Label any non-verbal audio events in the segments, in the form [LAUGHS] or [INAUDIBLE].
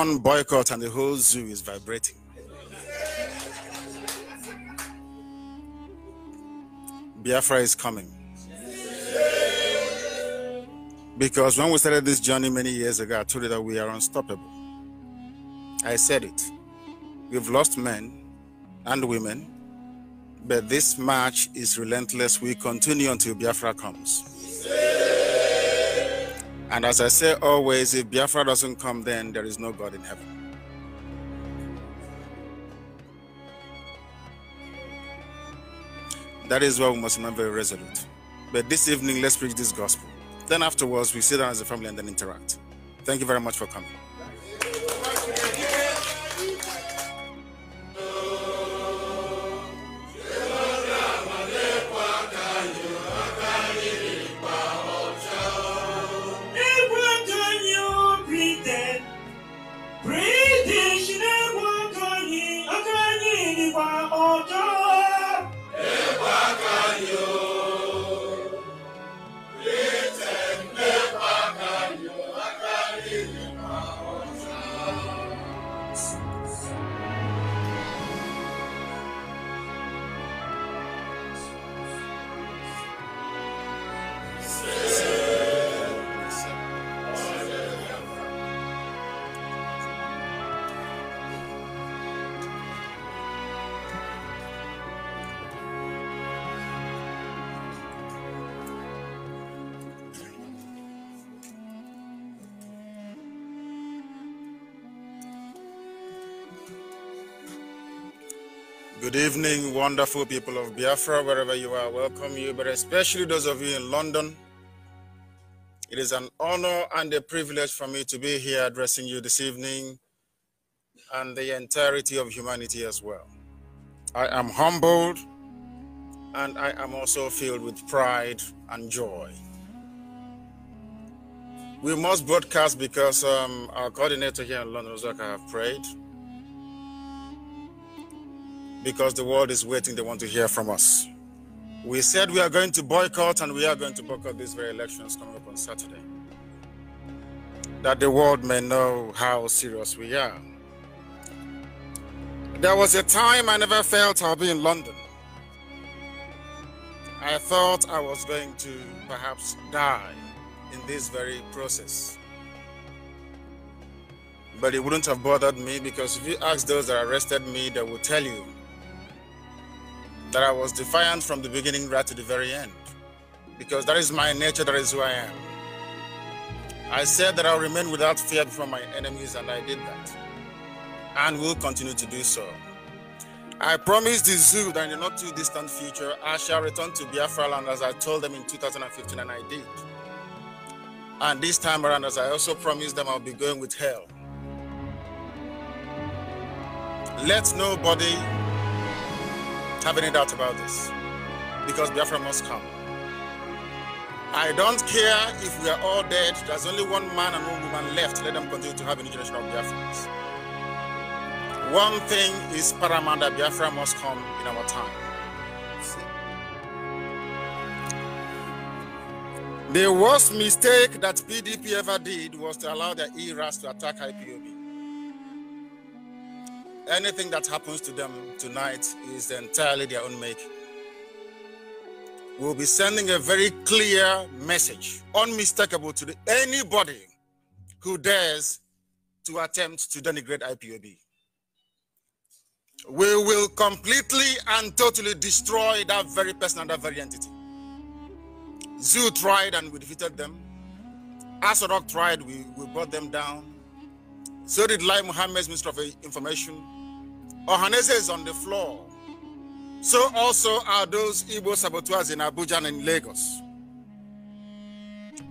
one boycott and the whole zoo is vibrating. Biafra is coming. Because when we started this journey many years ago, I told you that we are unstoppable. I said it. We've lost men and women, but this march is relentless. We continue until Biafra comes. And as I say always, if Biafra doesn't come, then there is no God in heaven. That is why we must remain very resolute. But this evening, let's preach this gospel. Then afterwards, we sit down as a family and then interact. Thank you very much for coming. Good evening, wonderful people of Biafra, wherever you are. Welcome you, but especially those of you in London. It is an honor and a privilege for me to be here addressing you this evening and the entirety of humanity as well. I am humbled and I am also filled with pride and joy. We must broadcast because um, our coordinator here in London, Zaka, have prayed because the world is waiting. They want to hear from us. We said we are going to boycott, and we are going to boycott these very elections coming up on Saturday. That the world may know how serious we are. There was a time I never felt I'll be in London. I thought I was going to perhaps die in this very process. But it wouldn't have bothered me because if you ask those that arrested me, they will tell you that I was defiant from the beginning right to the very end, because that is my nature, that is who I am. I said that I'll remain without fear before my enemies, and I did that, and will continue to do so. I promised the zoo that in the not too distant future, I shall return to Biafra land as I told them in 2015, and I did. And this time around, as I also promised them, I'll be going with hell. Let nobody have any doubt about this because Biafra must come. I don't care if we are all dead. There's only one man and one woman left. Let them continue to have a international generation of One thing is paramount that Biafra must come in our time. The worst mistake that PDP ever did was to allow the ERAS to attack IPOB. Anything that happens to them tonight is entirely their own make. We'll be sending a very clear message, unmistakable to the, anybody who dares to attempt to denigrate IPOB. We will completely and totally destroy that very person and that very entity. Zoo tried and we defeated them. Asorok tried, we, we brought them down. So did Lai Muhammad's Minister of Information. Ohanese is on the floor. So also are those Igbo saboteurs in Abuja and in Lagos.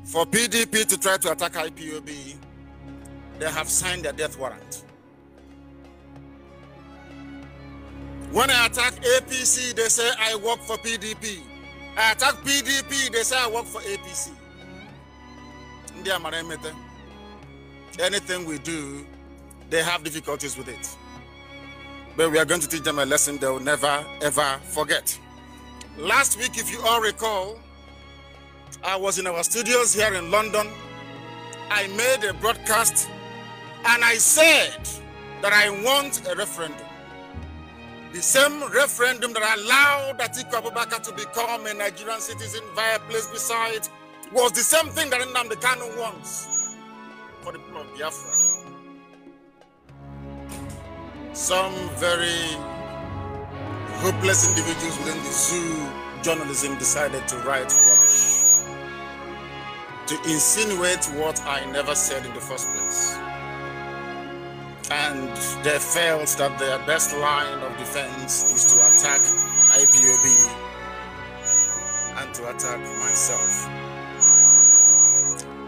For PDP to try to attack IPOB, they have signed their death warrant. When I attack APC, they say I work for PDP. I attack PDP, they say I work for APC. Ndị anything we do, they have difficulties with it. But we are going to teach them a lesson they will never, ever forget. Last week, if you all recall, I was in our studios here in London. I made a broadcast and I said that I want a referendum. The same referendum that allowed Atiku Abubakar to become a Nigerian citizen via place beside was the same thing that Nnamdi Kanu wants. Biafra. Some very hopeless individuals within the zoo journalism decided to write rubbish, to insinuate what I never said in the first place. And they felt that their best line of defense is to attack IPOB and to attack myself.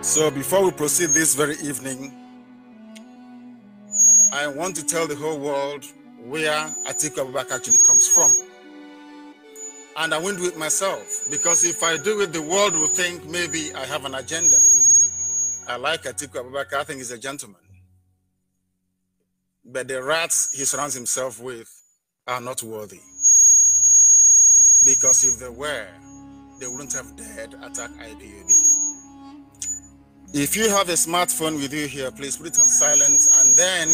So before we proceed this very evening, I want to tell the whole world where Atiku Abubakar actually comes from. And I won't do it myself because if I do it, the world will think maybe I have an agenda. I like Atiku Abubakar, I think he's a gentleman. But the rats he surrounds himself with are not worthy. Because if they were, they wouldn't have dared attack IDUB. If you have a smartphone with you here, please put it on silent and then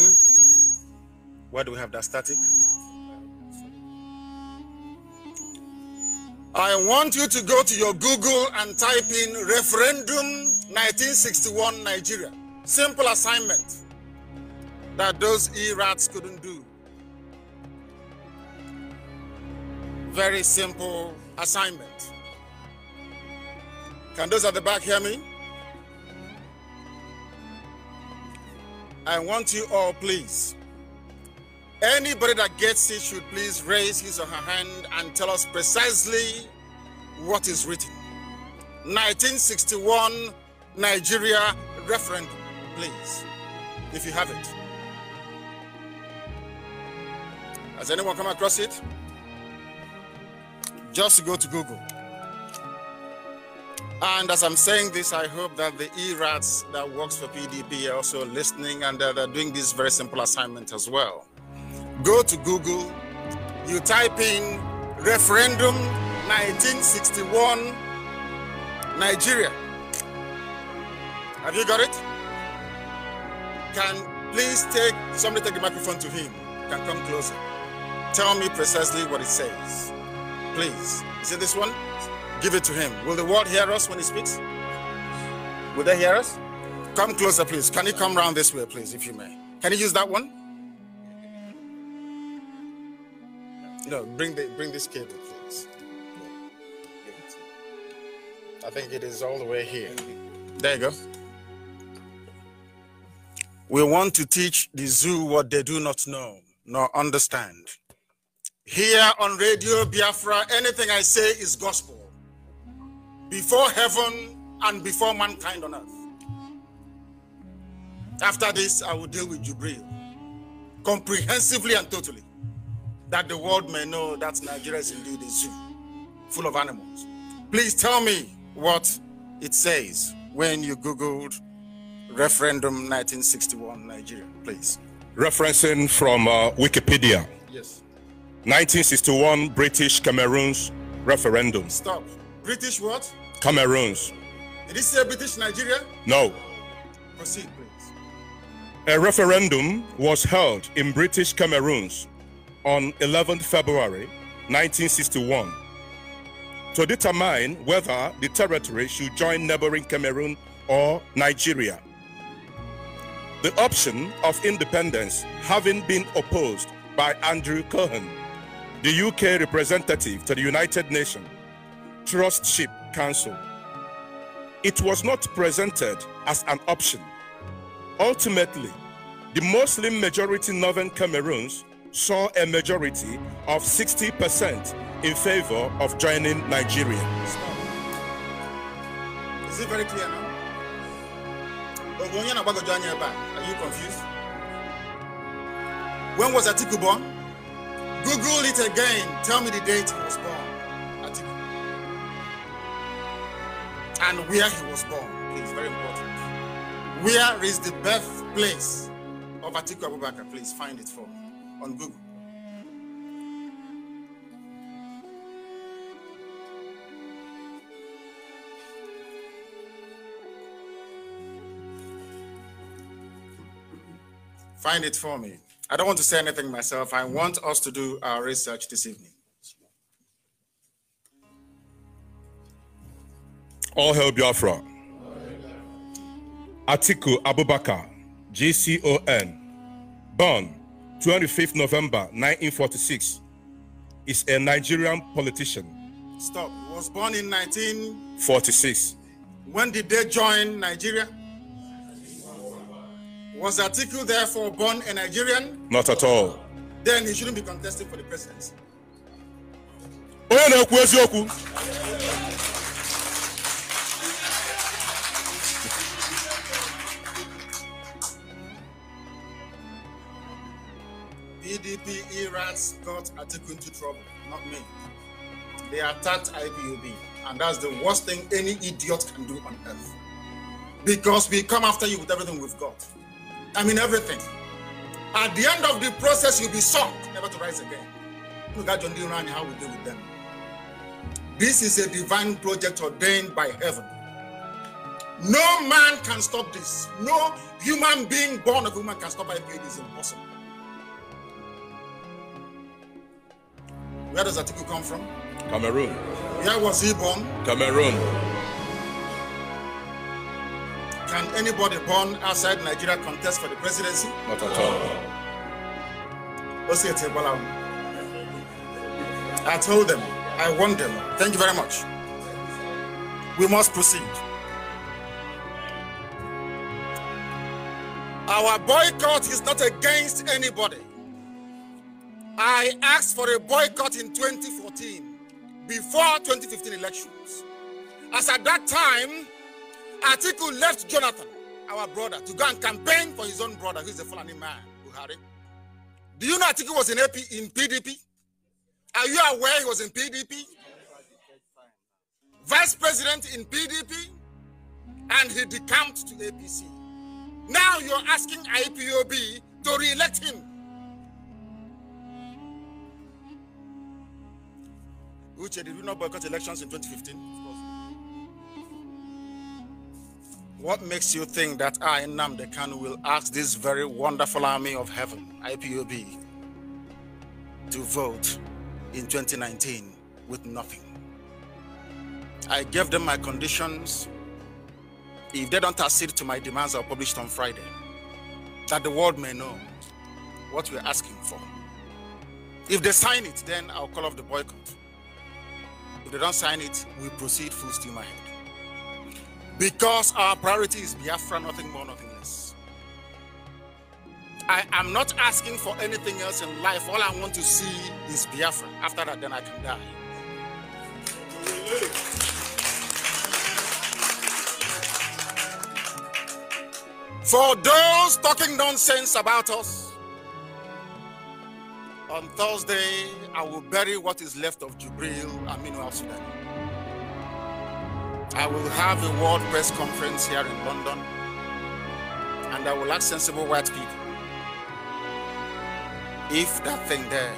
where do we have that static? I want you to go to your Google and type in referendum 1961 Nigeria. Simple assignment that those E-rats couldn't do. Very simple assignment. Can those at the back hear me? I want you all, please, Anybody that gets it should please raise his or her hand and tell us precisely what is written. 1961 Nigeria referendum, please, if you have it. Has anyone come across it? Just go to Google. And as I'm saying this, I hope that the ERATs that works for PDP are also listening and they're, they're doing this very simple assignment as well. Go to Google, you type in referendum 1961 Nigeria. Have you got it? Can please take somebody take the microphone to him? Can come closer. Tell me precisely what it says. Please. Is it this one? Give it to him. Will the world hear us when he speaks? Will they hear us? Come closer, please. Can you come round this way, please, if you may? Can you use that one? No, bring the bring this cable, please. I think it is all the way here. There you go. We want to teach the zoo what they do not know nor understand. Here on Radio Biafra, anything I say is gospel. Before heaven and before mankind on earth. After this, I will deal with Jubril comprehensively and totally that the world may know that Nigeria is indeed a zoo full of animals. Please tell me what it says when you Googled referendum 1961 Nigeria, please. Referencing from uh, Wikipedia. Yes. 1961 British Cameroon's referendum. Stop. British what? Cameroon's. Did it say British Nigeria? No. Proceed, please. A referendum was held in British Cameroon's on 11 February 1961 to determine whether the territory should join neighboring Cameroon or Nigeria. The option of independence having been opposed by Andrew Cohen, the UK representative to the United Nations Trustship Council. It was not presented as an option. Ultimately, the Muslim majority Northern Cameroons saw a majority of 60% in favor of joining Nigeria. Is it very clear now? Are you confused? When was Atiku born? Google it again. Tell me the date he was born. Atiku. And where he was born. It's very important. Where is the birthplace of Atiku Abubakar? Please find it for on Google. Find it for me. I don't want to say anything myself. I want us to do our research this evening. All hail Biafra. Atiku Abubakar, GCON, born 25th November 1946, is a Nigerian politician. Stop. He was born in 1946. When did they join Nigeria? Was Atiku therefore born a Nigerian? Not at all. Then he shouldn't be contesting for the presidency. EDP Iran's got Atiku into trouble, not me. They attacked IBUB, and that's the worst thing any idiot can do on earth. Because we come after you with everything we've got. I mean, everything. At the end of the process, you'll be sunk, never to rise again. Look at John D. how we deal with them. This is a divine project ordained by heaven. No man can stop this. No human being born of woman can stop IPA. It is impossible. Where does Atiku come from? Cameroon. Where was he born? Cameroon. Can anybody born outside Nigeria contest for the presidency? Not at all. I told them. I won them. Thank you very much. We must proceed. Our boycott is not against anybody. I asked for a boycott in 2014 before 2015 elections. As at that time, Article left Jonathan, our brother, to go and campaign for his own brother, who's a Fulani man, Buhari. Do you know Atiku was in, AP, in PDP? Are you aware he was in PDP? Vice president in PDP, and he decamped to APC. Now you're asking IPOB to re-elect him Uche, did we not boycott elections in 2015? What makes you think that I, Namde will ask this very wonderful army of heaven, IPOB, to vote in 2019 with nothing? I gave them my conditions. If they don't accede to my demands, I'll publish it on Friday. That the world may know what we're asking for. If they sign it, then I'll call off the boycott. If they don't sign it, we proceed full steam ahead. Because our priority is Biafra, nothing more, nothing less. I am not asking for anything else in life. All I want to see is Biafra. After that, then I can die. For those talking nonsense about us, on Thursday, I will bury what is left of Jubril Aminu Al Sudan. I will have a world press conference here in London, and I will ask sensible white people if that thing there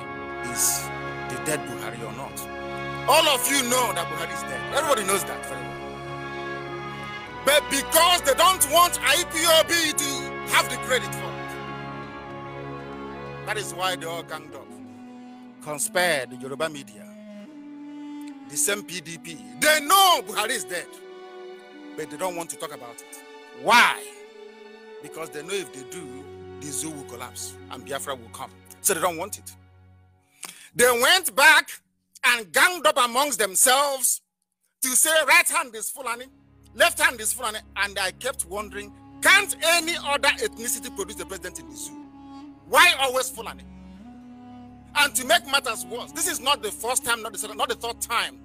is the dead Buhari or not. All of you know that Buhari is dead. Everybody knows that very well. But because they don't want IPOB to have the credit for that is why they all ganged up, conspired the Yoruba media, the same PDP. They know Buhari is dead, but they don't want to talk about it. Why? Because they know if they do, the zoo will collapse and Biafra will come. So they don't want it. They went back and ganged up amongst themselves to say right hand is Fulani, left hand is Fulani. And I kept wondering, can't any other ethnicity produce the president in the zoo? Why always Fulani? And to make matters worse, this is not the first time, not the second, not the third time.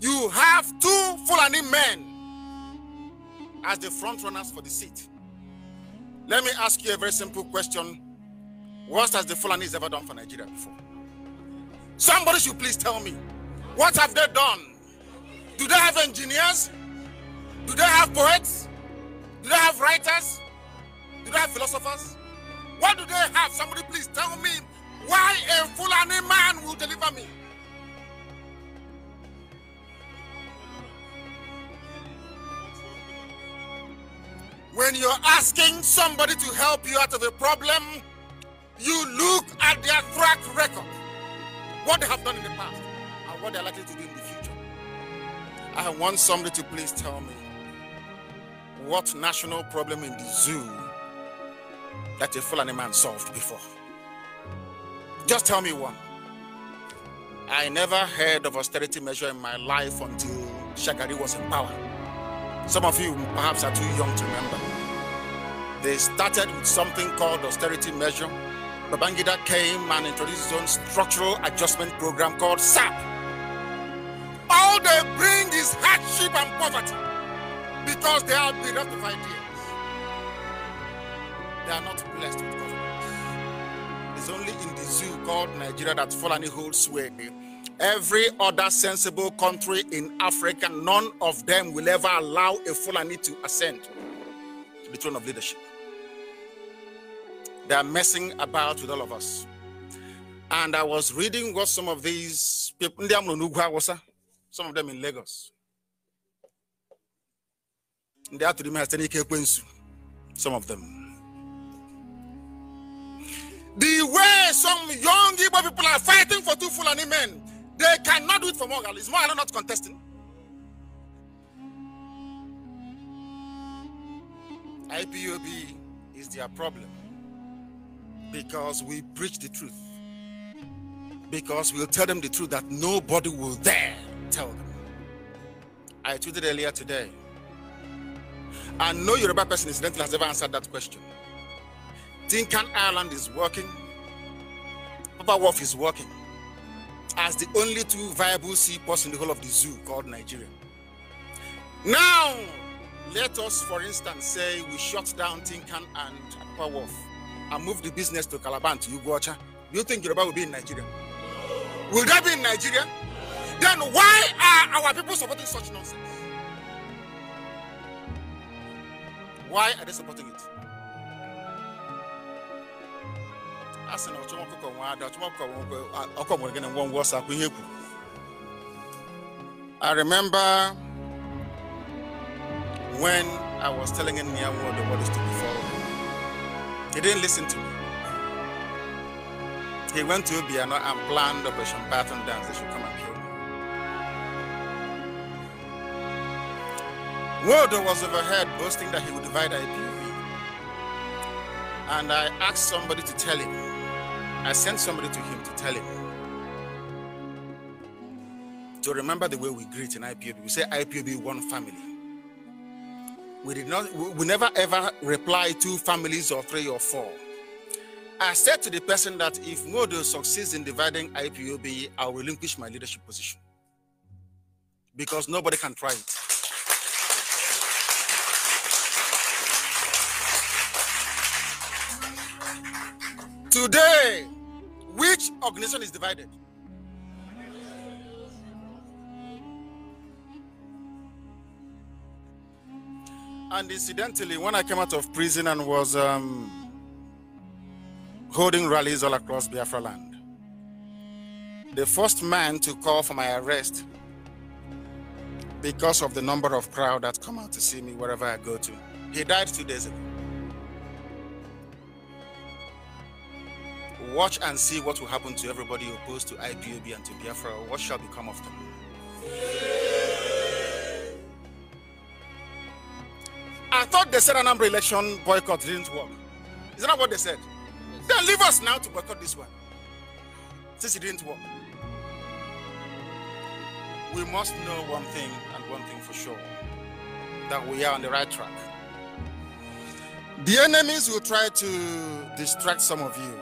You have two Fulani men as the front runners for the seat. Let me ask you a very simple question. What has the Fulanis ever done for Nigeria before? Somebody should please tell me. What have they done? Do they have engineers? Do they have poets? Do they have writers? Do they have philosophers? What do they have? Somebody please tell me why a Fulani man will deliver me. When you're asking somebody to help you out of a problem, you look at their track record, what they have done in the past, and what they're likely to do in the future. I want somebody to please tell me what national problem in the zoo that a Fulani man solved before? Just tell me one. I never heard of austerity measure in my life until Shagari was in power. Some of you perhaps are too young to remember. They started with something called austerity measure. Babangida came and introduced his own structural adjustment program called SAP. All they bring is hardship and poverty because they are bereft of ideas. They are not blessed with government. It's only in the zoo called Nigeria that Fulani holds sway. Every other sensible country in Africa, none of them will ever allow a Fulani to ascend to the throne of leadership. They are messing about with all of us. And I was reading what some of these people, some of them in Lagos, they to remain some of them. The way some young Igbo people are fighting for two Fulani men, they cannot do it for Morgan. Is Morgan not contesting? IPOB is their problem because we preach the truth. Because we'll tell them the truth that nobody will dare tell them. I tweeted earlier today, and no Yoruba person incidentally has ever answered that question. Dinkan Island is working. Papa Wolf is working as the only two viable seaports in the whole of the zoo called Nigeria. Now, let us, for instance, say we shut down Tinkan and Papa Wolf and move the business to Calabar to Ugocha. Do you think Yoruba will be in Nigeria? Will that be in Nigeria? Then why are our people supporting such nonsense? Why are they supporting it? ọkụkọ ada ọkụkọ nwere ọsọ ihe I remember when I was telling him near what the word is to be He didn't listen to me. He went to Obiano and planned Operation Baton Dance. They should come and kill me. Waldo was overheard boasting that he would divide IPOB. And I asked somebody to tell him I sent somebody to him to tell him to remember the way we greet in IPOB. We say IPOB one family. We did not we never ever reply two families or three or four. I said to the person that if Modo succeeds in dividing IPOB, I'll relinquish my leadership position. Because nobody can try it. Today, which organization is divided? And incidentally, when I came out of prison and was um, holding rallies all across Biafra land, the first man to call for my arrest because of the number of crowd that come out to see me wherever I go to, he died two days ago. Watch and see what will happen to everybody opposed to IPOB and to Biafra. What shall become of them? I thought they said an election boycott didn't work. Is that what they said? Yes. Then leave us now to boycott this one. Since it didn't work. We must know one thing and one thing for sure that we are on the right track. The enemies will try to distract some of you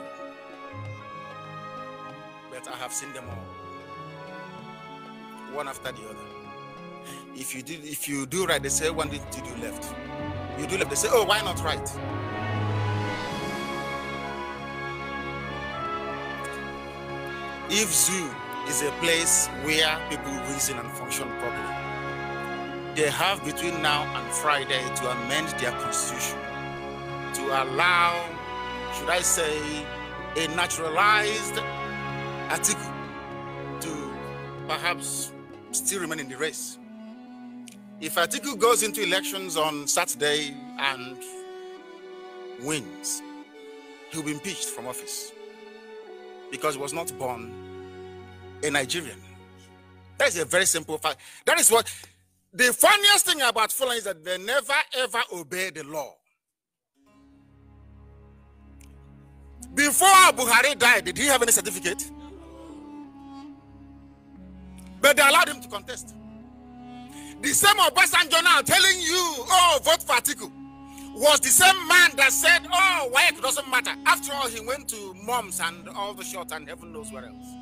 have seen them all, one after the other. If you do, if you do right, they say one did to do left. You do left, they say, oh, why not right? If zoo is a place where people reason and function properly, they have between now and Friday to amend their constitution to allow, should I say, a naturalized Atiku to perhaps still remain in the race. If Atiku goes into elections on Saturday and wins, he'll be impeached from office because he was not born a Nigerian. That is a very simple fact. That is what the funniest thing about Fulani is that they never ever obey the law. Before Buhari died, did he have any certificate? But they allowed him to contest. The same Obasanjo telling you, oh, vote for Atiku, was the same man that said, oh, it doesn't matter. After all, he went to moms and all the shops and heaven knows where else.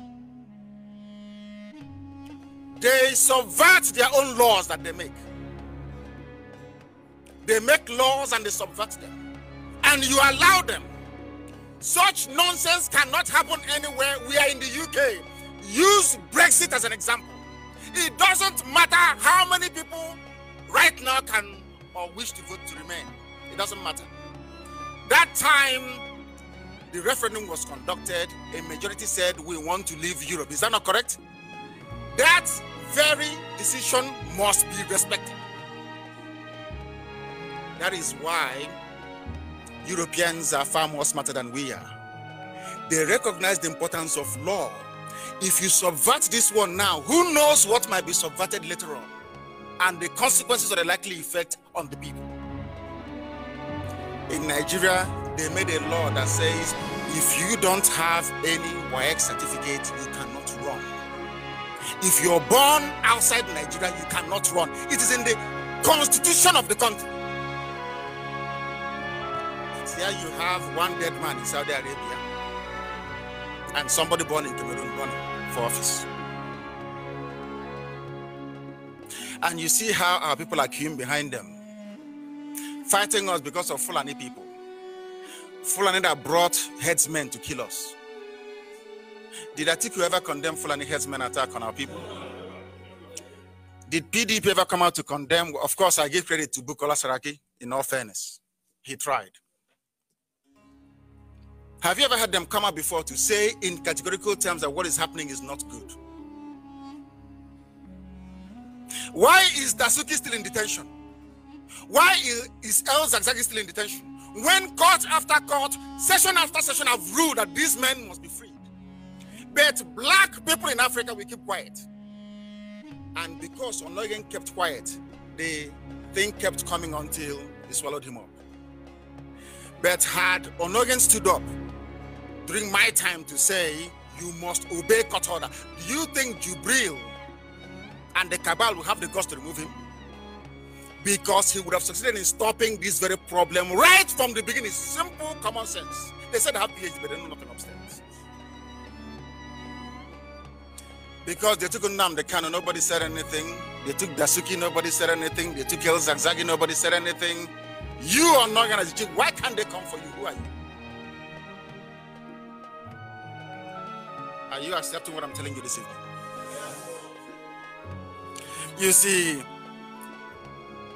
They subvert their own laws that they make. They make laws and they subvert them. And you allow them. Such nonsense cannot happen anywhere. We are in the UK. Use Brexit as an example. It doesn't matter how many people right now can or wish to vote to remain. It doesn't matter. That time the referendum was conducted, a majority said we want to leave Europe. Is that not correct? That very decision must be respected. That is why Europeans are far more smarter than we are. They recognize the importance of law if you subvert this one now, who knows what might be subverted later on and the consequences of the likely effect on the people. In Nigeria, they made a law that says if you don't have any YX certificate, you cannot run. If you're born outside Nigeria, you cannot run. It is in the constitution of the country. Here you have one dead man in Saudi Arabia and somebody born in Cameroon run for office. And you see how our people are queuing behind them, fighting us because of Fulani people. Fulani that brought headsmen to kill us. Did Atiku ever condemn Fulani headsmen attack on our people? Did PDP ever come out to condemn? Of course, I give credit to Bukola Saraki, in all fairness. He tried. Have you ever had them come up before to say in categorical terms that what is happening is not good? Why is Dasuki still in detention? Why is El Zagzagi still in detention? When court after court, session after session have ruled that these men must be freed. But black people in Africa will keep quiet. And because Onoyen kept quiet, the thing kept coming until it swallowed him up. But had Onoyen stood up, during my time to say you must obey court order. Do you think Jubril and the cabal will have the guts to remove him? Because he would have succeeded in stopping this very problem right from the beginning. Simple common sense. They said they have PhD, but they know nothing upstairs. Because they took Nam the canon, nobody said anything. They took Dasuki, nobody said anything. They took El Zagzagi, nobody said anything. You are not gonna why can't they come for you? Who are you? Are you accepting what I'm telling you this evening? You see,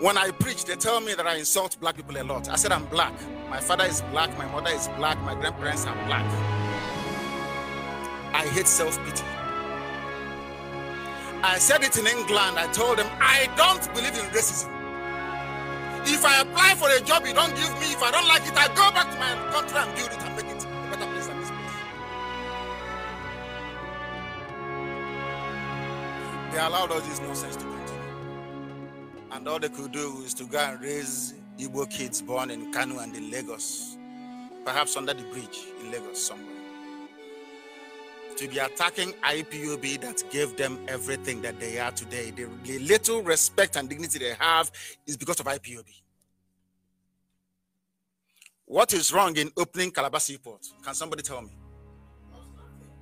when I preach, they tell me that I insult black people a lot. I said, I'm black. My father is black. My mother is black. My grandparents are black. I hate self pity. I said it in England. I told them, I don't believe in racism. If I apply for a job, you don't give me. If I don't like it, I go back to my country and build it and make it. they allowed all this nonsense to continue. And all they could do is to go and raise Igbo kids born in Kanu and in Lagos, perhaps under the bridge in Lagos somewhere. To be attacking IPUB that gave them everything that they are today. The, the little respect and dignity they have is because of IPUB. What is wrong in opening Calabar Seaport? Can somebody tell me?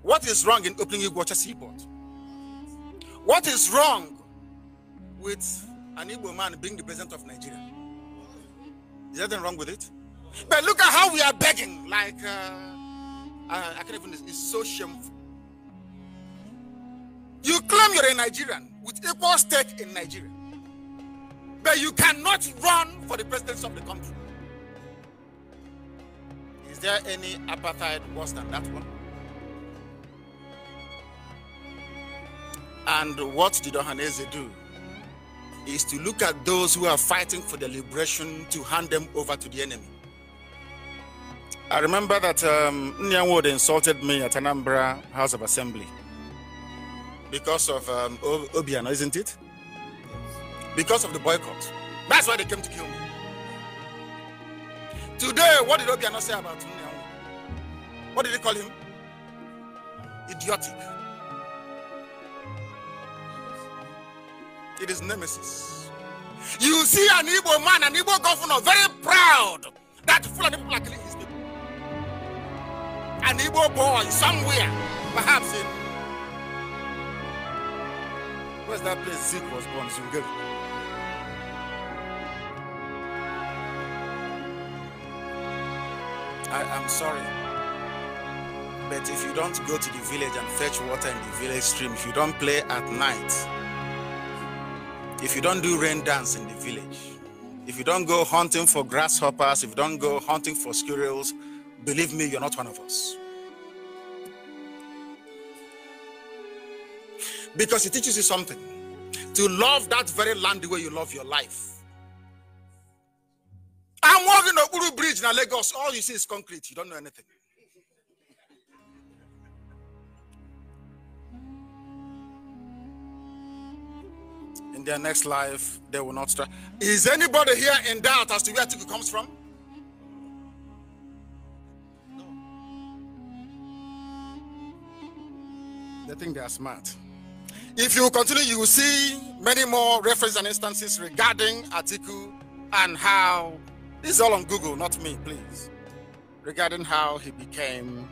What is wrong in opening Sea Seaport? What is wrong with an Igbo man being the president of Nigeria? Is there anything wrong with it? But look at how we are begging. Like, uh, I, uh, I can't even, it's so shameful. You claim you're a Nigerian with equal stake in Nigeria, but you cannot run for the presidency of the country. Is there any apartheid worse than that one? And what did Ohanese do? Is to look at those who are fighting for the liberation to hand them over to the enemy. I remember that um, Nyanwood insulted me at Anambra House of Assembly because of um, Obiano, isn't it? Because of the boycott. That's why they came to kill me. Today, what did Obiano say about Nyanwood? What did he call him? Idiotic. it is nemesis. You see an Igbo man, an Igbo governor, very proud that of people are killing his people. An Igbo boy somewhere, perhaps in where's that place Zeke was born, Zungeri. I am sorry. But if you don't go to the village and fetch water in the village stream, if you don't play at night, if you don't do rain dance in the village, if you don't go hunting for grasshoppers, if you don't go hunting for squirrels, believe me, you're not one of us. Because it teaches you something to love that very land the way you love your life. I'm walking the Uru Bridge in Lagos. All you see is concrete. You don't know anything. in their next life they will not strive. Is anybody here in doubt as to where Atiku comes from? No. They think they are smart. If you continue, you will see many more references and instances regarding Atiku and how this is all on Google, not me, please. Regarding how he became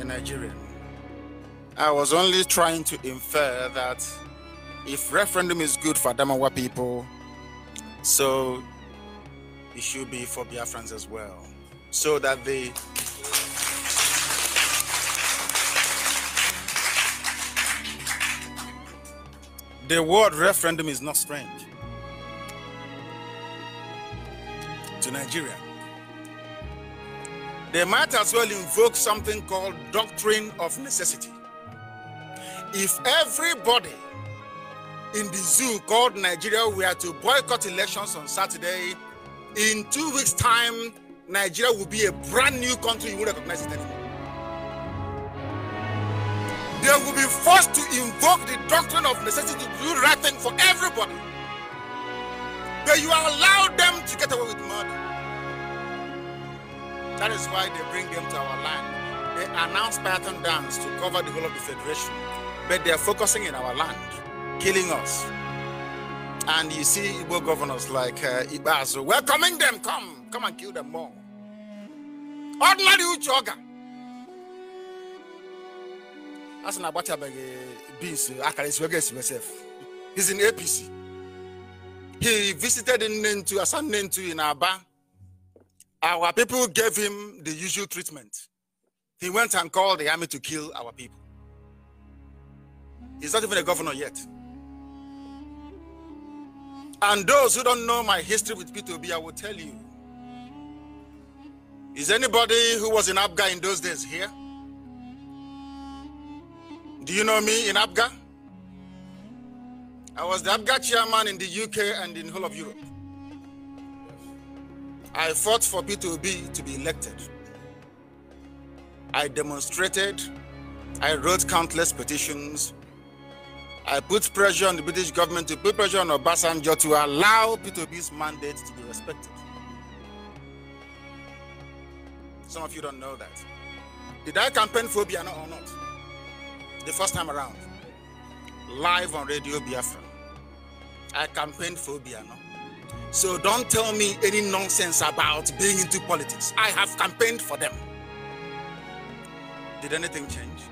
a Nigerian. I was only trying to infer that if referendum is good for Adamawa people, so it should be for Biafrans as well. So that they the word referendum is not strange to Nigeria. They might as well invoke something called doctrine of necessity. If everybody in the zoo called Nigeria, we are to boycott elections on Saturday. In two weeks' time, Nigeria will be a brand new country. You won't recognize it anymore. They will be forced to invoke the doctrine of necessity to do right thing for everybody. But you allow them to get away with murder. That is why they bring them to our land. They announce Python dance to cover the whole of the Federation, but they are focusing in our land killing us. And you see Igbo governors like uh, Ibazu welcoming them, come, come and kill them more. Ordinary Uchoga. That's an Abacha uh, beans, uh, akara myself. He's in APC. He visited in Nentu, Asan Nentu in Aba. Our people gave him the usual treatment. He went and called the army to kill our people. He's not even a governor yet. And those who don't know my history with P2B, I will tell you. Is anybody who was in Abga in those days here? Do you know me in Abga? I was the Abga chairman in the UK and in whole of Europe. I fought for P2B to be elected. I demonstrated. I wrote countless petitions. I put pressure on the British government to put pressure on Obasanjo to allow P2B's mandate to be respected. Some of you don't know that. Did I campaign phobia or not? The first time around, live on Radio Biafra, I campaigned phobia. No? So don't tell me any nonsense about being into politics. I have campaigned for them. Did anything change?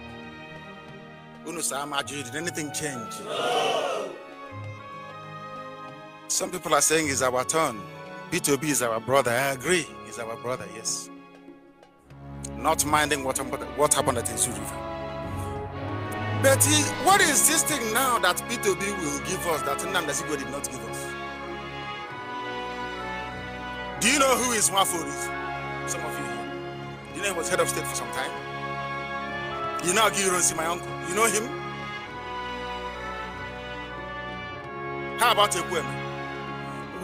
did anything change? No. Some people are saying it's our turn. B2B is our brother. I agree, he's our brother, yes. Not minding what, what happened at Izu River. But he, what is this thing now that B2B will give us that Nnamdasigo did not give us? Do you know who is Wafo is? Some of you here. Do you know he was head of state for some time? You know you don't see my uncle. You know him? How about woman?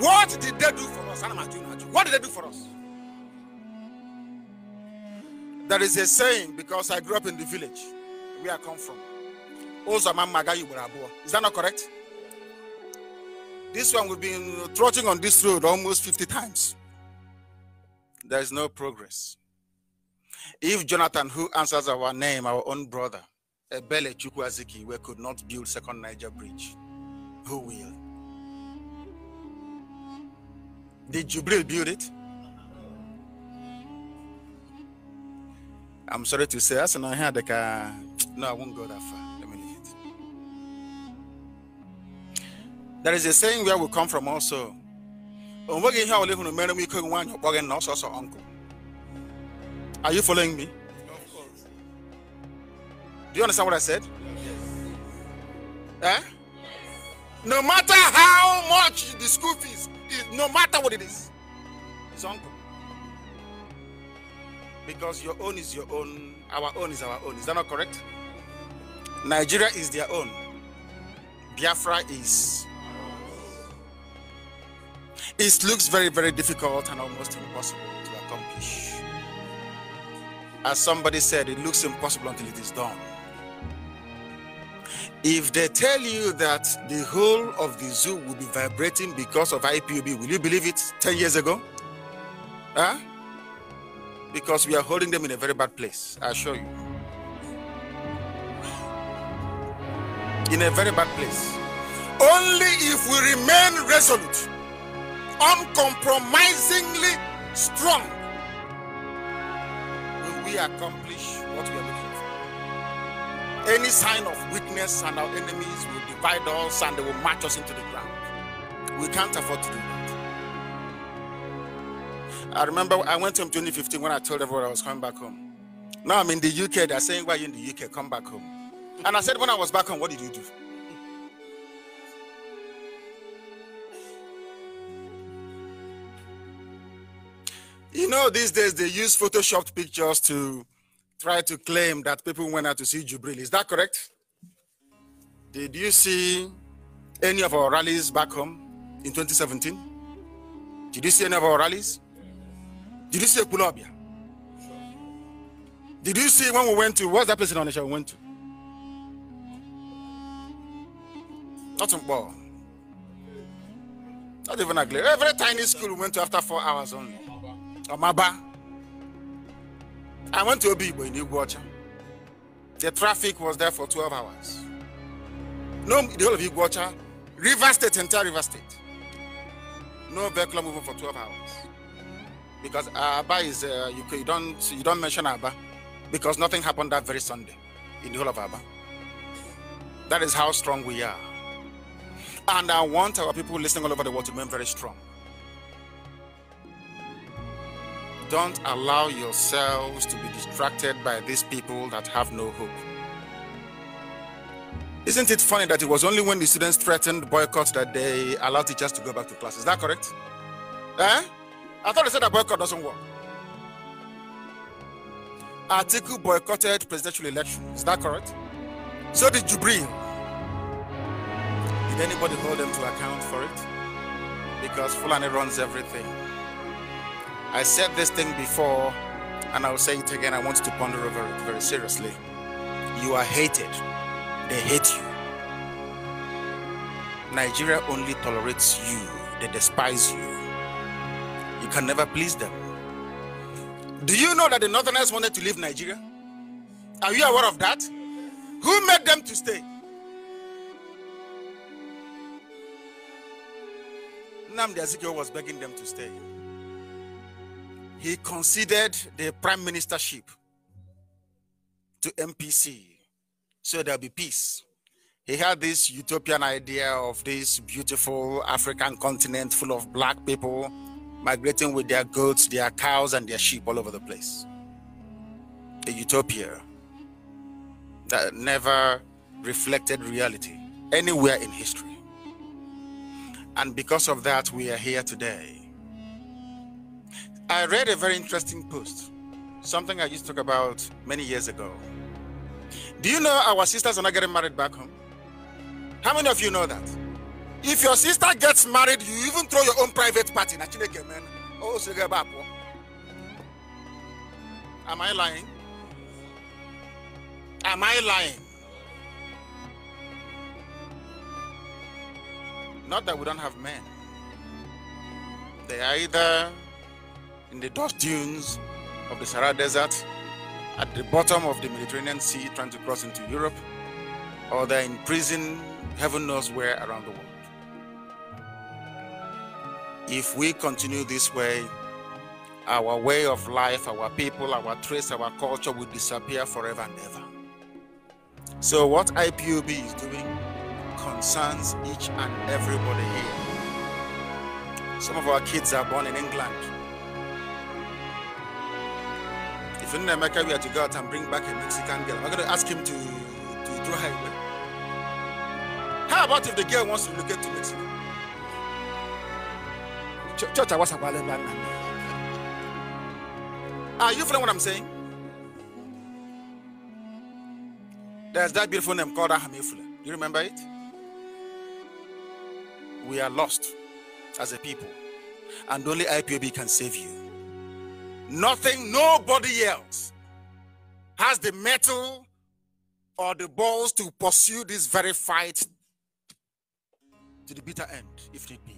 What did they do for us? What did they do for us? There is a saying because I grew up in the village where I come from. Is that not correct? This one we've been trotting on this road almost 50 times. There is no progress. If Jonathan, who answers our name, our own brother, Ebele Chukwaziki, we could not build second Niger Bridge, who will? Did Jubril build it? I'm sorry to say, as I had like a, no, I won't go that far. Let me leave it. There is a saying where we come from also. onweghị are you following me? Of course. Do you understand what I said? Yes. Eh? Yes. No matter how much the school fees is, no matter what it is, it's uncle. Because your own is your own, our own is our own. Is that not correct? Nigeria is their own. Biafra is. It looks very, very difficult and almost impossible to accomplish. As somebody said, it looks impossible until it is done. If they tell you that the whole of the zoo will be vibrating because of IPUB, will you believe it 10 years ago? Huh? Because we are holding them in a very bad place, I assure you. In a very bad place. Only if we remain resolute, uncompromisingly strong, we accomplish what we are looking for? Any sign of weakness and our enemies will divide us and they will march us into the ground. We can't afford to do that. I remember I went home 2015 when I told everyone I was coming back home. Now I'm in the UK. They're saying, Why are you in the UK? Come back home. And I said, When I was back home, what did you do? You know, these days they use photoshopped pictures to try to claim that people went out to see Jubril. Is that correct? Did you see any of our rallies back home in 2017? Did you see any of our rallies? Did you see Kulobia? Did you see when we went to what's that place in Onisha we went to? Not Not even a glare. Every tiny school we went to after four hours only. Amaba. I went to Obibo in Iguacha. The traffic was there for 12 hours. No, the whole of Iguacha, River State, entire River State. No vehicle moving for 12 hours. Because Abba is, uh, you, you, don't, you don't mention Abba because nothing happened that very Sunday in the whole of Abba. That is how strong we are. And I want our people listening all over the world to remain very strong. Don't allow yourselves to be distracted by these people that have no hope. Isn't it funny that it was only when the students threatened boycott that they allowed teachers to go back to class? Is that correct? Eh? I thought they said that boycott doesn't work. Article boycotted presidential election. Is that correct? So did Jubril. Did anybody hold them to account for it? Because Fulani runs everything. I said this thing before, and I will say it again. I want you to ponder over it very seriously. You are hated, they hate you. Nigeria only tolerates you, they despise you. You can never please them. Do you know that the Northerners wanted to leave Nigeria? Are you aware of that? Who made them to stay? Namdi Azikiwe was begging them to stay he conceded the prime ministership to MPC so there'll be peace. He had this utopian idea of this beautiful African continent full of black people migrating with their goats, their cows, and their sheep all over the place. A utopia that never reflected reality anywhere in history. And because of that, we are here today I read a very interesting post, something I used to talk about many years ago. Do you know our sisters are not getting married back home? How many of you know that? If your sister gets married, you even throw your own private party. Oh, oh. Am I lying? Am I lying? Not that we don't have men. They are either in the dust dunes of the Sahara Desert, at the bottom of the Mediterranean Sea trying to cross into Europe, or they're in prison, heaven knows where around the world. If we continue this way, our way of life, our people, our trace, our culture will disappear forever and ever. So, what IPUB is doing concerns each and everybody here. Some of our kids are born in England, we to go out and bring back a Mexican girl. I'm going to ask him to, to draw her away. How about if the girl wants to look to Mexico? Church, I was Are ah, you feeling what I'm saying? There's that beautiful name called Do You remember it? We are lost as a people, and only IPOB can save you. Nothing, nobody else has the metal or the balls to pursue this very fight to the bitter end, if need be.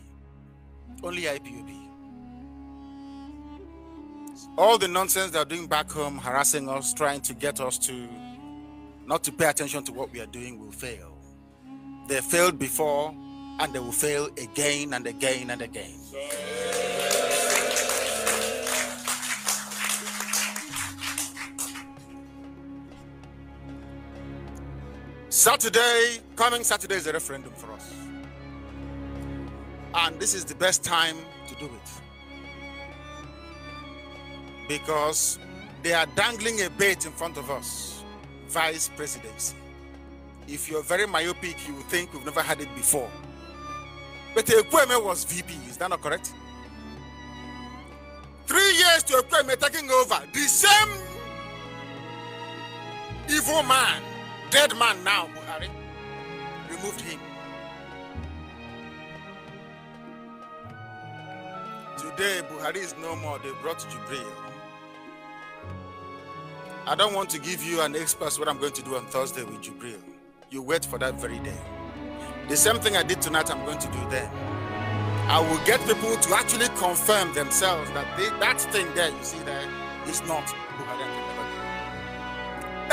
Only IPOB. All the nonsense they're doing back home, harassing us, trying to get us to not to pay attention to what we are doing, will fail. They failed before, and they will fail again and again and again. Saturday, coming Saturday is a referendum for us. And this is the best time to do it. Because they are dangling a bait in front of us vice presidency. If you're very myopic, you think we've never had it before. But Ekweme was VP, is that not correct? Three years to Ekweme taking over, the same evil man dead man now, Buhari. Removed him. Today, Buhari is no more. They brought Jibril. I don't want to give you an express what I'm going to do on Thursday with Jibril. You wait for that very day. The same thing I did tonight, I'm going to do there. I will get people to actually confirm themselves that they, that thing there you see there is not Buhari.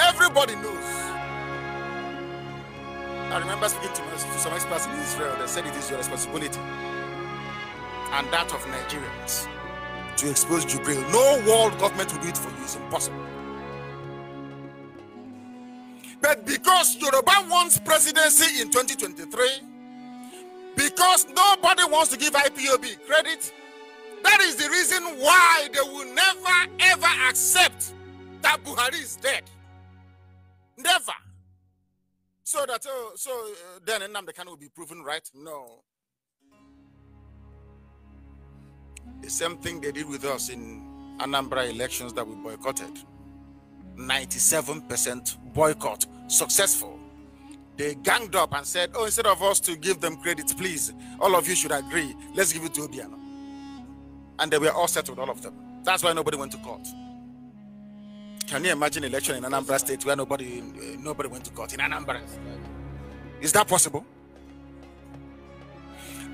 Everybody knows. I remember speaking to, to some experts in Israel that said it is your responsibility and that of Nigerians to expose Jubril. No world government will do it for you. It's impossible. But because Yoruba wants presidency in 2023, because nobody wants to give IPOB credit, that is the reason why they will never ever accept that Buhari is dead. Never. So that uh, so uh, then Nnamdi Kanu will be proven right? No. The same thing they did with us in Anambra elections that we boycotted. 97% boycott successful. They ganged up and said, "Oh, instead of us to give them credit, please, all of you should agree. Let's give it to Obiano." And they were all settled, all of them. That's why nobody went to court. Can you imagine election in Anambra State where nobody eh, nobody went to court in Anambra? Is that possible?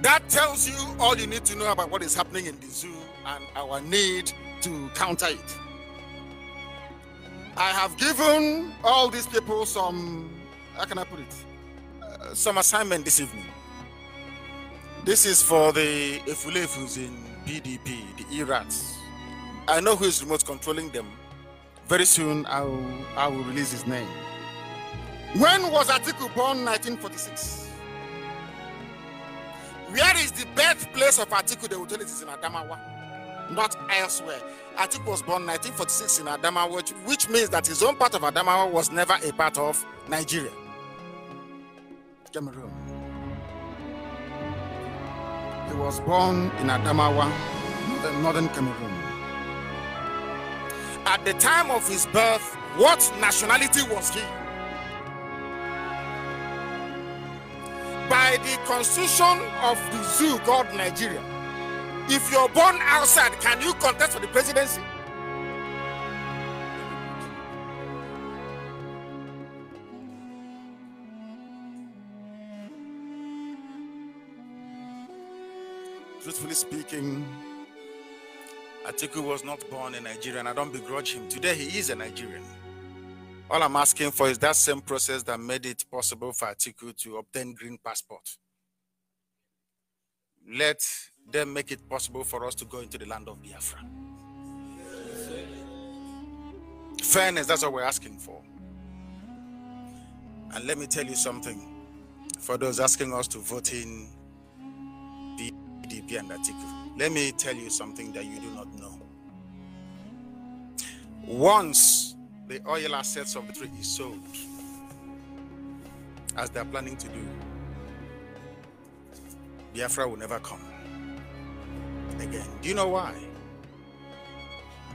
That tells you all you need to know about what is happening in the zoo and our need to counter it. I have given all these people some, how can I put it? Uh, some assignment this evening. This is for the who's in PDP, the Irats. I know who is remote controlling them Very soon, I will, I will release his name. When was Atiku born? 1946. Where is the birthplace of Atiku? They will tell it is in Adamawa, not elsewhere. Atiku was born 1946 in Adamawa, which, which means that his own part of Adamawa was never a part of Nigeria. Cameroon. He was born in Adamawa, northern Cameroon. at the time of his birth, what nationality was he? By the constitution of the zoo called Nigeria, if you're born outside, can you contest for the presidency? Truthfully speaking, Atiku was not born a Nigerian. I don't begrudge him. Today he is a Nigerian. All I'm asking for is that same process that made it possible for Atiku to obtain green passport. Let them make it possible for us to go into the land of Biafra. Fairness, that's what we're asking for. And let me tell you something for those asking us to vote in PDP and Atiku. Let me tell you something that you do not know. Once the oil assets of the tree is sold, as they are planning to do, Biafra will never come again. Do you know why?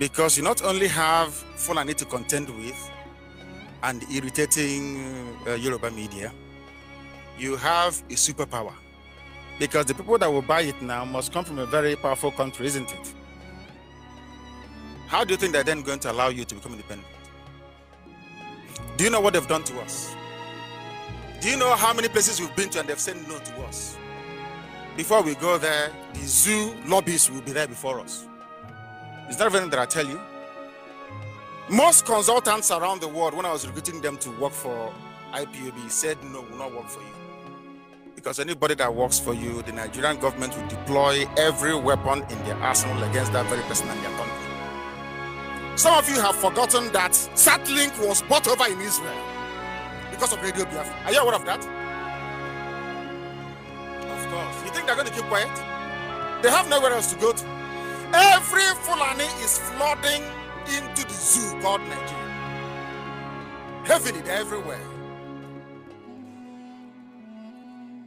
Because you not only have Fulani to contend with and irritating uh, Yoruba media, you have a superpower because the people that will buy it now must come from a very powerful country, isn't it? How do you think they're then going to allow you to become independent? Do you know what they've done to us? Do you know how many places we've been to and they've said no to us? Before we go there, the zoo lobbies will be there before us. Is that everything that I tell you? Most consultants around the world, when I was recruiting them to work for IPOB, said no, will not work for you because anybody that works for you, the Nigerian government will deploy every weapon in their arsenal against that very person and their country. Some of you have forgotten that Satlink was bought over in Israel because of Radio Biafra. Are you aware of that? Of course. You think they're going to keep quiet? They have nowhere else to go to. Every Fulani is flooding into the zoo called Nigeria. Heavily, they're everywhere.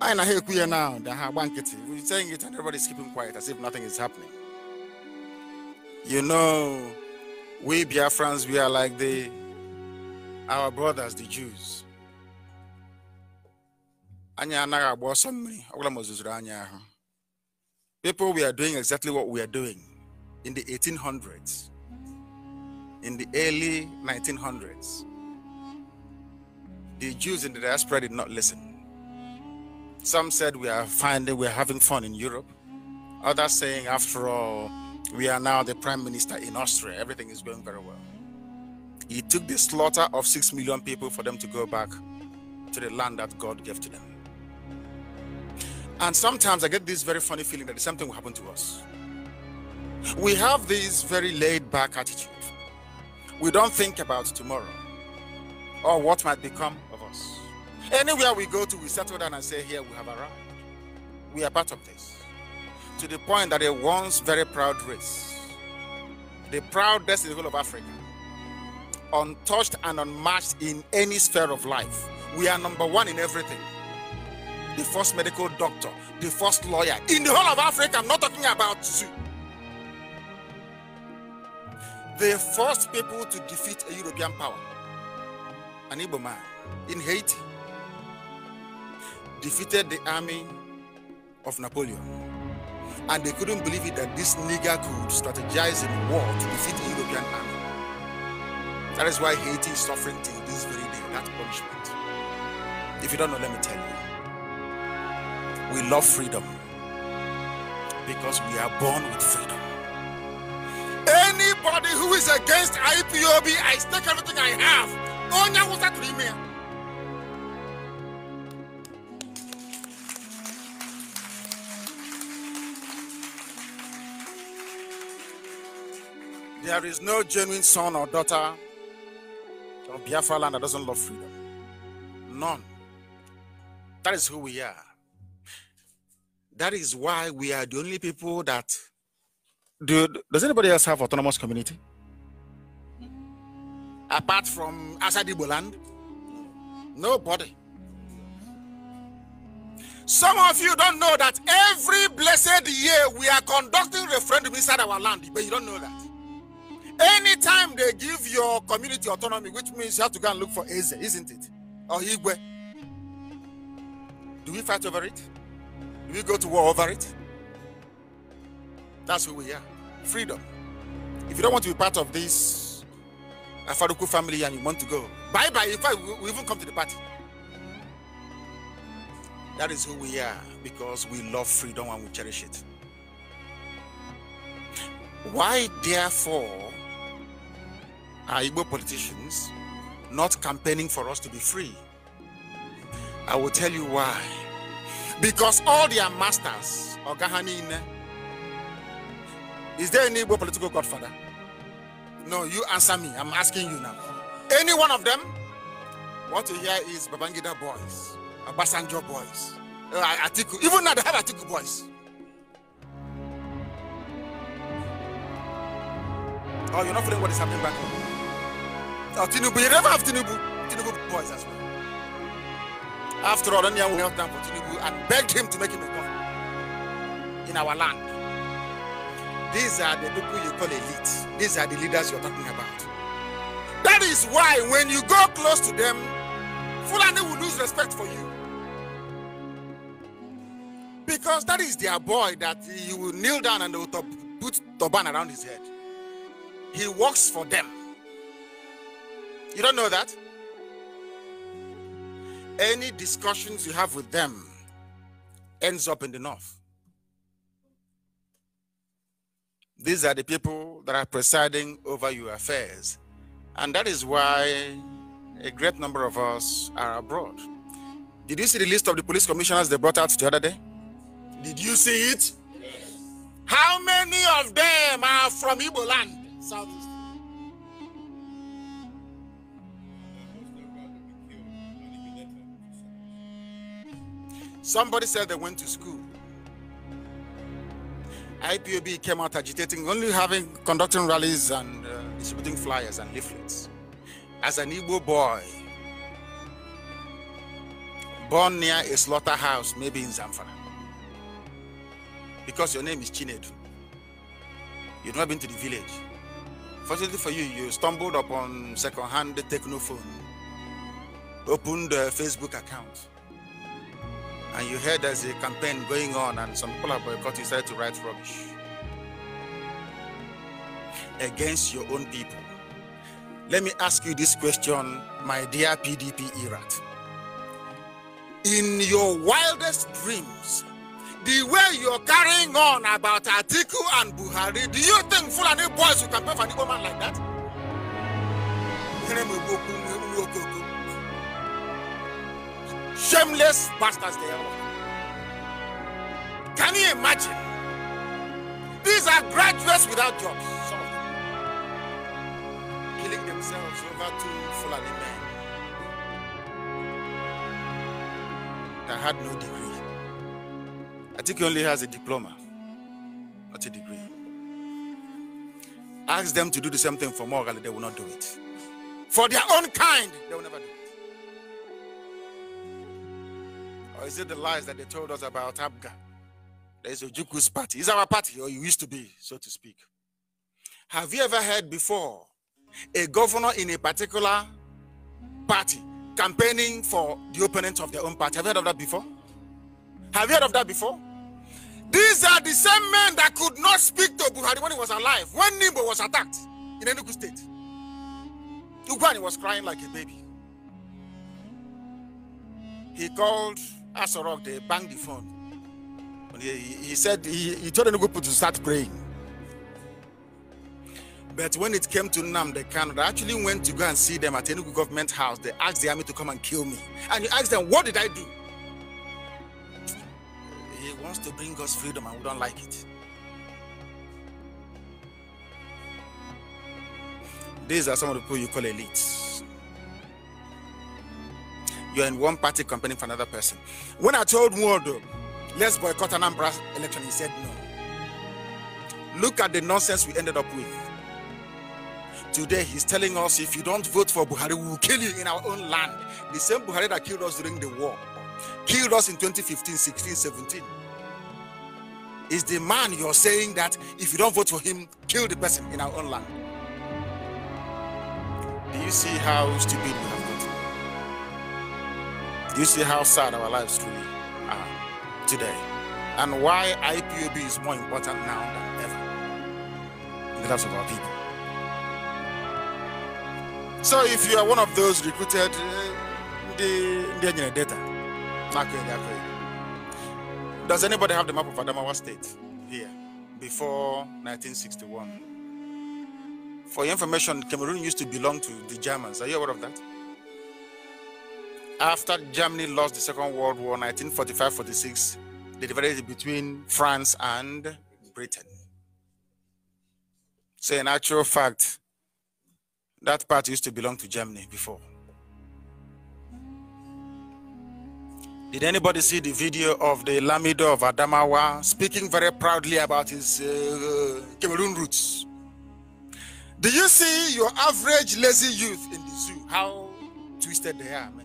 I na hear queer now the ha one nkịtị we saying it and everybody's keeping quiet as if nothing is happening you know we biafrans we are like the our brothers the jews people we are doing exactly what we are doing in the 1800s in the early 1900s the jews in the diaspora did not listen some said we are finding we're having fun in Europe. Others saying, after all, we are now the prime minister in Austria. Everything is going very well. He took the slaughter of six million people for them to go back to the land that God gave to them. And sometimes I get this very funny feeling that the same thing will happen to us. We have this very laid back attitude. We don't think about tomorrow or what might become Anywhere we go to, we settle down and say, Here we have arrived. We are part of this. To the point that a once very proud race, the proudest in the whole of Africa, untouched and unmatched in any sphere of life, we are number one in everything. The first medical doctor, the first lawyer in the whole of Africa. I'm not talking about you. The first people to defeat a European power, an Igbo man in Haiti defeated the army of Napoleon. And they couldn't believe it that this nigger could strategize in war to defeat the European army. That is why Haiti is suffering till this very day, that punishment. If you don't know, let me tell you. We love freedom because we are born with freedom. Anybody who is against IPOB, I stake everything I have. that There is no genuine son or daughter of Biafra land that doesn't love freedom. None. That is who we are. That is why we are the only people that. Do, does anybody else have autonomous community? Apart from Asadibo land? Nobody. Some of you don't know that every blessed year we are conducting referendum inside our land, but you don't know that. Anytime they give your community autonomy, which means you have to go and look for Eze, isn't it? Or Igwe. Do we fight over it? Do we go to war over it? That's who we are. Freedom. If you don't want to be part of this Afaruku family and you want to go, bye bye. In fact, we even come to the party. That is who we are because we love freedom and we cherish it. Why, therefore, are Igbo politicians not campaigning for us to be free? I will tell you why. Because all their masters, Ogahanine, is there any Igbo political godfather? No, you answer me. I'm asking you now. Any one of them? What you hear is Babangida boys, Abasanjo boys, uh, Atiku. Even now they have Atiku boys. Oh, you're not feeling what is happening back home. Oh, Tinubu, you never have Tinubu. Tinubu boys as well. After all, Onyang we down for Tinubu and begged him to make him a governor in our land. These are the people you call elite. These are the leaders you're talking about. That is why when you go close to them, Fulani will lose respect for you. Because that is their boy that you will kneel down and they will put turban around his head. He works for them. You don't know that? Any discussions you have with them ends up in the north. These are the people that are presiding over your affairs. And that is why a great number of us are abroad. Did you see the list of the police commissioners they brought out the other day? Did you see it? Yes. How many of them are from Igbo land? South Somebody said they went to school. IPOB came out agitating, only having conducting rallies and uh, distributing flyers and leaflets. As an Igbo boy, born near a slaughterhouse, maybe in Zamfara, because your name is Chinedu, you've not been to the village. Fortunately for you, you stumbled upon second-hand phone, opened a Facebook account and you heard there's a campaign going on and some people have boycott. you started to write rubbish against your own people. Let me ask you this question, my dear PDP Irat. In your wildest dreams, the way you're carrying on about Atiku and Buhari, do you think Fulani boys can pay for an Igbo man like that? Shameless bastards they are. Can you imagine? These are graduates without jobs, some of them. Killing themselves over two Fulani men that had no degree. I think he only has a diploma, not a degree. Ask them to do the same thing for morally, they will not do it. For their own kind, they will never do it. Or is it the lies that they told us about Abga? There's Ojuku's party. It's our party, or it used to be, so to speak. Have you ever heard before a governor in a particular party campaigning for the opponents of their own party? Have you heard of that before? Have you heard of that before? These are the same men that could not speak to Buhari when he was alive, when Nimbo was attacked in Enugu State. Ugwani was crying like a baby. He called Asorok, they banged the phone. He, he, said, he, he told the people to start praying. But when it came to Nam, the Canada, I actually went to go and see them at Enugu government house. They asked the army to come and kill me. And you asked them, what did I do? He wants to bring us freedom and we don't like it. These are some of the people you call elites. you're in one party campaigning for another person. When I told Mwodo, let's boycott Anambra election, he said no. Look at the nonsense we ended up with. Today, he's telling us if you don't vote for Buhari, we will kill you in our own land. The same Buhari that killed us during the war, killed us in 2015, 16, 17. Is the man you're saying that if you don't vote for him, kill the person in our own land? Do you see how stupid we have do You see how sad our lives truly are today, and why IPOB is more important now than ever in the lives of our people. So, if you are one of those recruited, uh, the the data, does anybody have the map of Adamawa State here before 1961? For your information, Cameroon used to belong to the Germans. Are you aware of that? after Germany lost the Second World War, 1945-46, they divided between France and Britain. So, in actual fact, that part used to belong to Germany before. Did anybody see the video of the Lamido of Adamawa speaking very proudly about his uh, Cameroon roots? Do you see your average lazy youth in the zoo? How twisted they are, man.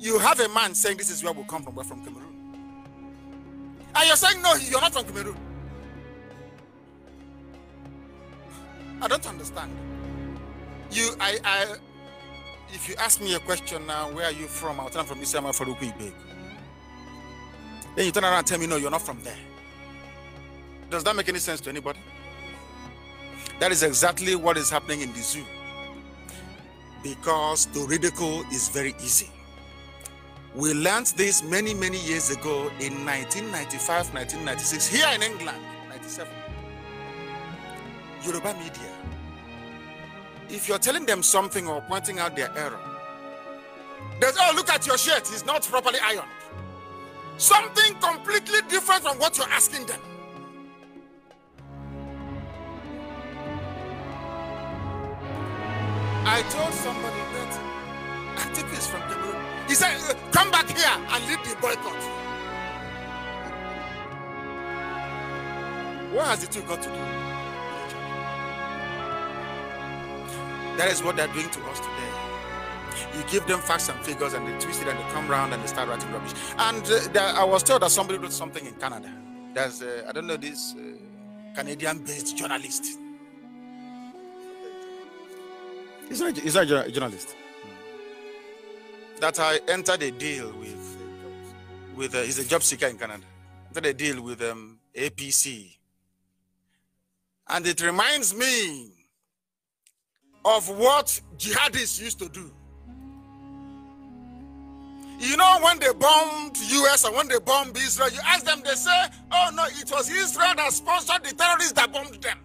you have a man saying this is where we come from, we're from Cameroon. And you're saying, no, you're not from Cameroon. I don't understand. You, I, I, if you ask me a question now, where are you from? I'll tell you from Islam, from Then you turn around and tell me, no, you're not from there. Does that make any sense to anybody? That is exactly what is happening in the zoo. Because the ridicule is very easy. We learned this many, many years ago in 1995, 1996, here in England, 97. Yoruba media. If you're telling them something or pointing out their error, they say, oh, look at your shirt, it's not properly ironed. Something completely different from what you're asking them. I told somebody that I took this from he said, Come back here and lead the boycott. What has the two got to do? That is what they're doing to us today. You give them facts and figures, and they twist it, and they come around and they start writing rubbish. And uh, I was told that somebody wrote something in Canada. There's, uh, I don't know, this uh, Canadian-based journalist. He's not, he's not a journalist that I entered a deal with with uh, he's a job seeker in Canada. Entered a deal with um, APC, and it reminds me of what jihadists used to do. You know, when they bombed US and when they bombed Israel, you ask them, they say, oh no, it was Israel that sponsored the terrorists that bombed them.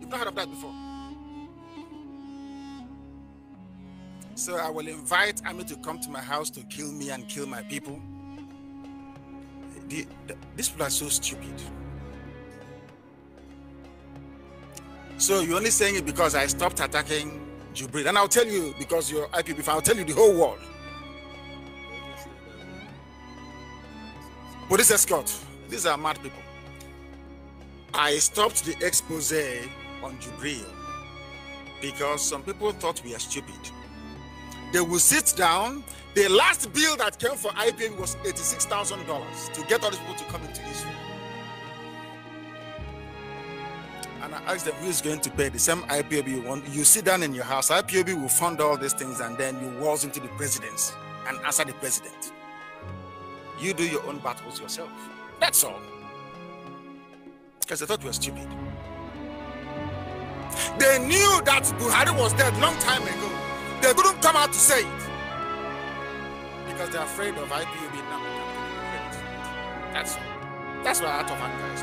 You've not heard of that before. So I will invite Ami to come to my house to kill me and kill my people. these people are so stupid. So you're only saying it because I stopped attacking Jubril. And I'll tell you, because you're IPB, I'll tell you the whole world. Police escort. These are mad people. I stopped the expose on Jubril because some people thought we are stupid. They will sit down. The last bill that came for IBM was $86,000 to get all these people to come into Israel. And I asked them, who is going to pay the same IPOB you want? You sit down in your house, IPOB will fund all these things, and then you waltz into the president's and answer the president. You do your own battles yourself. That's all. Because they thought we were stupid. They knew that Buhari was dead long time ago. They couldn't come out to say it because they're afraid of IPU being numbered. That's That's where out of Anger is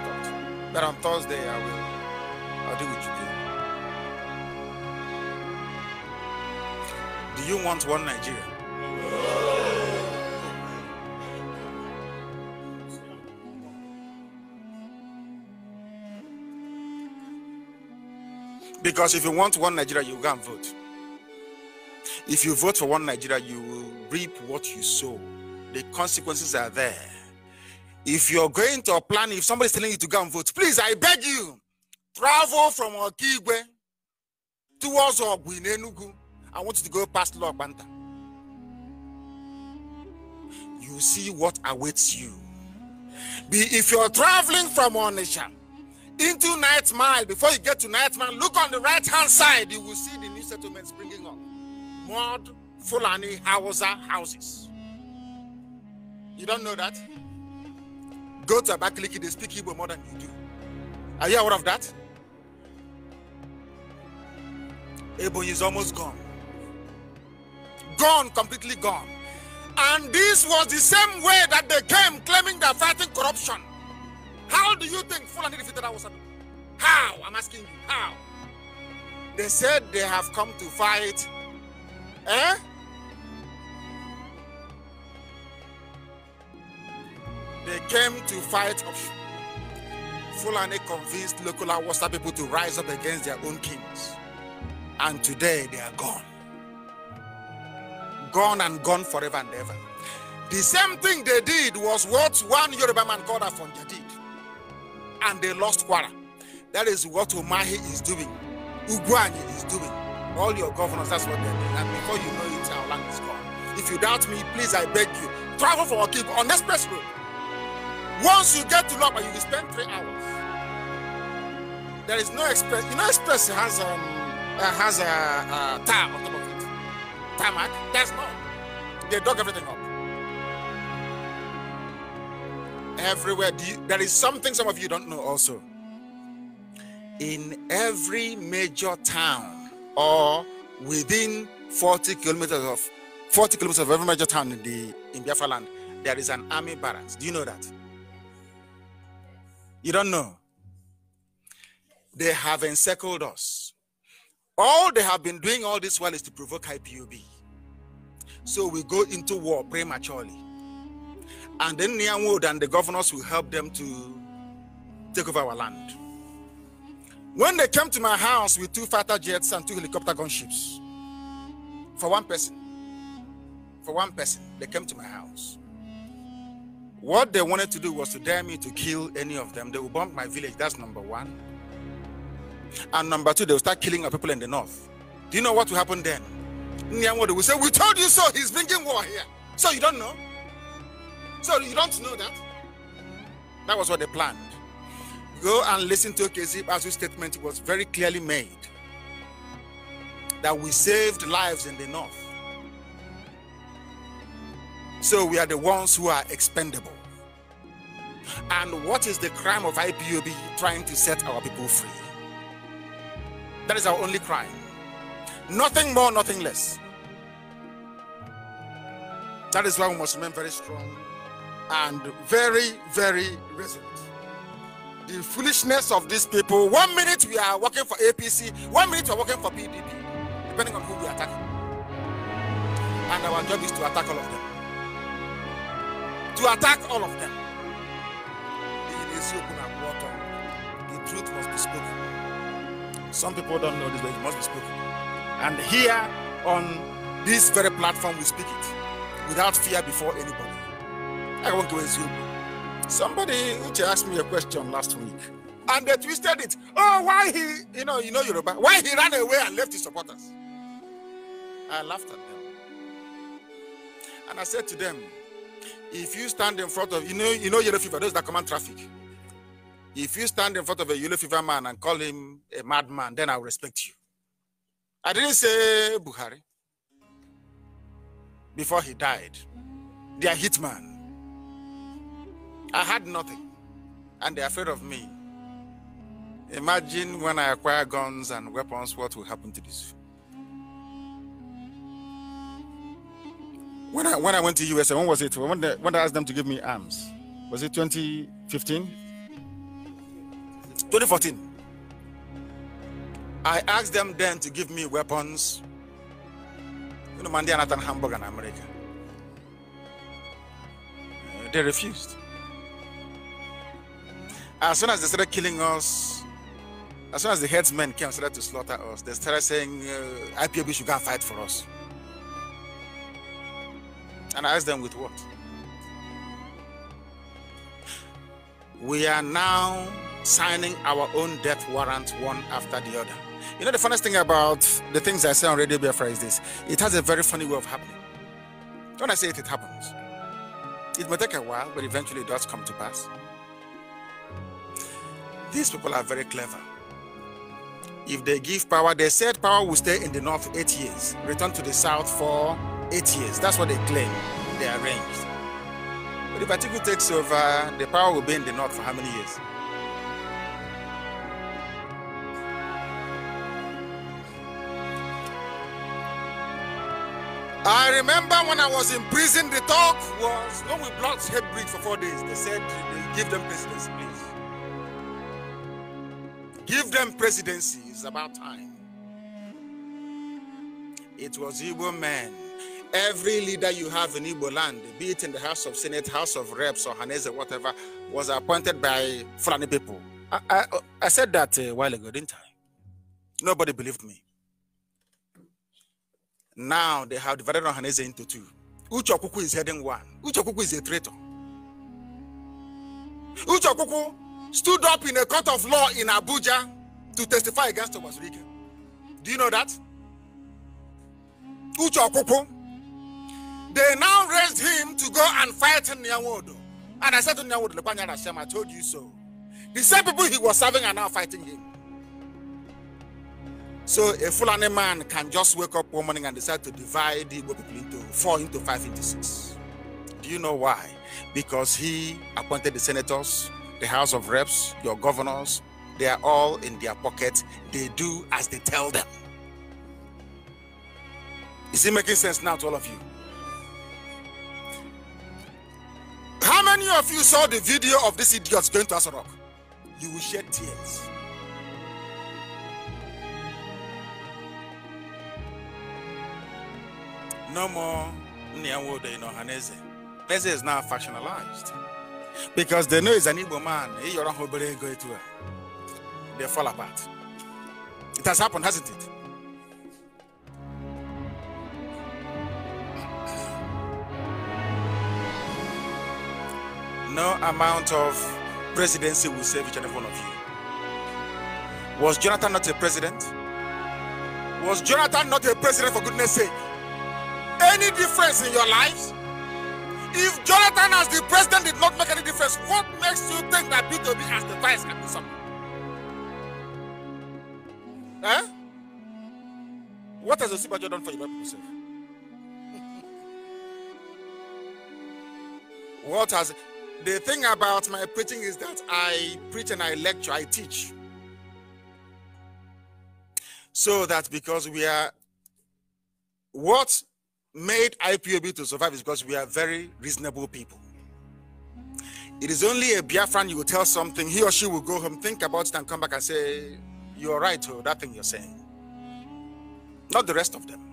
But on Thursday, I will. I'll do what you do. Do you want one Nigeria? Because if you want one Nigeria, you go and vote. If you vote for one Nigeria, you will reap what you sow. The consequences are there. If you're going to a plan, if somebody's telling you to go and vote, please, I beg you, travel from Okigwe towards Ogbu I want you to go past Logbanta. You see what awaits you. Be if you're traveling from Onisha into Night Mile, before you get to Night Mile, look on the right hand side, you will see the new settlements bringing up mud Fulani Hausa houses. You don't know that? Go to Abakaliki, they speak Igbo more than you do. Are you aware of that? Ebony is almost gone. Gone, completely gone. And this was the same way that they came claiming they're fighting corruption. How do you think Fulani defeated Hausa? How? I'm asking you, how? They said they have come to fight Hein? They came to fight option. Fulani convinced local Awasa people to rise up against their own kings. And today they are gone. Gone and gone forever and ever. The same thing they did was what one Yoruba man called Afonja did. And they lost Kwara. That is what Umahi is doing. Uguanyi is doing. all your governors, that's what they do. And before you know it, our land is gone. If you doubt me, please, I beg you, travel for a keep on express road. Once you get to Lopa, you will spend three hours. There is no express. You know, express has um uh, has a uh, uh tar on top of it. Tarmac, there's no. They dug everything up. Everywhere, you, there is something some of you don't know also. In every major town, or within 40 kilometers of 40 kilometers of every major town in the in Biafra land, there is an army barracks. Do you know that? You don't know. They have encircled us. All they have been doing all this while is to provoke IPOB. So we go into war prematurely. And then Nyanwood and the governors will help them to take over our land. When they came to my house with two fighter jets and two helicopter gunships, for one person, for one person, they came to my house. What they wanted to do was to dare me to kill any of them. They will bomb my village. That's number one. And number two, they will start killing our people in the north. Do you know what will happen then? Nyamwodo will say, We told you so. He's bringing war here. So you don't know? So you don't know that? That was what they planned. Go and listen to Kezib Azu's statement it was very clearly made that we saved lives in the north. So we are the ones who are expendable. And what is the crime of IPOB trying to set our people free? That is our only crime. Nothing more, nothing less. That is why we must remain very strong and very, very resilient the foolishness of these people. One minute we are working for APC, one minute we are working for PDP, depending on who we attack. And our job is to attack all of them. To attack all of them. The truth must be spoken. Some people don't know this, but it must be spoken. And here on this very platform, we speak it without fear before anybody. I won't go as you. Somebody which asked me a question last week, and they twisted it. Oh, why he, you know, you know Yoruba, why he ran away and left his supporters? I laughed at them, and I said to them, if you stand in front of, you know, you know yellow fever, those that command traffic. If you stand in front of a yellow fever man and call him a madman, then I'll respect you. I didn't say Buhari before he died. They are hitman. I had nothing, and they're afraid of me. Imagine when I acquire guns and weapons, what will happen to this? When I when I went to USA, when was it? When when I asked them to give me arms, was it 2015? 2014. I asked them then to give me weapons. You know, Mandy and Hamburg in America. Uh, they refused. As soon as they started killing us, as soon as the headsmen came and started to slaughter us, they started saying uh, IPOB should go and fight for us. And I asked them with what? We are now signing our own death warrant one after the other. You know, the funniest thing about the things I say on Radio Biafra is this it has a very funny way of happening. When I say it, it happens. It may take a while, but eventually it does come to pass. These people are very clever. If they give power, they said power will stay in the north eight years, return to the south for eight years. That's what they claim. They arranged. But if Atiku takes over, the power will be in the north for how many years? I remember when I was in prison, the talk was when we blocked Hebrew for four days. They said, give them presidency, please. Give them presidency. It's about time. It was Igbo men. Every leader you have in Igbo land, be it in the House of Senate, House of Reps, or Haneze, whatever, was appointed by Fulani people. I, I, I said that a while ago, didn't I? Nobody believed me. Now they have divided Haneze into two. Uchokuku is heading one. Uchokuku is a traitor. Uchokuku stood up in a court of law in Abuja to testify against Thomas Regan. Do you know that? Uche They now raised him to go and fight Nyawodo. And I said to Nyawodo, Lepanya I told you so. The same people he was serving are now fighting him. So a Fulani man can just wake up one morning and decide to divide the people into four, into five, into six. Do you know why? Because he appointed the senators, the House of Reps, your governors, they are all in their pockets. They do as they tell them. Is it making sense now to all of you? How many of you saw the video of this idiot going to Asarok? You will shed tears. No more Nyanwodo in Ohaneze. Ohaneze is now factionalized because they know he's an evil man. They fall apart. It has happened, hasn't it? No amount of presidency will save each and every one of you. Was Jonathan not a president? Was Jonathan not a president for goodness sake? Any difference in your lives? If Jonathan as the president did not make any difference, what makes you think that B2B as the vice can do something? Huh? Eh? What has the super done for you people self? [LAUGHS] what has the thing about my preaching is that I preach and I lecture, I teach. So that because we are what made IPOB to survive is because we are very reasonable people. It is only a Biafran you will tell something, he or she will go home, think about it, and come back and say, You're right, oh, that thing you're saying. Not the rest of them.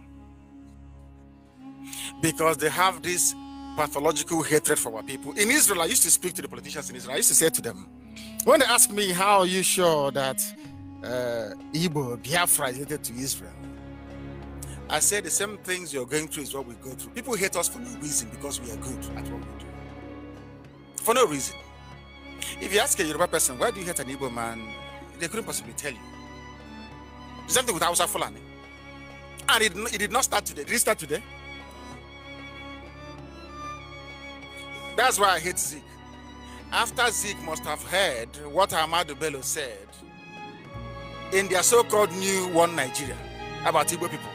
Because they have this pathological hatred for our people. In Israel, I used to speak to the politicians in Israel. I used to say to them, when they ask me, How are you sure that uh, Igbo, Biafra is related to Israel? I said the same things you're going through is what we go through. People hate us for no reason because we are good at what we do. For no reason. If you ask a Yoruba person, why do you hate an Igbo man? They couldn't possibly tell you. The same thing with Hausa Fulani. And it, it did not start today. Did it start today? That's why I hate Zeke. After Zeke must have heard what Ahmadu Bello said in their so-called new one Nigeria about Igbo people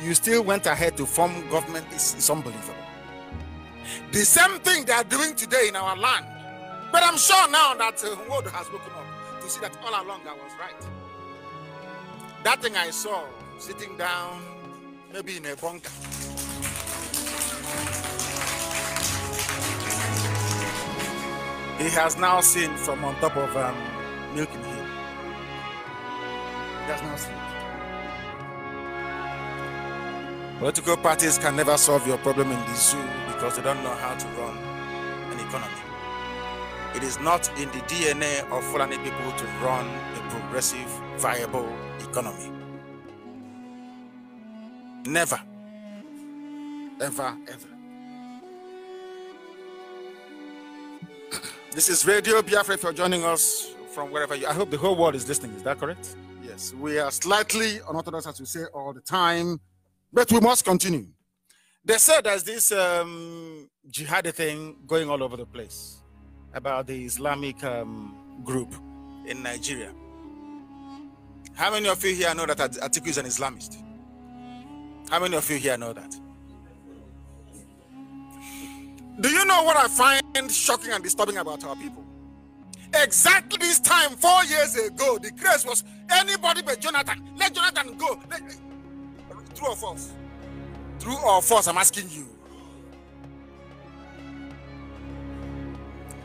you still went ahead to form government is, is unbelievable. The same thing they are doing today in our land. But I'm sure now that uh, world has woken up to see that all along I was right. That thing I saw sitting down, maybe in a bunker. He has now seen from on top of um, Milking Hill. He has now seen. Political parties can never solve your problem in the zoo because they don't know how to run an economy. It is not in the DNA of Fulani people to run a progressive, viable economy. Never. Ever, ever. This is Radio Biafra. If you're joining us from wherever you, I hope the whole world is listening. Is that correct? Yes, we are slightly unorthodox, as we say all the time. But we must continue. They said there's this um, jihadi thing going all over the place about the Islamic um, group in Nigeria. How many of you here know that Atiku is an Islamist? How many of you here know that? Do you know what I find shocking and disturbing about our people? Exactly this time, four years ago, the craze was anybody but Jonathan, let Jonathan go. Let, True or false? True or false? I'm asking you.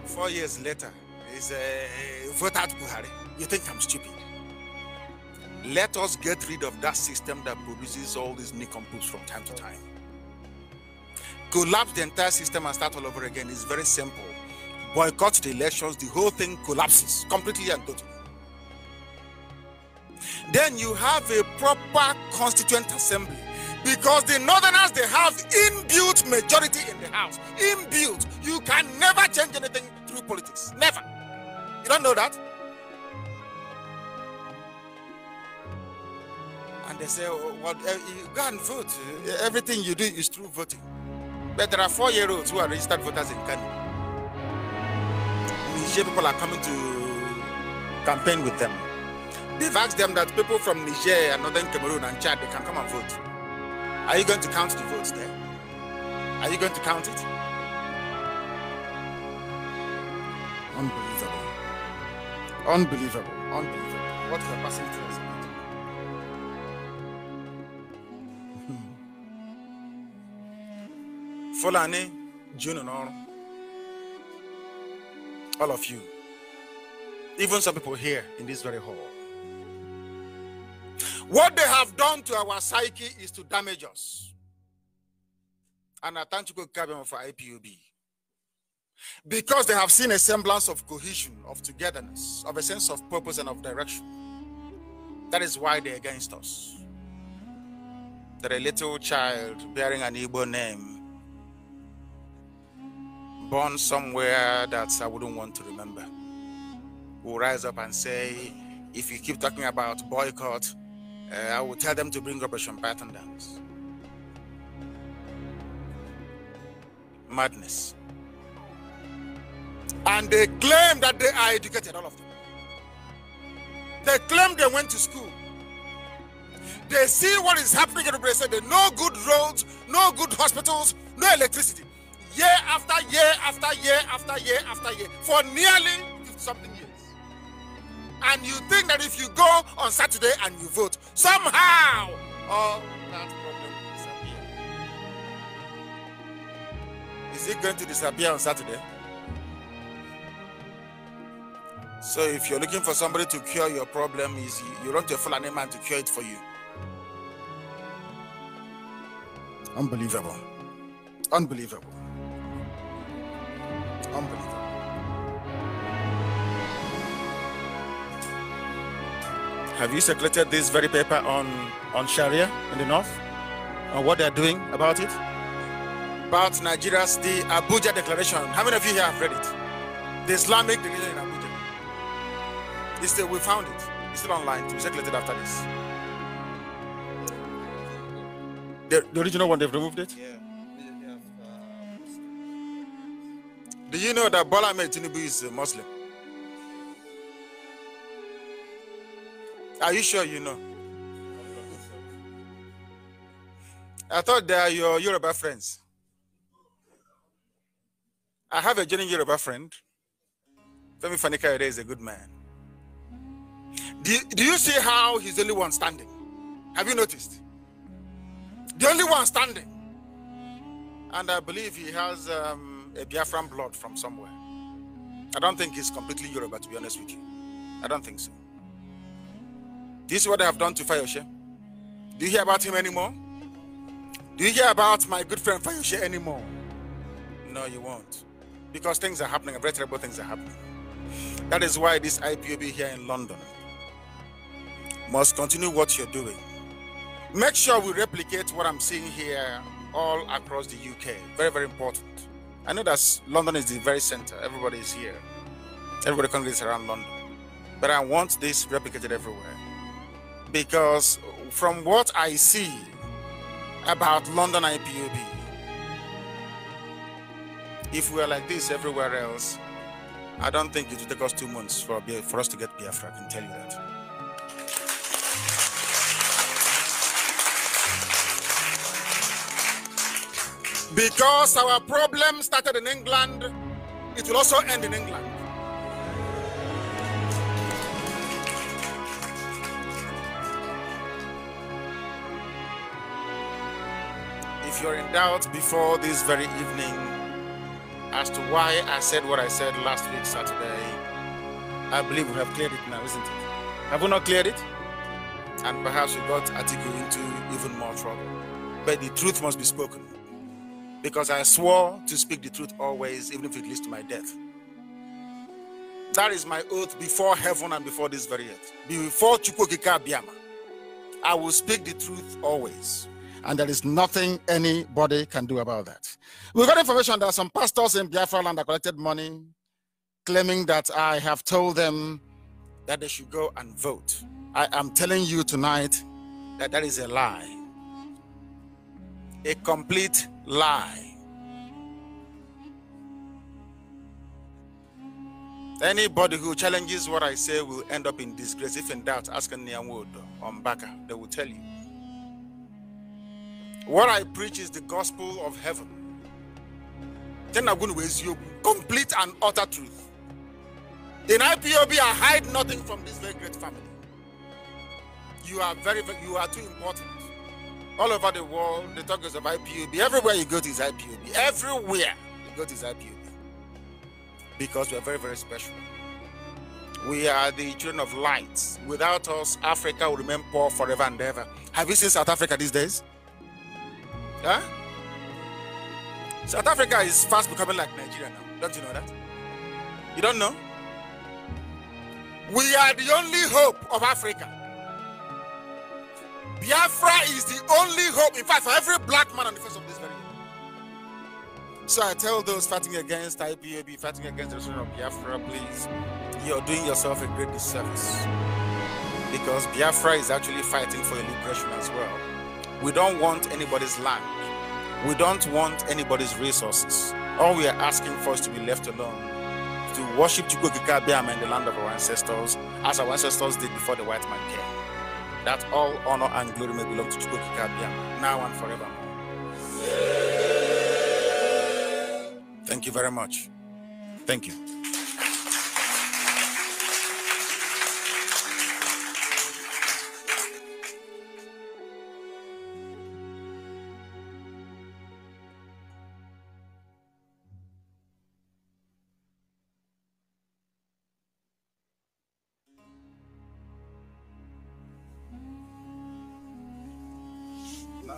Four years later, is uh, vote out Buhari. You think I'm stupid? Let us get rid of that system that produces all these nincom from time to time. Collapse the entire system and start all over again is very simple. Boycott the elections, the whole thing collapses completely and totally then you have a proper constituent assembly. Because the northerners, they have inbuilt majority in the house. Inbuilt. You can never change anything through politics. Never. You don't know that? And they say, oh, well, eh, you go and vote. Eh, everything you do is through voting. But there are four year olds who are registered voters in Kenya. Niger people are coming to campaign with them. They've asked them that people from Niger and northern Cameroon and Chad, they can come and vote. Are you going to count the votes there? Are you going to count it? Unbelievable. Unbelievable. Unbelievable. What the person tells hmm. Fulani, June and all. All of you. Even some people here in this very hall. What they have done to our psyche is to damage us. And I thank you, Kabem, for IPUB. Because they have seen a semblance of cohesion, of togetherness, of a sense of purpose and of direction. That is why they're against us. That a little child bearing an Igbo name, born somewhere that I wouldn't want to remember, will rise up and say, if you keep talking about boycott, uh, I will tell them to bring up a Shumbatan dance. Madness. And they claim that they are educated, all of them. They claim they went to school. They see what is happening in Obrese. There no good roads, no good hospitals, no electricity. Year after year after year after year after year for nearly something years and you think that if you go on Saturday and you vote, somehow all that problem will disappear. Is it going to disappear on Saturday? So if you're looking for somebody to cure your problem, is you want a man to cure it for you. Unbelievable. Unbelievable. Unbelievable. Have you circulated this very paper on, on Sharia in the North? On what they're doing about it? About Nigeria's the Abuja Declaration. How many of you here have read it? The Islamic religion in Abuja. It's still, we found it. It's still online to be circulated after this. The, the original one, they've removed it? Yeah. Uh, Do you know that Bola Tinubu is a Muslim? Are you sure you know? I thought they are your Yoruba friends. I have a genuine Yoruba friend. Femi Fanikayode is a good man. Do, do you see how he's the only one standing? Have you noticed? The only one standing. And I believe he has um, a Biafran blood from somewhere. I don't think he's completely Yoruba, to be honest with you. I don't think so. This is what I have done to Fayoshe. Do you hear about him anymore? Do you hear about my good friend Fayoshe anymore? No, you won't. Because things are happening, very terrible things are happening. That is why this IPOB here in London must continue what you're doing. Make sure we replicate what I'm seeing here all across the UK. Very, very important. I know that London is the very center. Everybody is here. Everybody congregates around London. But I want this replicated everywhere because from what I see about London IPOB, if we are like this everywhere else, I don't think it will take us two months for, for us to get Biafra. I can tell you that. Because our problem started in England, it will also end in England. you're in doubt before this very evening as to why I said what I said last week, Saturday, I believe we have cleared it now, isn't it? Have we not cleared it? And perhaps we got Atiku into even more trouble. But the truth must be spoken. Because I swore to speak the truth always, even if it leads to my death. That is my oath before heaven and before this very earth. Before Chukwokika Biama, I will speak the truth always and there is nothing anybody can do about that. We got information that some pastors in Biafra land have collected money, claiming that I have told them that they should go and vote. I am telling you tonight that that is a lie, a complete lie. Anybody who challenges what I say will end up in disgrace. If in doubt, ask Nyanwodo on Baka, they will tell you. What I preach is the gospel of heaven. Then I'm going to you complete and utter truth. In IPOB, I hide nothing from this very great family. You are very, you are too important. All over the world, the talk is of IPOB. Everywhere you go to is IPOB. Everywhere you go to is IPOB. Because we are very, very special. We are the children of light. Without us, Africa will remain poor forever and ever. Have you seen South Africa these days? Huh? South Africa is fast becoming like Nigeria now. Don't you know that? You don't know? We are the only hope of Africa. Biafra is the only hope, in fact, for every black man on the face of this very earth. So I tell those fighting against IPAB, fighting against the restoration of Biafra, please, you're doing yourself a great disservice. Because Biafra is actually fighting for a liberation as well. We don't want anybody's land. We don't want anybody's resources. All we are asking for is to be left alone, to worship Chukwukikabiam and the land of our ancestors, as our ancestors did before the white man came. That all honor and glory may belong to Chukwukikabiam, now and forevermore. Thank you very much. Thank you.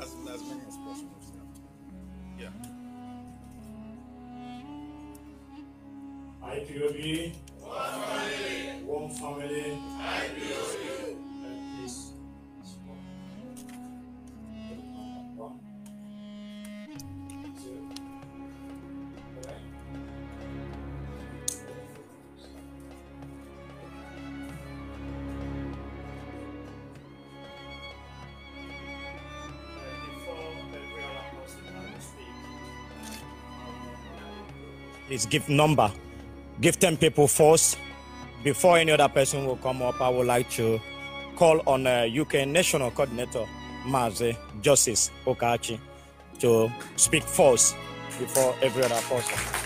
as, as many as possible. Yeah. IPOB. One family. One family. IPOB. is give number. Give 10 people first. Before any other person will come up, I would like to call on uh, UK National Coordinator, Maze Justice Okachi, to speak first before every other person.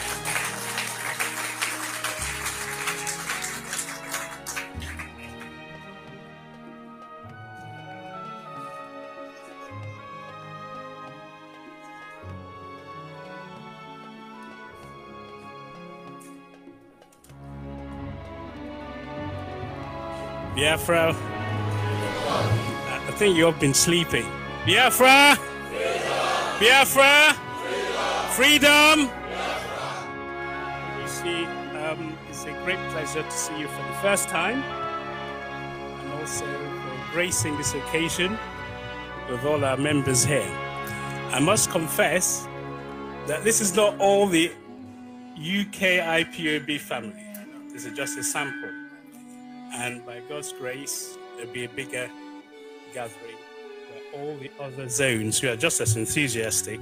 Biafra. I think you've been sleeping. Biafra! Freedom! Biafra! Freedom! Freedom! Biafra. You see, um, it's a great pleasure to see you for the first time and also for gracing this occasion with all our members here. I must confess that this is not all the UK IPOB family. This is just a sample. God's grace, there'll be a bigger gathering where all the other zones who are just as enthusiastic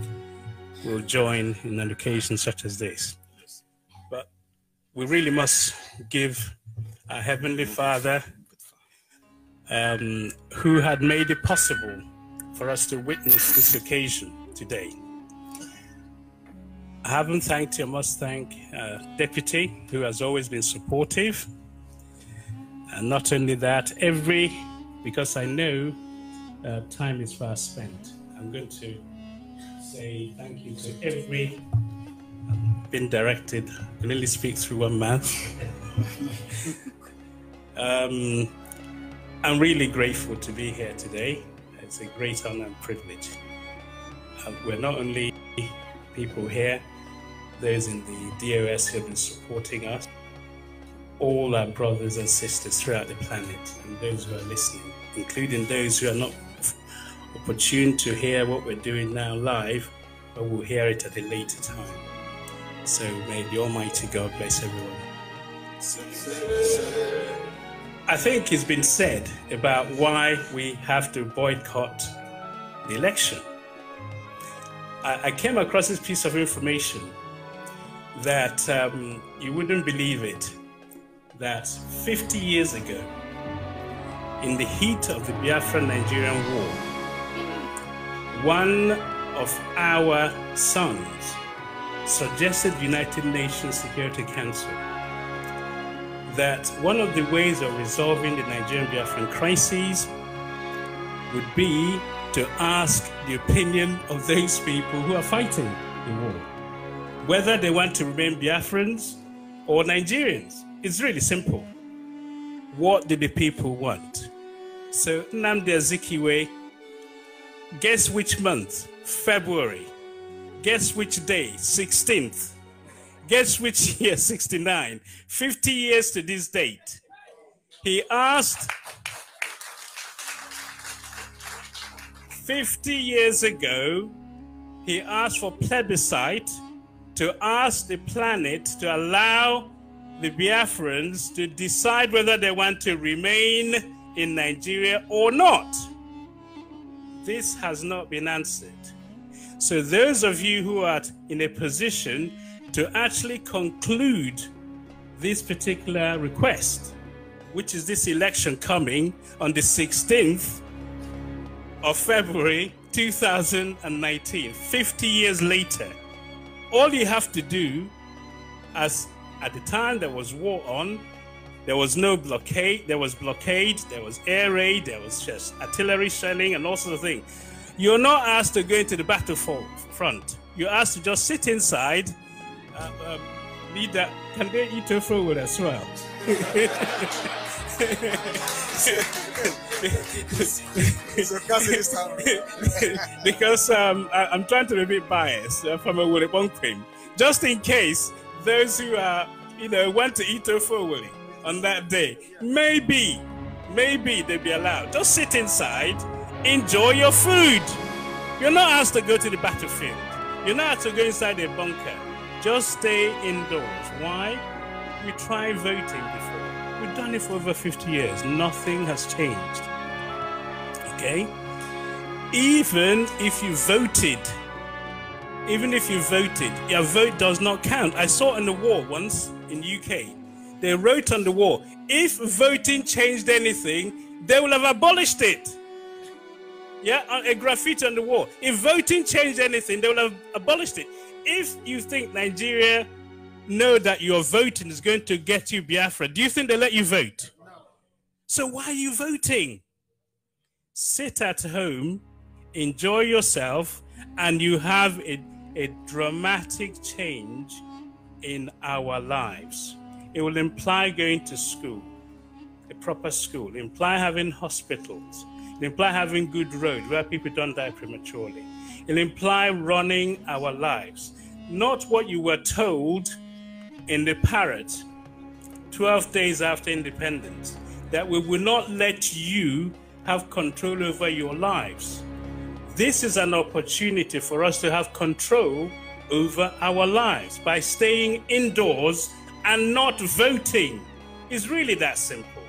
will join in an occasion such as this. But we really must give our Heavenly Father, um, who had made it possible for us to witness this occasion today. I haven't thanked you. I must thank uh, Deputy, who has always been supportive. And uh, not only that, every, because I know uh, time is fast spent, I'm going to say thank you to every, I've um, been directed, I can only speak through one mouth. [LAUGHS] um, I'm really grateful to be here today. It's a great honor and privilege. Uh, we're not only people here, those in the DOS who have been supporting us, all our brothers and sisters throughout the planet and those who are listening, including those who are not opportune to hear what we're doing now live, but will hear it at a later time. So may the Almighty God bless everyone. I think it's been said about why we have to boycott the election. I, came across this piece of information that um, you wouldn't believe it that 50 years ago, in the heat of the Biafra Nigerian War, one of our sons suggested United Nations Security Council that one of the ways of resolving the Nigerian Biafran crisis would be to ask the opinion of those people who are fighting the war, whether they want to remain Biafrans or Nigerians. It's really simple. What do the people want? So Namde Azikiwe, guess which month? February. Guess which day? 16th. Guess which [LAUGHS] year? 69. 50 years to this date. He asked 50 years ago, he asked for plebiscite to ask the planet to allow the Biafrans to decide whether they want to remain in Nigeria or not. This has not been answered. So, those of you who are in a position to actually conclude this particular request, which is this election coming on the 16th of February 2019, 50 years later, all you have to do as at the time there was war on. There was no blockade. There was blockade. There was air raid. There was just artillery shelling and all sorts of things. You're not asked to go into the front. You're asked to just sit inside. Uh, uh, leader, can they eat a fruit as well? [LAUGHS] because um, I, am trying to be a bit biased uh, from a Willy cream, just in case those who are, you know, want to eat ofowori on that day, maybe, maybe they'll be allowed. Just sit inside, enjoy your food. You're not asked to go to the battlefield. You're not asked to go inside a bunker. Just stay indoors. Why? We tried voting before. We've done it for over 50 years. Nothing has changed. Okay? Even if you voted even if you voted, your vote does not count. I saw on the wall once in UK, they wrote on the wall, if voting changed anything, they will have abolished it. Yeah, a graffiti on the wall. If voting changed anything, they will have abolished it. If you think Nigeria know that your voting is going to get you Biafra, do you think they let you vote? So why are you voting? Sit at home, enjoy yourself, and you have a a dramatic change in our lives. It will imply going to school, a proper school, imply having hospitals, imply having good roads where people don't die prematurely. It'll imply running our lives, not what you were told in the parrot 12 days after independence, that we will not let you have control over your lives. This is an opportunity for us to have control over our lives by staying indoors and not voting. It's really that simple.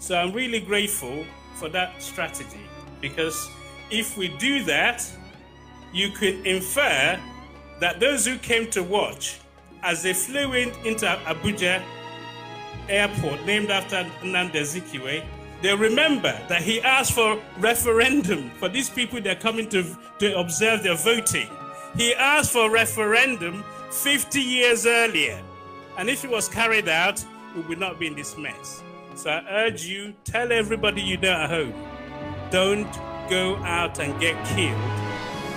So I'm really grateful for that strategy because if we do that, you could infer that those who came to watch as they flew in into Abuja airport named after Nnamdi Azikiwe they remember that he asked for referendum for these people they are coming to, to observe their voting. He asked for referendum 50 years earlier. And if it was carried out, we would not be in this mess. So I urge you, tell everybody you know at home, don't go out and get killed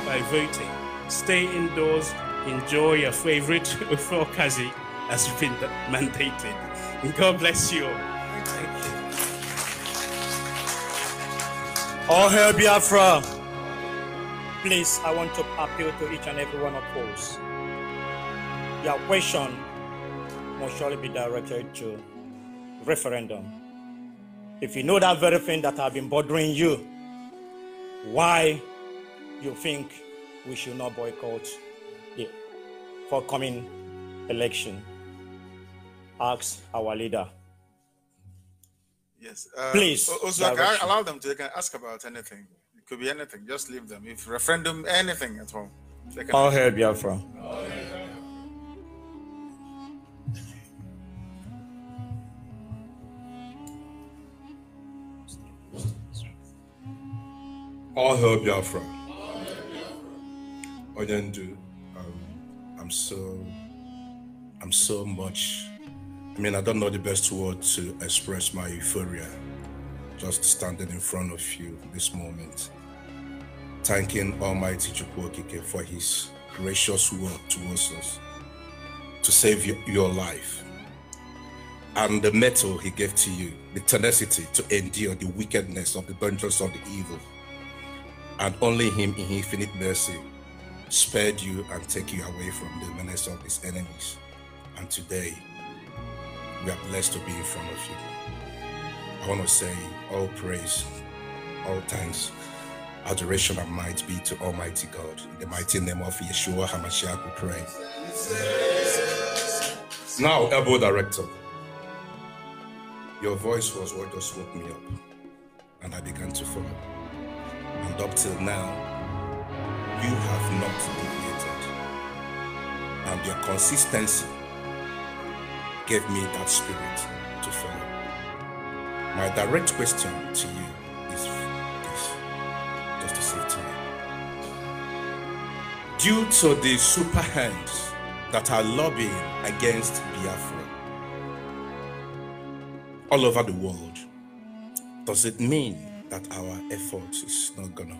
by voting. Stay indoors, enjoy your favorite ufokazi [LAUGHS] as has been mandated. And God bless you all. All hail Biafra. Please, I want to appeal to each and every one of us. Your question must surely be directed to referendum. If you know that very thing that have been bothering you, why you think we should not boycott the forthcoming election? Ask our leader. Yes. Uh, Please. Also, allow them to they can ask about anything. It could be anything. Just leave them. If referendum, anything at all. They can All hail Biafra. All hail. All hail Biafra. Oyendu, um, I'm so, I'm so much I mean, I don't know the best word to express my euphoria just standing in front of you this moment, thanking Almighty Chukwokike for his gracious word towards us to save your life and the metal he gave to you, the tenacity to endure the wickedness of the dungeons of the evil. And only him in infinite mercy spared you and take you away from the menace of his enemies. And today, we are blessed to be in front of you. I want to say all praise, all thanks, adoration, and might be to Almighty God. In the mighty name of Yeshua HaMashiach, we pray. Now, elbow director, your voice was what just woke me up, and I began to follow. And up till now, you have not deviated. And your consistency gave me that spirit to follow. My direct question to you is this, just to save time. Due to the super hands that are lobbying against Biafra all over the world, does it mean that our effort is not gonna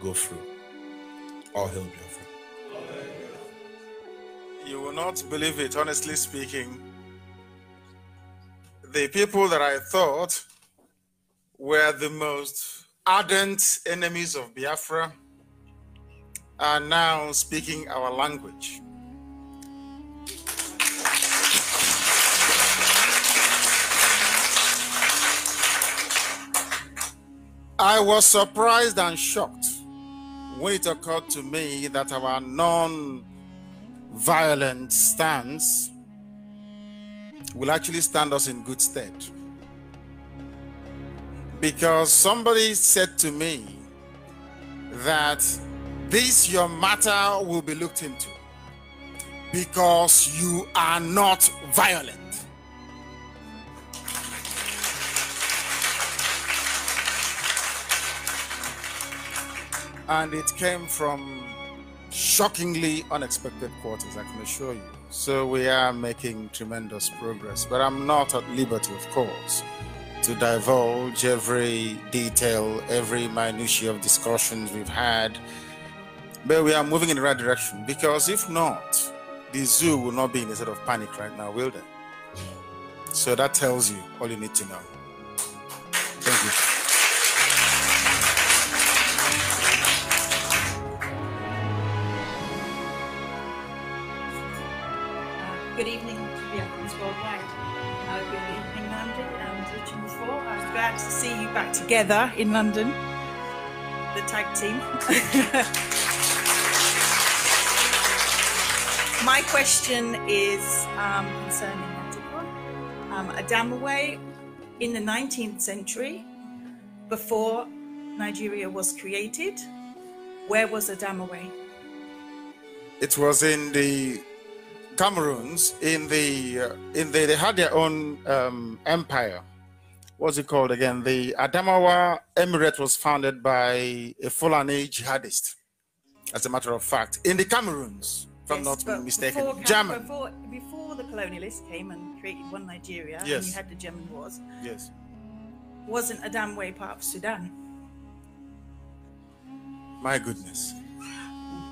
go through or help Biafra? You will not believe it, honestly speaking. The people that I thought were the most ardent enemies of Biafra are now speaking our language. I was surprised and shocked when it occurred to me that our non violent stance will actually stand us in good stead. Because somebody said to me that this your matter will be looked into because you are not violent. And it came from shockingly unexpected quarters, I can assure you. So we are making tremendous progress, but I'm not at liberty, of course, to divulge every detail, every minutiae of discussions we've had. But we are moving in the right direction because if not, the zoo will not be in a state of panic right now, will they? So that tells you all you need to know. Thank you. good evening to the Africans worldwide. Uh, good evening, London. And Richard before, I was glad to see you back together in London, the tag team. [LAUGHS] My question is um, concerning Antigua. Um, Adamaway in the 19th century, before Nigeria was created, where was Adamaway? It was in the Cameroons in the uh, in the they had their own um, empire. What's it called again? The Adamawa Emirate was founded by a Fulani jihadist. As a matter of fact, in the Cameroons, if yes, I'm not mistaken, before, German. Before, before, the colonialists came and created one Nigeria, yes. and you had the German wars. Yes. Wasn't Adamawa part of Sudan? My goodness.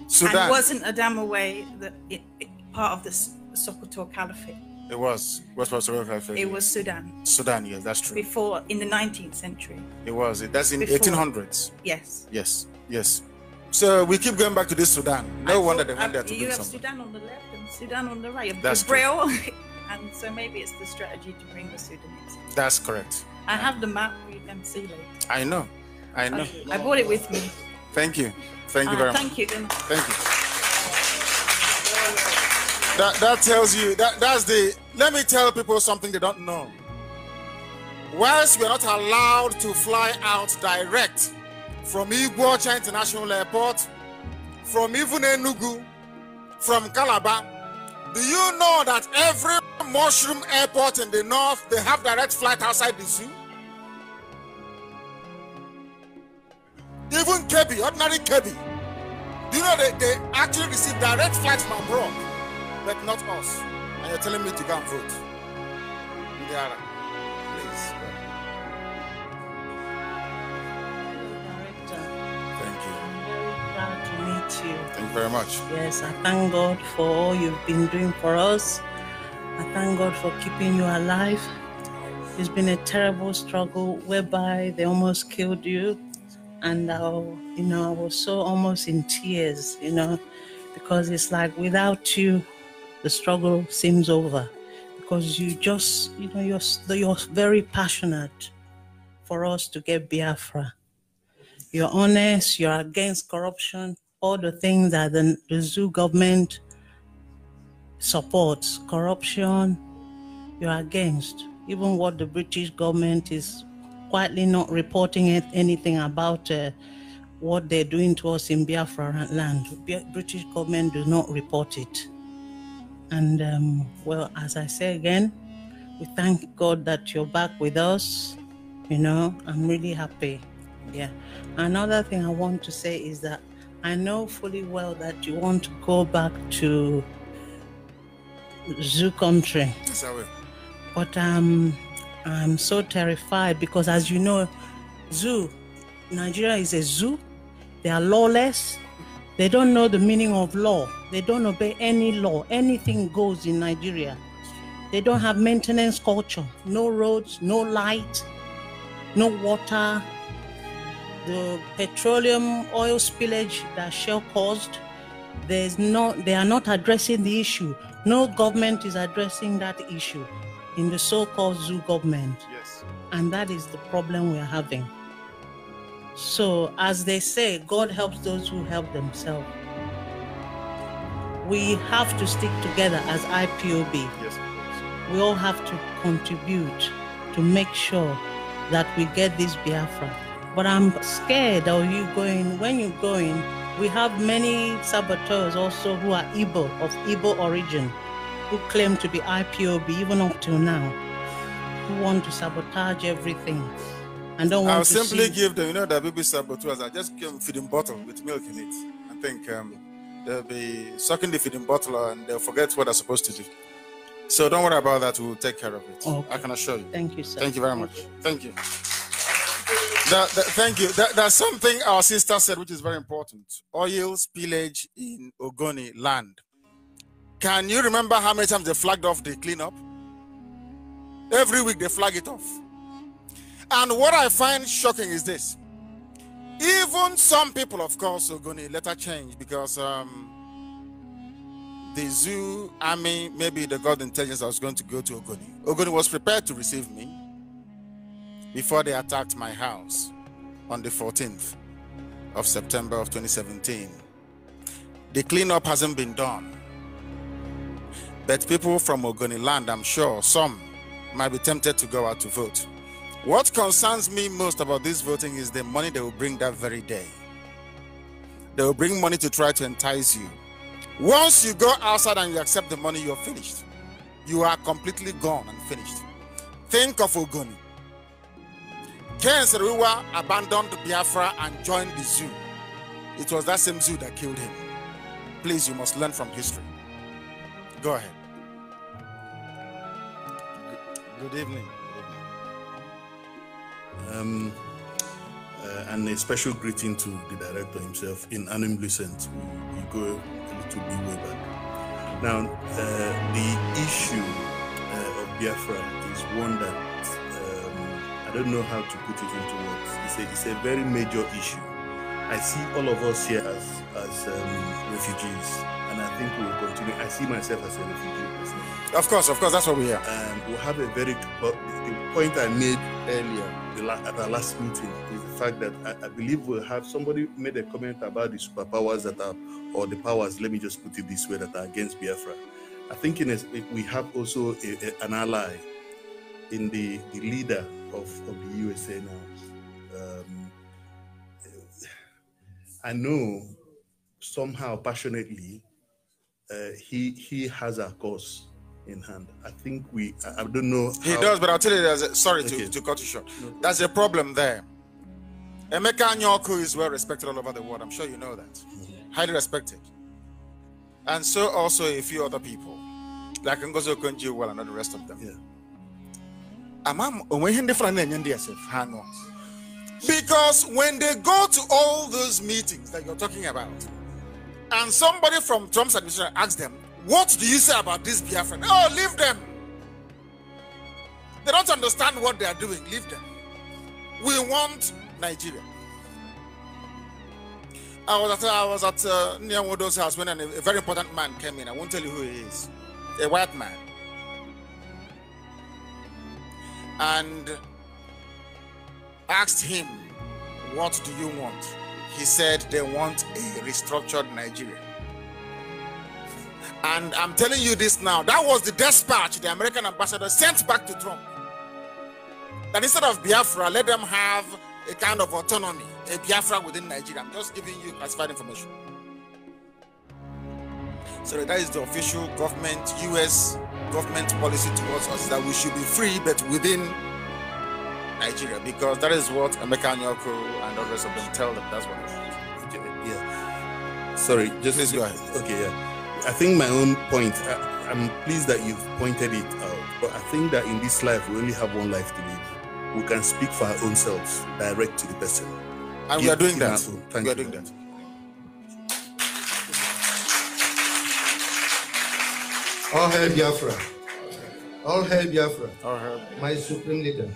Sudan. And wasn't Adamawa the it, it, part of the Sokoto Caliphate. It was. What was Sokoto Caliphate? It was Sudan. Sudan, yes, that's true. Before, in the 19th century. It was. That's in Before, 1800s. Yes. Yes. Yes. So we keep going back to this Sudan. No I wonder they went there uh, to You have Sudan on the left and Sudan on the right. That's Braille. [LAUGHS] and so maybe it's the strategy to bring the Sudanese. That's correct. I have the map. We can see later. I know. I know. Okay. I brought it with me. Thank you. Thank you uh, very thank much. You. Thank you. Thank you. That that tells you that that's the let me tell people something they don't know. Whilst we're not allowed to fly out direct from Iguacha International Airport, from even Enugu, from Calabar, do you know that every mushroom airport in the north they have direct flight outside the zoo? Even Kebi, ordinary Kebi, do you know they, they actually receive direct flights from abroad? but not us. And you're telling me to go and vote. Ndiara, please. Director, thank you. I'm very proud to meet you. Thank you very much. Yes, I thank God for all you've been doing for us. I thank God for keeping you alive. It's been a terrible struggle whereby they almost killed you. And I, you know, I was so almost in tears, you know, because it's like without you, the struggle seems over because you just, you know, you're, you're very passionate for us to get Biafra. You're honest, you're against corruption, all the things that the, the zoo government supports, corruption, you're against. Even what the British government is quietly not reporting it, anything about uh, what they're doing to us in Biafra land. The British government does not report it. And um, well, as I say again, we thank God that you're back with us. You know, I'm really happy. Yeah. Another thing I want to say is that I know fully well that you want to go back to zoo country. Yes, I will. But um, I'm so terrified because, as you know, zoo, Nigeria is a zoo. They are lawless. They don't know the meaning of law. They don't obey any law. Anything goes in Nigeria. They don't have maintenance culture. No roads, no light, no water. The petroleum oil spillage that Shell caused, there's not, they are not addressing the issue. No government is addressing that issue in the so called zoo government. Yes. And that is the problem we are having. So, as they say, God helps those who help themselves. We have to stick together as IPOB. Yes, we all have to contribute to make sure that we get this Biafra. But I'm scared of you going, when you're going, we have many saboteurs also who are Ibo of Ibo origin, who claim to be IPOB even up till now, who want to sabotage everything and don't I'll simply see... give them, you know, the baby saboteurs. I just give them feeding bottle with milk in it. I think um, they'll be sucking the feeding bottle and they'll forget what they're supposed to do. So don't worry about that. We'll take care of it. Okay. I can assure you. Thank you, sir. Thank you very much. Thank you. That, that, thank you. That, that's something our sister said, which is very important. Oil spillage in Ogoni land. Can you remember how many times they flagged off the cleanup? Every week they flag it off. And what I find shocking is this even some people, of course, are going to later change because um, the zoo army, maybe the god intelligence, I was going to go to Ogoni. Ogoni was prepared to receive me before they attacked my house on the 14th of September of 2017. The cleanup hasn't been done. But people from Ogoni land, I'm sure some might be tempted to go out to vote. What concerns me most about this voting is the money they will bring that very day. They will bring money to try to entice you. Once you go outside and you accept the money, you're finished. You are completely gone and finished. Think of Ogoni. Ken Seriwa abandoned Biafra and joined the zoo. It was that same zoo that killed him. Please, you must learn from history. Go ahead. Good evening. Um, uh, and a special greeting to the director himself in Animlucent. We, we go a little bit way back. Now, uh, the issue uh, of Biafra is one that um, I don't know how to put it into words. It's a, it's a very major issue. I see all of us here as, as um, refugees, and I think we will continue. I see myself as a refugee. Of course, of course, that's what we hear. And we have a very the point I made earlier the at our last meeting is the fact that I, I believe we'll have somebody made a comment about the superpowers that are, or the powers, let me just put it this way, that are against Biafra. I think in a, we have also a, a, an ally in the, the leader of, of the USA now. Um, I know somehow passionately uh, he he has a cause in hand. I think we, I don't know. He does, but I'll tell you, there's a, sorry okay. to, to cut you short. No. There's a problem there. Emeka Nyoku is well respected all over the world. I'm sure you know that. Mm-hmm. Highly respected. And so also a few other people, like Ngozi Okonjo-Iweala and all the rest of them. Yeah. Because when they go to all those meetings that you're talking about, and somebody from Trump's administration asks them, what do you say about this Biafran? Oh, leave them. They don't understand what they are doing. Leave them. We want Nigeria. I was at I was at uh, house when a, a very important man came in. I won't tell you who he is. A white man. And asked him, "What do you want?" He said, "They want a restructured Nigeria." And I'm telling you this now. That was the dispatch the American ambassador sent back to Trump. That instead of Biafra, let them have a kind of autonomy, a Biafra within Nigeria. I'm just giving you classified information. So that is the official government, US government policy towards us that we should be free, but within Nigeria, because that is what America Nyoko and others of them tell them. That's what. Yeah. Sorry, just please go ahead. Okay, yeah. I think my own point, I, am pleased that you've pointed it out, but I think that in this life, we only have one life to live. We can speak for our own selves, direct to the person. And Give, we are doing that. Thank we are doing that. All hail Biafra. All hail Biafra. All hail. My supreme leader.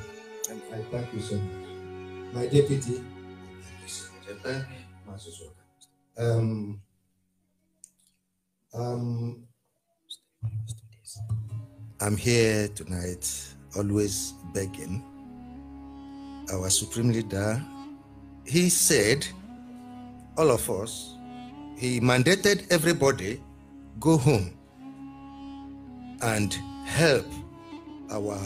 And I thank you so much. My deputy. Um, um, I'm here tonight, always begging our supreme leader. He said, all of us, he mandated everybody go home and help our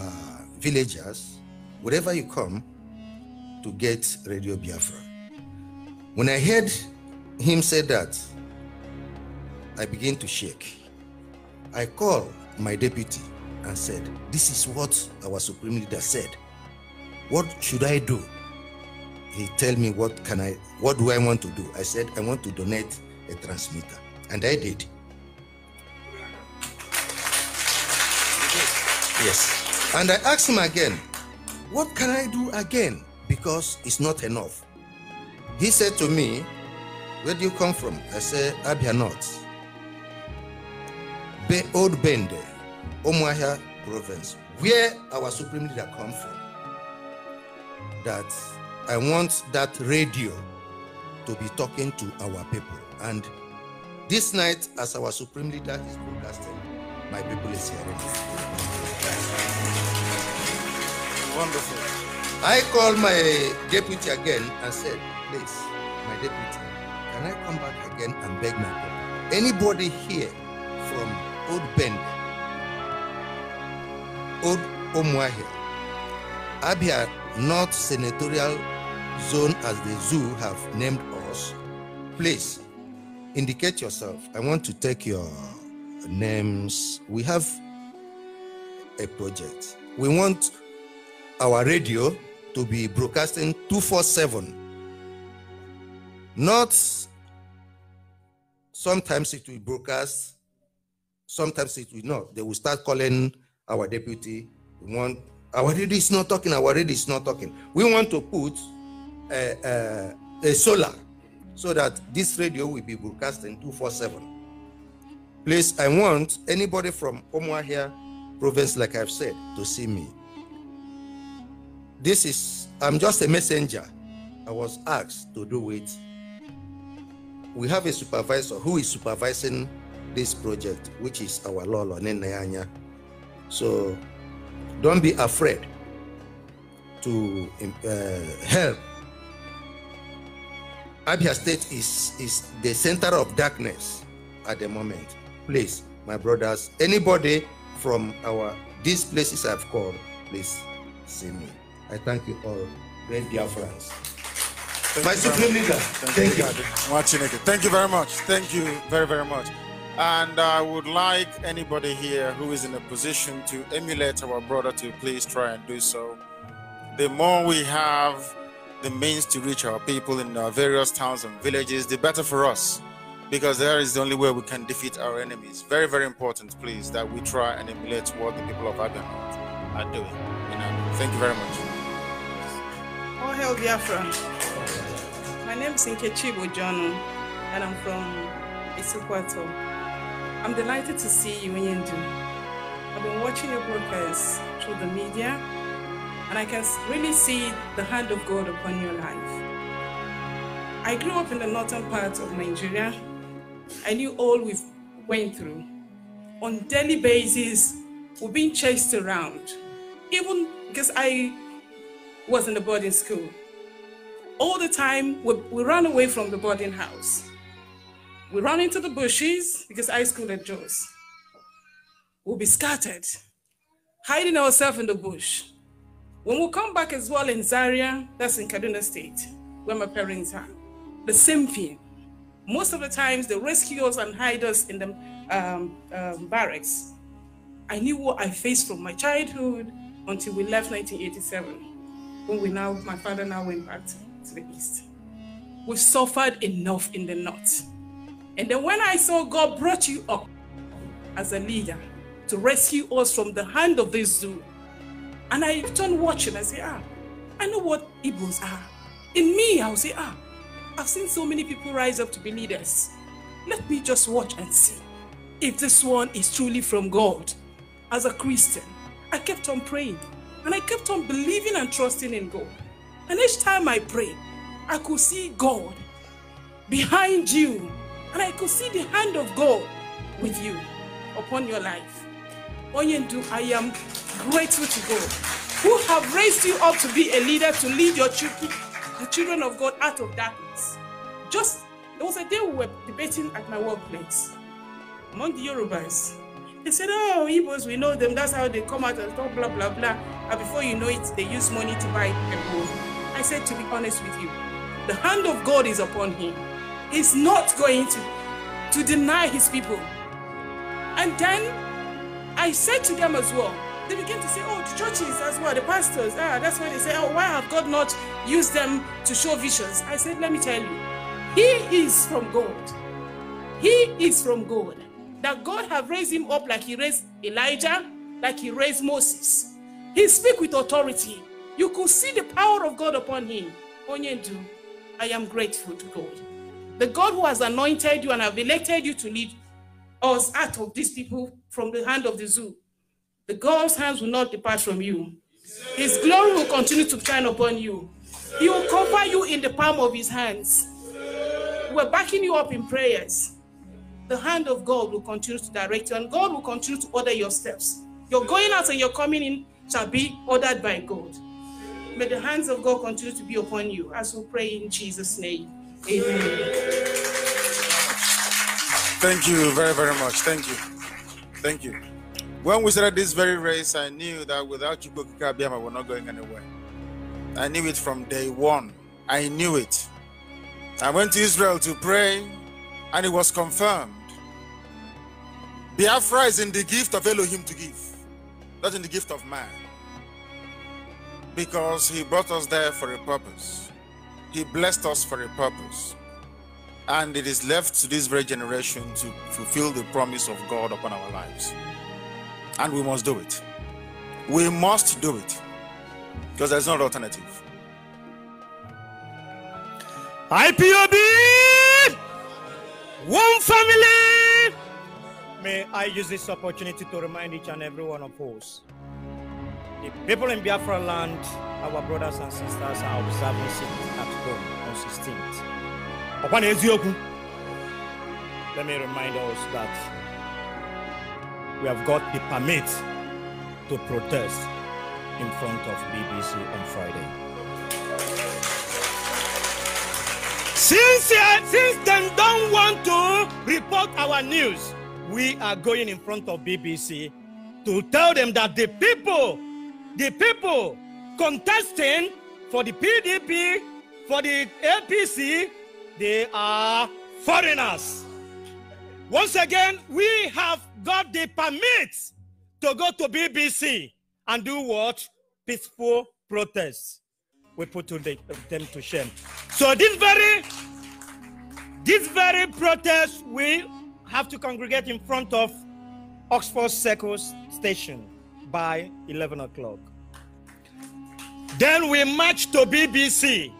villagers, wherever you come, to get Radio Biafra. When I heard him say that, I began to shake. I called my deputy and said, This is what our supreme leader said. What should I do? He tell me what can I what do I want to do? I said, I want to donate a transmitter. And I did. Yes. And I asked him again, what can I do again? Because it's not enough. He said to me, Where do you come from? I said, Abia North. Old Bende, Omuahia province, where our supreme leader come from, that I want that radio to be talking to our people. And this night, as our supreme leader is broadcasting, my people is hearing. Wonderful. I called my deputy again and said, please, my deputy, can I come back again and beg my people? Anybody here from Udben, Ud Omwahi, Abia North Senatorial Zone as the zoo have named us. Please indicate yourself. I want to take your names. We have a project. We want our radio to be broadcasting 247. Not sometimes it will broadcast sometimes it will not. They will start calling our deputy. We want our radio is not talking. Our radio is not talking. We want to put a, eh, a, eh, a solar so that this radio will be broadcasting 247. Please, I want anybody from here, province, like I've said, to see me. This is, I'm just a messenger. I was asked to do it. We have a supervisor who is supervising this project, which is our Lolo Nenayanya. So don't be afraid to um, uh, help. Abia State is, is the center of darkness at the moment. Please, my brothers, anybody from our these places I've called, please see me. I thank you all, great dear friends. Thank my supreme leader, thank, thank you. you. Thank you very much. Thank you very, very much. And I would like anybody here who is in a position to emulate our brother to please try and do so. The more we have the means to reach our people in our various towns and villages, the better for us, because there is the only way we can defeat our enemies. Very, very important, please, that we try and emulate what the people of Abian are doing. You know, thank you very much. Oh, hell, Biafra. My name is Nkechi Bojono, and I'm from Isukwato. I'm delighted to see you, Nyendu. I've been watching your progress through the media, and I can really see the hand of God upon your life. I grew up in the northern part of Nigeria. I knew all we went through. On daily basis, we are being chased around. Even because I was in the boarding school. All the time, we, we ran away from the boarding house. We run into the bushes because I school at Joe's. We'll be scattered, hiding ourselves in the bush. When we come back as well in Zaria, that's in Kaduna State, where my parents are, the same thing. Most of the times, they rescue us and hide us in the um, um, barracks. I knew what I faced from my childhood until we left 1987, when we now, my father now went back to, to the East. We've suffered enough in the North. And then when I saw God brought you up as a leader to rescue us from the hand of this zoo, and I turned watching, I say, ah, I know what Igbos are. In me, I'll say, ah, I've seen so many people rise up to be leaders. Let me just watch and see if this one is truly from God. As a Christian, I kept on praying and I kept on believing and trusting in God. And each time I prayed, I could see God behind you and I could see the hand of God with you upon your life. Oyendu, I am grateful to God who have raised you up to be a leader to lead your children, the children of God out of darkness. Just there was a day we were debating at my workplace among the Yorubas. They said, Oh, Igbos, we know them, that's how they come out and talk, blah, blah, blah. And before you know it, they use money to buy people. I said, To be honest with you, the hand of God is upon him is not going to, to deny his people. And then I said to them as well, they begin to say, oh, the churches as well, the pastors, ah, that's why they say, oh, why have God not used them to show visions? I said, let me tell you, he is from God. He is from God. That God have raised him up like he raised Elijah, like he raised Moses. He speak with authority. You could see the power of God upon him. I am grateful to God. The God who has anointed you and have elected you to lead us out of these people from the hand of the zoo, the God's hands will not depart from you. His glory will continue to shine upon you. He will cover you in the palm of his hands. We're backing you up in prayers. The hand of God will continue to direct you, and God will continue to order your steps. Your going out and your coming in shall be ordered by God. May the hands of God continue to be upon you as we pray in Jesus' name. Thank you very, very much. Thank you. Thank you. When we started this very race, I knew that without Chukwuka Biama, we're not going anywhere. I knew it from day one. I knew it. I went to Israel to pray, and it was confirmed. Biafra is in the gift of Elohim to give, not in the gift of man. Because he brought us there for a purpose. He blessed us for a purpose. And it is left to this very generation to fulfill the promise of God upon our lives. And we must do it. We must do it because there's no alternative. IPOB, one family. May I use this opportunity to remind each and every one of us the people in Biafra land, our brothers and sisters, are observing Sitting at home on 16th. Upon Ezioku, let me remind us that we have got the permit to protest in front of BBC on Friday. Since, uh, since they don't want to report our news, we are going in front of BBC to tell them that the people the people contesting for the PDP, for the APC, they are foreigners. Once again, we have got the permit to go to BBC and do what? Peaceful protests. We put them to shame. So this very, this very protest, we have to congregate in front of Oxford Circus Station by 11 o'clock. Then we march to BBC.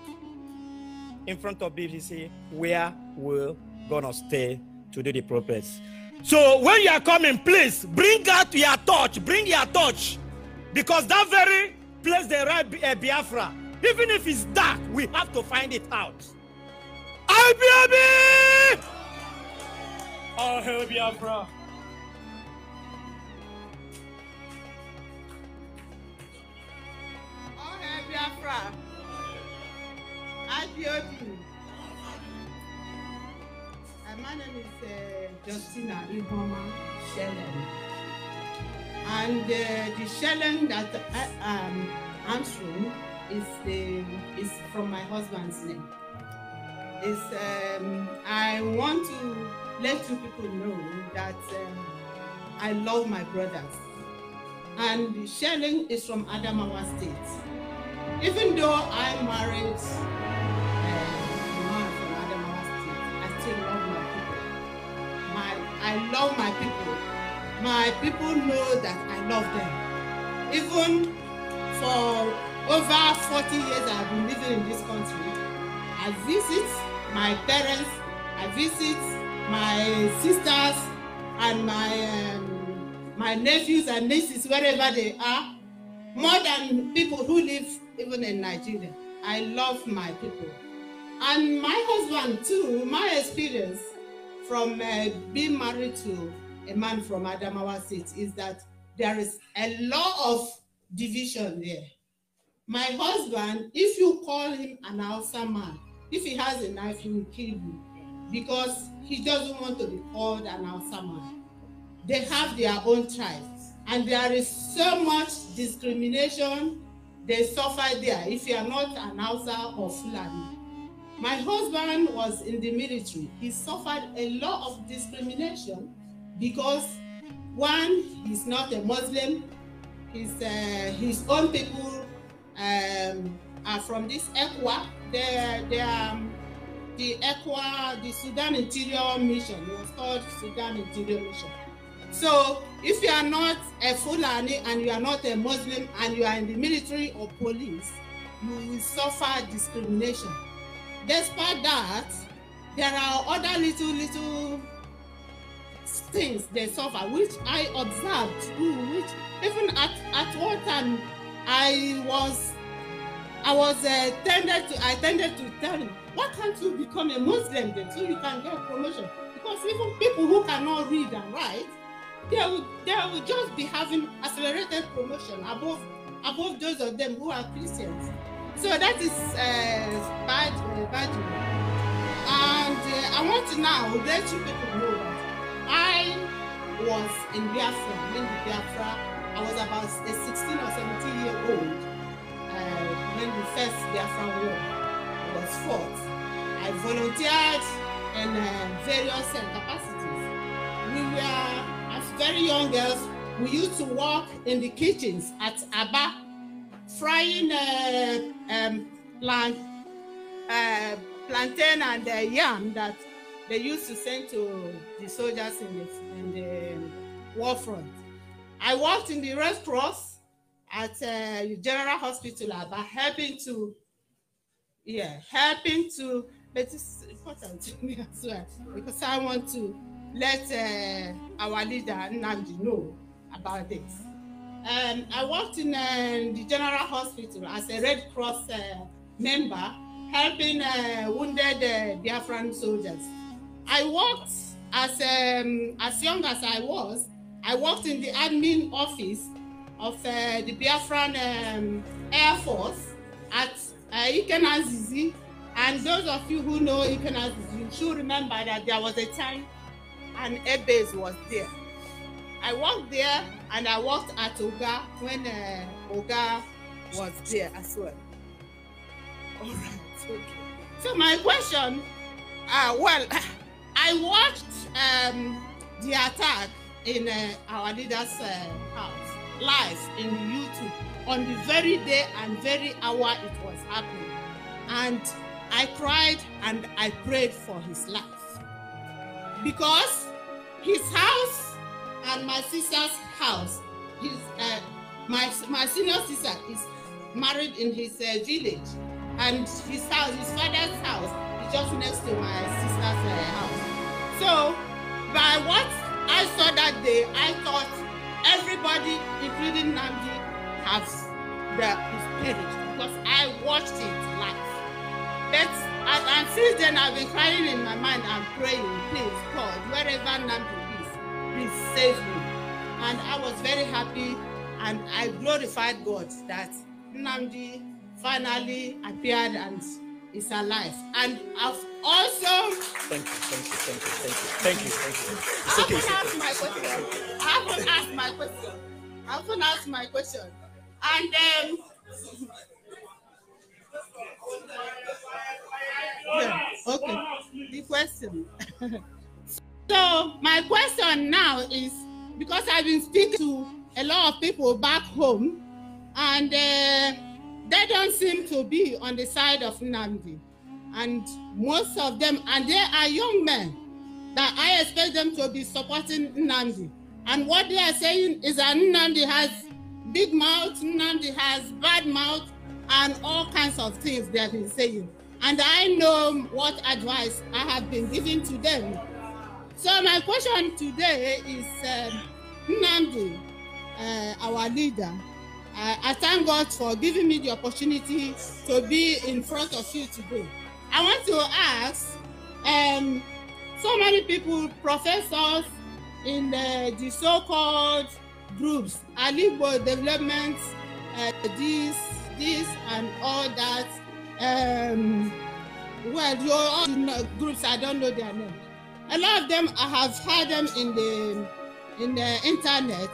In front of BBC, where we're gonna stay to do the purpose. So when you are coming, please bring out your torch. Bring your torch, because that very place they write eh, Biafra. Even if it's dark, we have to find it out. IBAB! I'll help Biafra. Biafra, IPOB. And my name is uh, Justina Iboma Shellen. And uh, the Shellen that I, uh, um, am answering is, the, um, is from my husband's name. Is um, I want to let you people know that um, I love my brothers. And Shelling is from Adamawa State. Even though I married uh, I still love my people. My, I love my people. My people know that I love them. Even for over 40 years I've been living in this country, I visit my parents, I visit my sisters and my um, my nephews and nieces wherever they are, more than people who live even in Nigeria. I love my people. And my husband too, my experience from uh, being married to a man from Adamawa State is that there is a lot of division there. My husband, if you call him an Alsa man, if he has a knife, he will kill you because he doesn't want to be called an Alsa man. They have their own tribes and there is so much discrimination they suffer there if you are not an Hausa or Fulani. My husband was in the military. He suffered a lot of discrimination because one, he's not a Muslim. His, uh, his own people um, are from this Equa. They, they are um, the Equa, the Sudan Interior Mission. It was called Sudan Interior Mission. So if you are not a Fulani and you are not a Muslim and you are in the military or police, you will suffer discrimination. Despite that, there are other little, little things they suffer, which I observed too, which even at, at one time I was I was uh, tended to I tended to tell him, why can't you become a Muslim then so you can get promotion? Because even people who cannot read and write they will, they will just be having accelerated promotion above above those of them who are Christians. So that is uh, bad, uh, bad. And uh, I want to now let you people know that I was in Biafra, when Biafra, I was about a 16 or 17 year old uh, when the first Biafra war was fought. I volunteered in uh, various uh, capacities. We were very young girls, we used to work in the kitchens at Abba, frying uh, um, plant, uh, plantain and uh, yam that they used to send to the soldiers in the, in the um, war front. I worked in the Red Cross at uh, General Hospital Abba, helping to, yeah, helping to, but it's important to me as well because I want to let uh, our leader Nandi know about this. Um, I worked in uh, the General Hospital as a Red Cross uh, member, helping uh, wounded uh, Biafran soldiers. I worked as, um, as young as I was, I worked in the admin office of uh, the Biafran um, Air Force at uh, Ikenazizi. And those of you who know Ikenazizi, you should remember that there was a time and Ebes was there. I walked there and I walked at Oga when uh, Oga was there as well. All right, okay. So my question, uh, well, [LAUGHS] I watched um, the attack in uh, our leader's uh, house live in YouTube on the very day and very hour it was happening. And I cried and I prayed for his life because his house and my sister's house. His, uh, my, my senior sister is married in his uh, village, and his house, his father's house, is just next to my sister's uh, house. So, by what I saw that day, I thought everybody, including Namdi, has, the, is perished because I watched it live. But and, and since then, I've been crying in my mind and praying, please, God, wherever Nambu is, please save me. And I was very happy and I glorified God that Namdi finally appeared and is alive. And I've also. Thank you, thank you, thank you, thank you, thank you, thank you. It's I often ask my question. I often ask my question. I often ask my question. And um, yeah. Okay. The question. [LAUGHS] so my question now is because I've been speaking to a lot of people back home, and uh, they don't seem to be on the side of Nandi, and most of them, and they are young men that I expect them to be supporting Nandi, and what they are saying is that Nandi has big mouth, Nandi has bad mouth, and all kinds of things they have been saying. and I know what advice I have been giving to them. So my question today is um, uh, our leader. I, I thank God for giving me the opportunity to be in front of you today. I want to ask, um, so many people, professors in uh, the so-called groups, Alibo development, uh, this, this, and all that, um, well, you all know, groups, I don't know their name. A lot of them, I have heard them in the, in the internet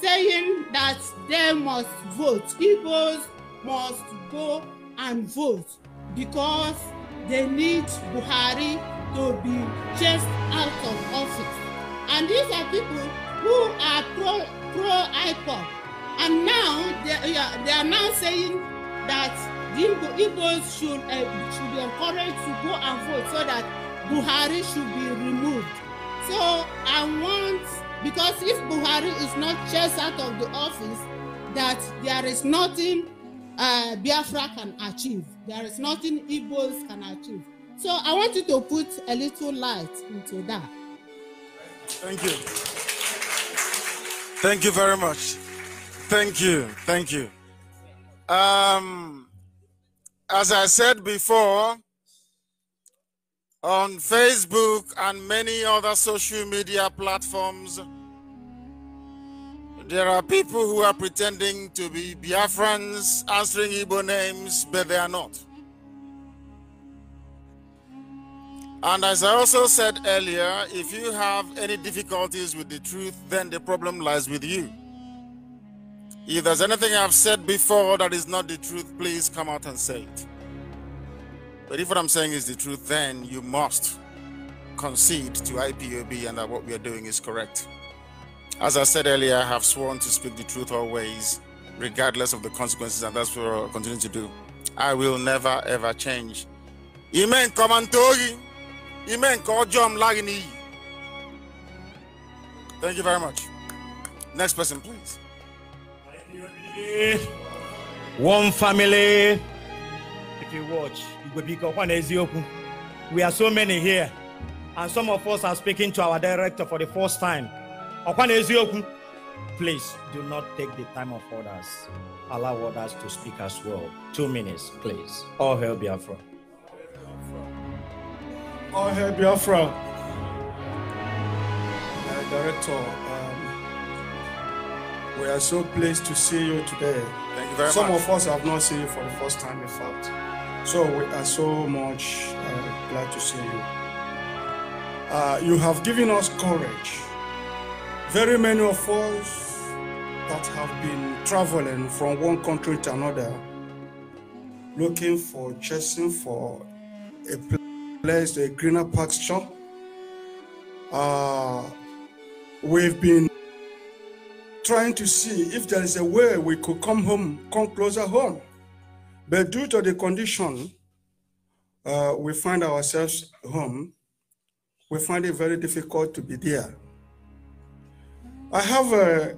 saying that they must vote. People must go and vote because they need Buhari to be chased out of office. And these are people who are pro pro IPOP. And now they, they are now saying that Igbo, Igbos should, uh, should be encouraged to go and vote so that Buhari should be removed. So I want, because if Buhari is not chased out of the office, that there is nothing uh, Biafra can achieve. There is nothing Igbos can achieve. So I want you to put a little light into that. Thank you. Thank you very much. Thank you. Thank you. Um, As I said before, on Facebook and many other social media platforms, there are people who are pretending to be Biafrans answering Igbo names, but they are not. And as I also said earlier, if you have any difficulties with the truth, then the problem lies with you. If there's anything I've said before that is not the truth, please come out and say it. But if what I'm saying is the truth, then you must concede to IPOB and that what we are doing is correct. As I said earlier, I have sworn to speak the truth always, regardless of the consequences, and that's what I'll continue to do. I will never ever change. Amen. Come and Amen. Call Lagini. Thank you very much. Next person, please one family. If you watch, we are so many here, and some of us are speaking to our director for the first time. Please do not take the time of others. Allow others to speak as well. Two minutes, please. All hail Biafra. All hail Biafra. director, we are so pleased to see you today. Thank you very Some much. Some of us have not seen you for the first time, in fact. So we are so much uh, glad to see you. Uh, you have given us courage. Very many of us that have been traveling from one country to another, looking for, chasing for a place, a greener pasture. Uh, we've been trying to see if there is a way we could come home, come closer home. But due to the condition uh, we find ourselves home, we find it very difficult to be there. I have a,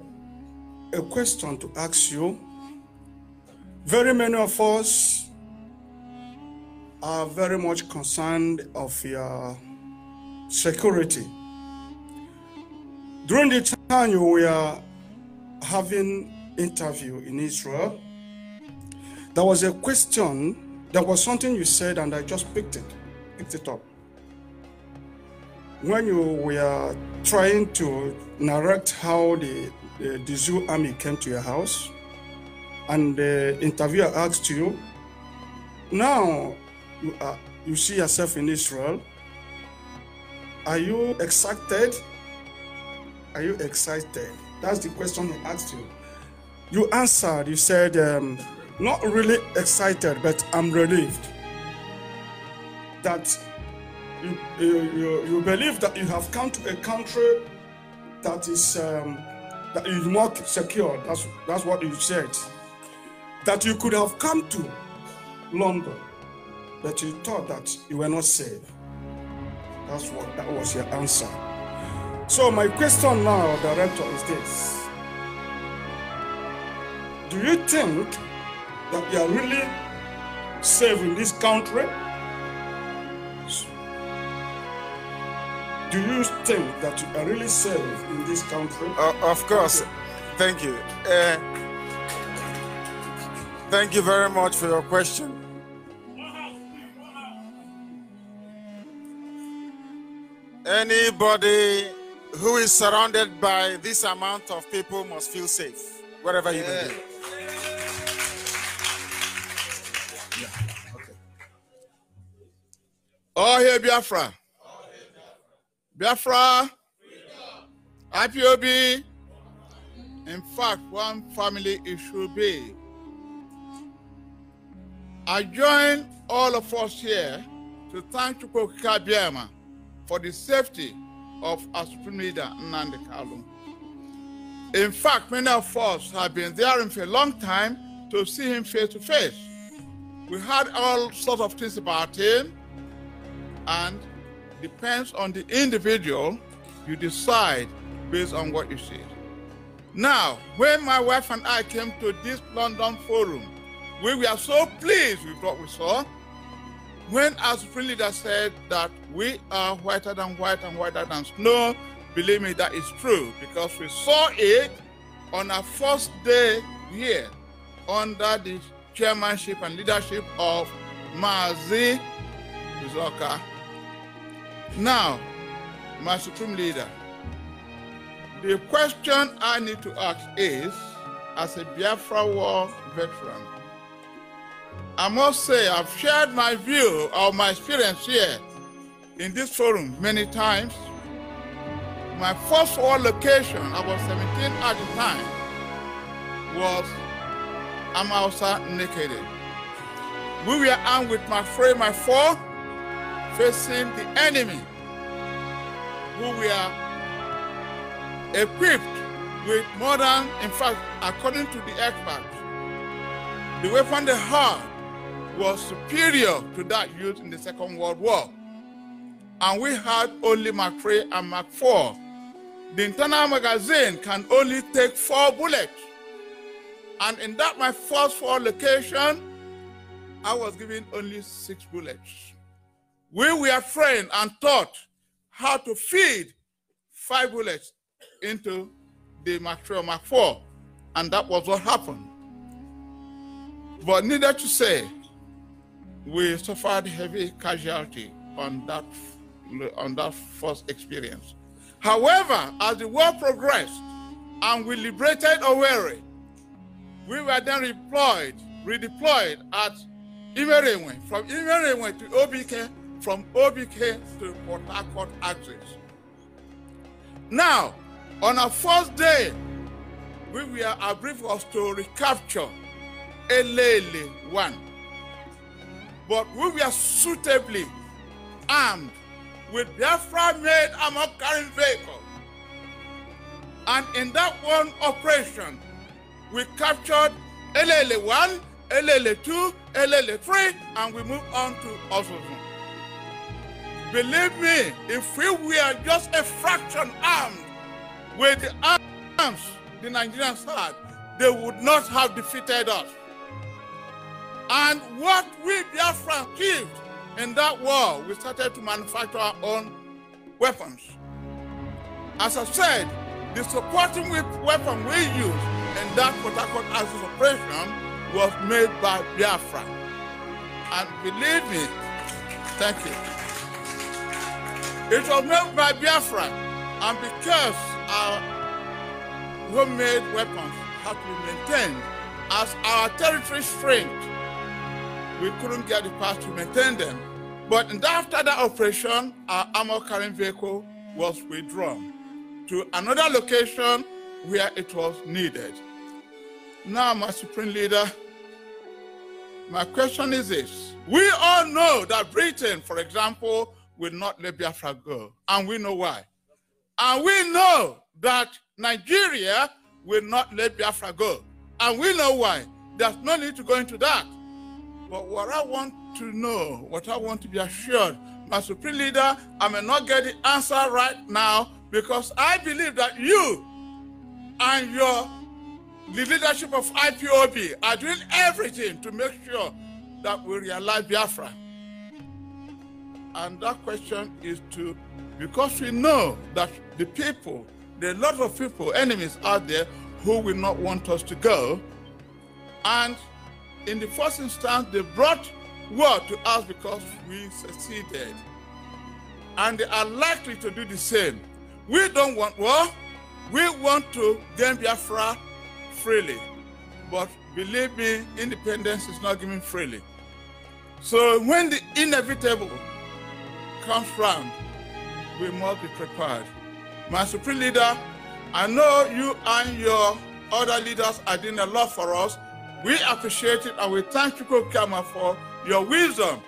a question to ask you. Very many of us are very much concerned of your security. During the time you were having interview in Israel, there was a question, there was something you said, and I just picked it, picked it up. When you were trying to narrate how the, the, the zoo army came to your house, and the interviewer asked you, now you, are, you see yourself in Israel, are you excited? Are you excited? That's the question I asked you. You answered, you said, um, not really excited, but I'm relieved that you, you, you believe that you have come to a country that is um, that is more secure. That's that's what you said. That you could have come to London, but you thought that you were not safe. That's what that was your answer. So my question now, Director, is this. Do you think that we are really saving this country? Do you think that you are really safe in this country? Uh, of course. Thank you. Uh, thank you very much for your question. Anybody who is surrounded by this amount of people must feel safe wherever you yeah. may be. Yeah. Okay. All oh, here, Biafra. Biafra. IPOB. In fact, one family it should be. I join all of us here to thank Chukwuka Biama for the safety of our Supreme Leader, Nnamdi Kalu. In fact, many of us have been there for a long time to see him face to face. We heard all sorts of things about him, and depends on the individual, you decide based on what you see. Now, when my wife and I came to this London forum, we were so pleased with what we saw when our supreme leader said that we are whiter than white and whiter than snow, believe me, that is true because we saw it on our first day here under the chairmanship and leadership of Mazi Bizoka. Now, my supreme leader, the question I need to ask is, as a Biafra war veteran, I must say, I've shared my view of my experience here in this forum many times. My first war location, I was 17 at the time, was Amausa Naked. We were armed with my frame, my four, facing the enemy, who we were equipped with modern, in fact, according to the experts, the weapon they had was superior to that used in the Second World War. And we had only Mark III and Mark 4. The internal magazine can only take four bullets. And in that my first four location, I was given only six bullets. We were trained and taught how to feed five bullets into the Mark 4, or Mark 4. And that was what happened. But needless to say, we suffered heavy casualty on that on that first experience. However, as the war progressed and we liberated Owerri, we were then deployed, redeployed at Imerewe, from Imerewe to OBK, from OBK to Port Harcourt axis. Now, on our first day, we were, our brief was to recapture Elele 1. But we were suitably armed with Biafra made armor carrying vehicle. And in that one operation, we captured lla 1, lla 2, lla 3, and we moved on to Osozun. Believe me, if we were just a fraction armed with the arms the Nigerians had, they would not have defeated us. And what we Biafra achieved in that war, we started to manufacture our own weapons. As I said, the supporting weapon we used in that Port Harcourt operation was made by Biafra. And believe me, thank you. It was made by Biafra, and because our homemade weapons had to be maintained as our territory strength we couldn't get the parts to maintain them. But after that operation, our armor carrying vehicle was withdrawn to another location where it was needed. Now, my Supreme Leader, my question is this. We all know that Britain, for example, will not let Biafra go, and we know why. And we know that Nigeria will not let Biafra go, and we know why. There's no need to go into that. But what I want to know, what I want to be assured, my supreme leader, I may not get the answer right now because I believe that you and your the leadership of IPOB are doing everything to make sure that we realize Biafra. And that question is to, because we know that the people, there are a lot of people, enemies out there who will not want us to go. And in the first instance, they brought word to us because we succeeded. And they are likely to do the same. We don't want war. We want to gain Biafra freely. But believe me, independence is not given freely. So when the inevitable comes round, we must be prepared. My Supreme Leader, I know you and your other leaders are doing a lot for us we appreciate it and we thank you, Kokama, for your wisdom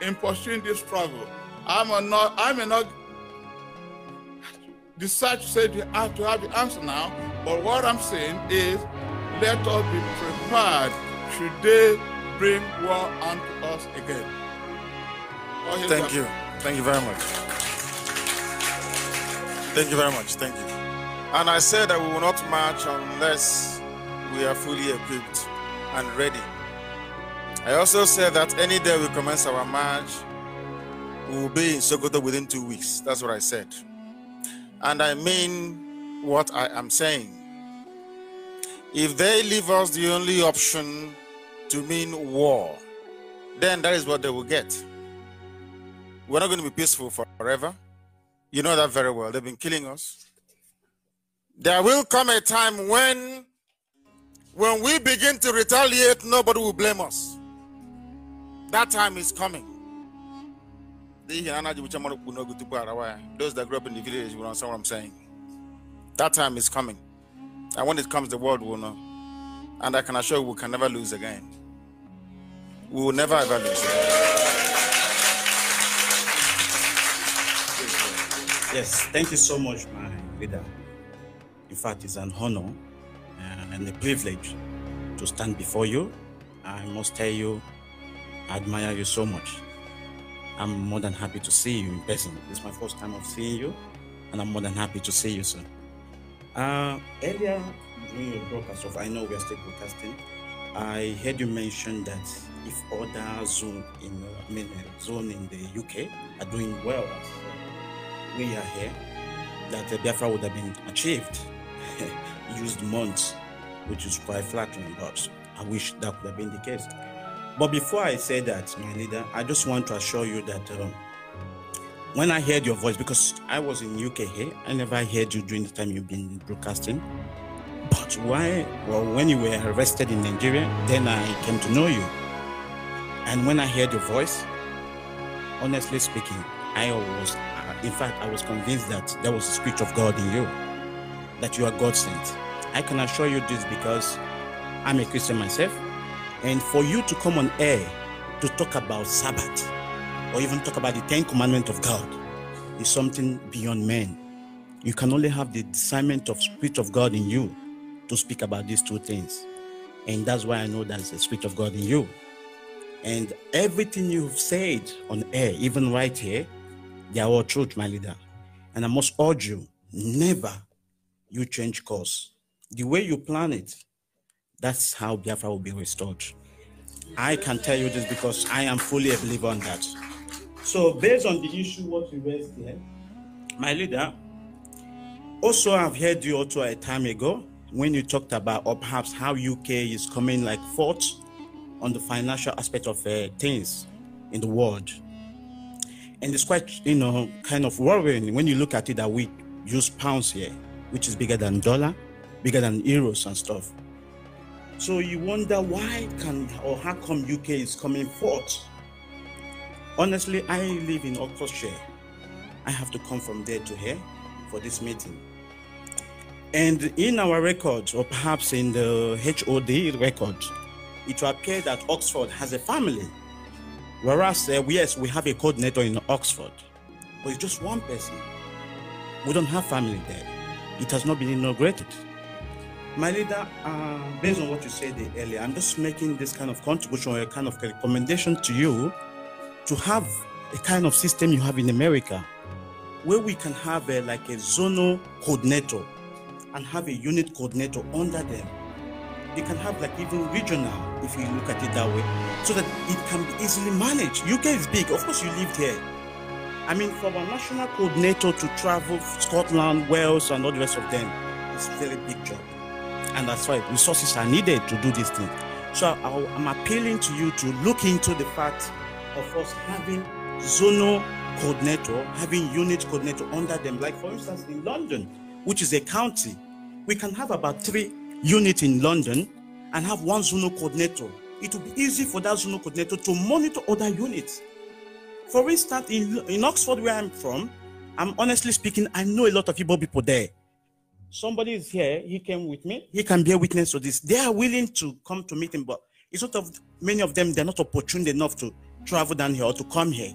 in pursuing this struggle. I'm not, I may not decide to say you have to have the answer now, but what I'm saying is let us be prepared should they bring war unto us again. Thank you. Thank you very much. Thank you very much. Thank you. And I said that we will not march unless we are fully equipped and ready. I also said that any day we commence our march, we will be in Sokoto within two weeks. That's what I said. And I mean what I am saying. If they leave us the only option to mean war, then that is what they will get. We're not going to be peaceful forever. You know that very well. They've been killing us. There will come a time when when we begin to retaliate, nobody will blame us. That time is coming. Those that grew up in the village will understand what I'm saying. That time is coming. And when it comes, the world will know. And I can assure you, we can never lose again. We will never ever lose again. Yes, thank you so much, my leader. In fact, it's an honor and the privilege to stand before you. I must tell you, I admire you so much. I'm more than happy to see you in person. It's my first time of seeing you, and I'm more than happy to see you soon. Uh, earlier during your broadcast of I Know We Are Still Broadcasting, I heard you mention that if other zone in I mean uh, zone in the UK are doing well as we are here, that the Biafra would have been achieved [LAUGHS] used months which is quite flattering, but I wish that could have been the case. But before I say that, my leader, I just want to assure you that um, when I heard your voice, because I was in UK here, I never heard you during the time you've been broadcasting. But why? Well, when you were arrested in Nigeria, then I came to know you. And when I heard your voice, honestly speaking, I was, uh, in fact, I was convinced that there was a spirit of God in you, that you are God sent. I can assure you this because I'm a Christian myself. And for you to come on air to talk about Sabbath or even talk about the Ten Commandments of God is something beyond man. You can only have the discernment of Spirit of God in you to speak about these two things. And that's why I know there's a Spirit of God in you. And everything you've said on air, even right here, they are all truth, my leader. And I must urge you, never you change course the way you plan it, that's how Biafra will be restored. I can tell you this because I am fully a believer on that. So, based on the issue what we raised here, my leader, also I've heard you also a time ago when you talked about or perhaps how UK is coming like fourth on the financial aspect of uh, things in the world. And it's quite, you know, kind of worrying when you look at it that we use pounds here, which is bigger than dollar bigger than euros and stuff. So you wonder why can or how come UK is coming forth? Honestly, I live in Oxfordshire. I have to come from there to here for this meeting. And in our records, or perhaps in the HOD record, it will appear that Oxford has a family. Whereas, uh, yes, we have a coordinator in Oxford, but it's just one person. We don't have family there. It has not been inaugurated. My leader, uh, based on what you said earlier, I'm just making this kind of contribution or a kind of recommendation to you to have a kind of system you have in America where we can have a, like a zonal coordinator and have a unit coordinator under them. You can have like even regional, if you look at it that way, so that it can be easily managed. UK is big, of course, you lived here. I mean, for a national coordinator to travel Scotland, Wales, and all the rest of them, it's very big job. And that's why resources are needed to do this thing. So I, am appealing to you to look into the fact of us having zonal coordinator, having unit coordinator under them. Like for instance, in London, which is a county, we can have about three units in London and have one zonal coordinator. It will be easy for that zonal coordinator to monitor other units. For instance, in, in Oxford, where I'm from, I'm honestly speaking, I know a lot of people there. Somebody is here, he came with me, he can be a witness to this. They are willing to come to meet him, but it's not of many of them, they're not opportune enough to travel down here or to come here.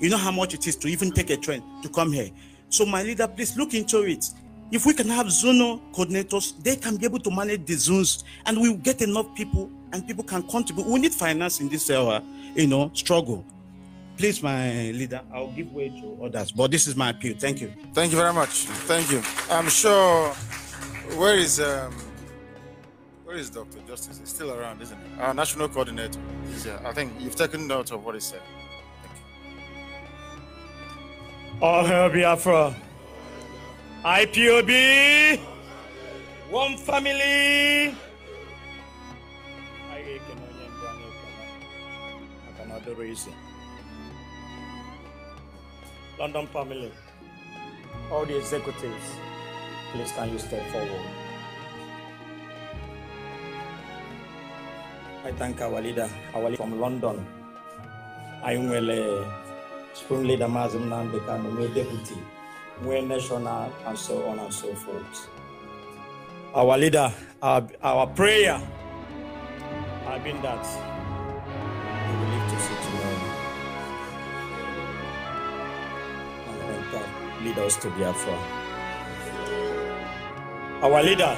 You know how much it is to even take a train to come here. So, my leader, please look into it. If we can have zonal coordinators, they can be able to manage the zones and we will get enough people and people can contribute. We need finance in this uh, you know, struggle. Please, my leader, I'll give way to others, but this is my appeal. Thank you. Thank you very much. Thank you. I'm sure. Where is um, where is Dr. Justice? He's still around, isn't he? Our national coordinator. Is here. I think you've taken note of what he said. All hail Biafra. IPOB. One family. I can only reason. London family, all the executives, please can you step forward? I thank our leader, our leader from London. I am well, spring leader Mazim Nambekan, my deputy, my national, and so on and so forth. Our leader, our, our prayer, I've been that. lead us to Biafra. Our leader,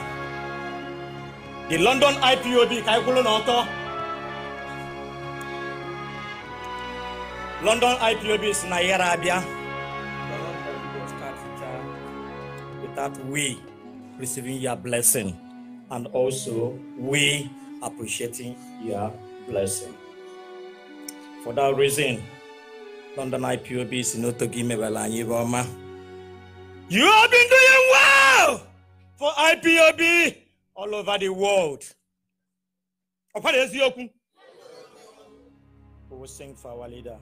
the London IPOB Kaikulu Noto. London IPOB is Nayara Abia. Without we receiving your blessing and also we appreciating your blessing. For that reason, London IPOB si n'otogo imebala anyị ebe ọma You have been doing well for IPOB all over the world. Ọ̀pọ̀lọpọ̀ eziokwu. We will sing for our leader.